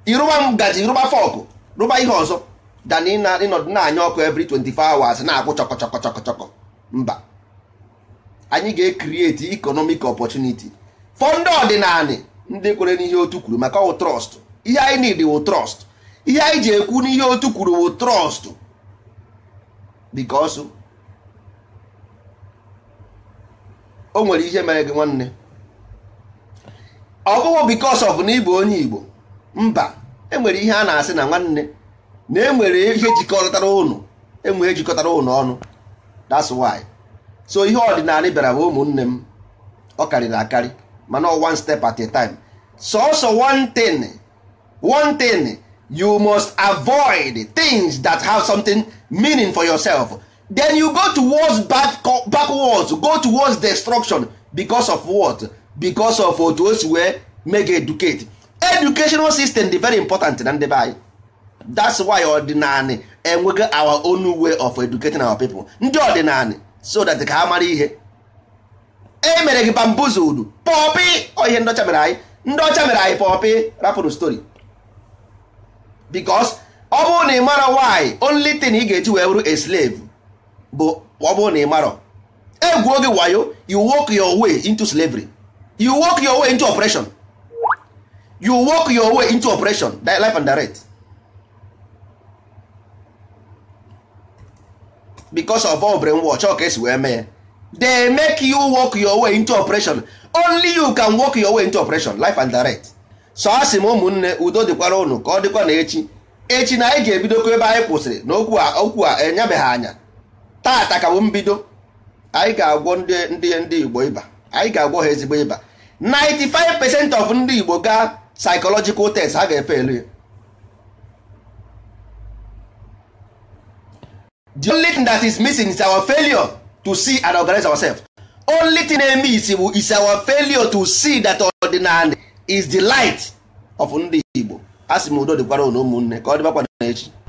ịrụba ngaji rụba fọkụ rụba ihe ọzọ dan ịnọdụ na-anya ọkụ every 24 hours na-akwụ chọkọ chọkọ chọkọ chọkọ mba anyị ga-ekriti ikonomik opportunity for ndị ndị kwere n'ihe otu kwuru maka ọwụ trọst ihe anyị need wụ trọst ihe anyị ji ekwu n'ihe otu kwuru wụ trọst because o nwere ihe mere gị nwanne ọ bụghị because of na ịbụ onye Igbo mba enwere ihe a na-asị na nwanne na enwere ihe jikọtara ụnụ enwere ihe jikọtara ụnụ ọnụ that's why. so ihe ọdịnala bịara bụ ụmụnne m ọ karịrị akarị mana one step at a time sọsọ one thing one thing you must avoid things that have something meaning for yourself then you go towards bad backwards go towards destruction because of what because of otu o wee make educate educational system dị very important na ndị that's why ọdịnala enweghị our own way of educating our people ndị ọdịnala so that ka ha mara ihe e mere gị bambuzudu pọpị ihe ndị mere anyị ndị ọcha mere anyị pọpị rapụrụ story because ọ bụrụ na ị mara why only thing ị ga-eji wee bụrụ a slave bụ ọ bụrụ na ị mara egwuo gị wayo you walk your way into slavery you walk your way into operation you walk your way into operation life and direct because of obere nwa ka esi wee mee ya they make you work your way into operation only you can work your way into operation life and direct so a sị m ụmụnne udo dịkwara unu ka ọ dịkwa na echi echi na anyị ga-ebidokwa ebe anyị kwụsịrị na okwu a okwu a enyebeghị anya tata ka bụ mbido anyị ga-agwọ ndị ndị igbo ịba anyị ga-agwọ ha ezigbo ịba 95 percent of ndị igbo gaa psychological test ha ga-efe elu ya the only thing that is missing is our failure to see and organize ourselves. only thing na-eme isi bụ is our failure to see that ordinary is the light of ndị Igbo a sị m udo dịkwara ụmụnne ka ọ dịbakwa n'echi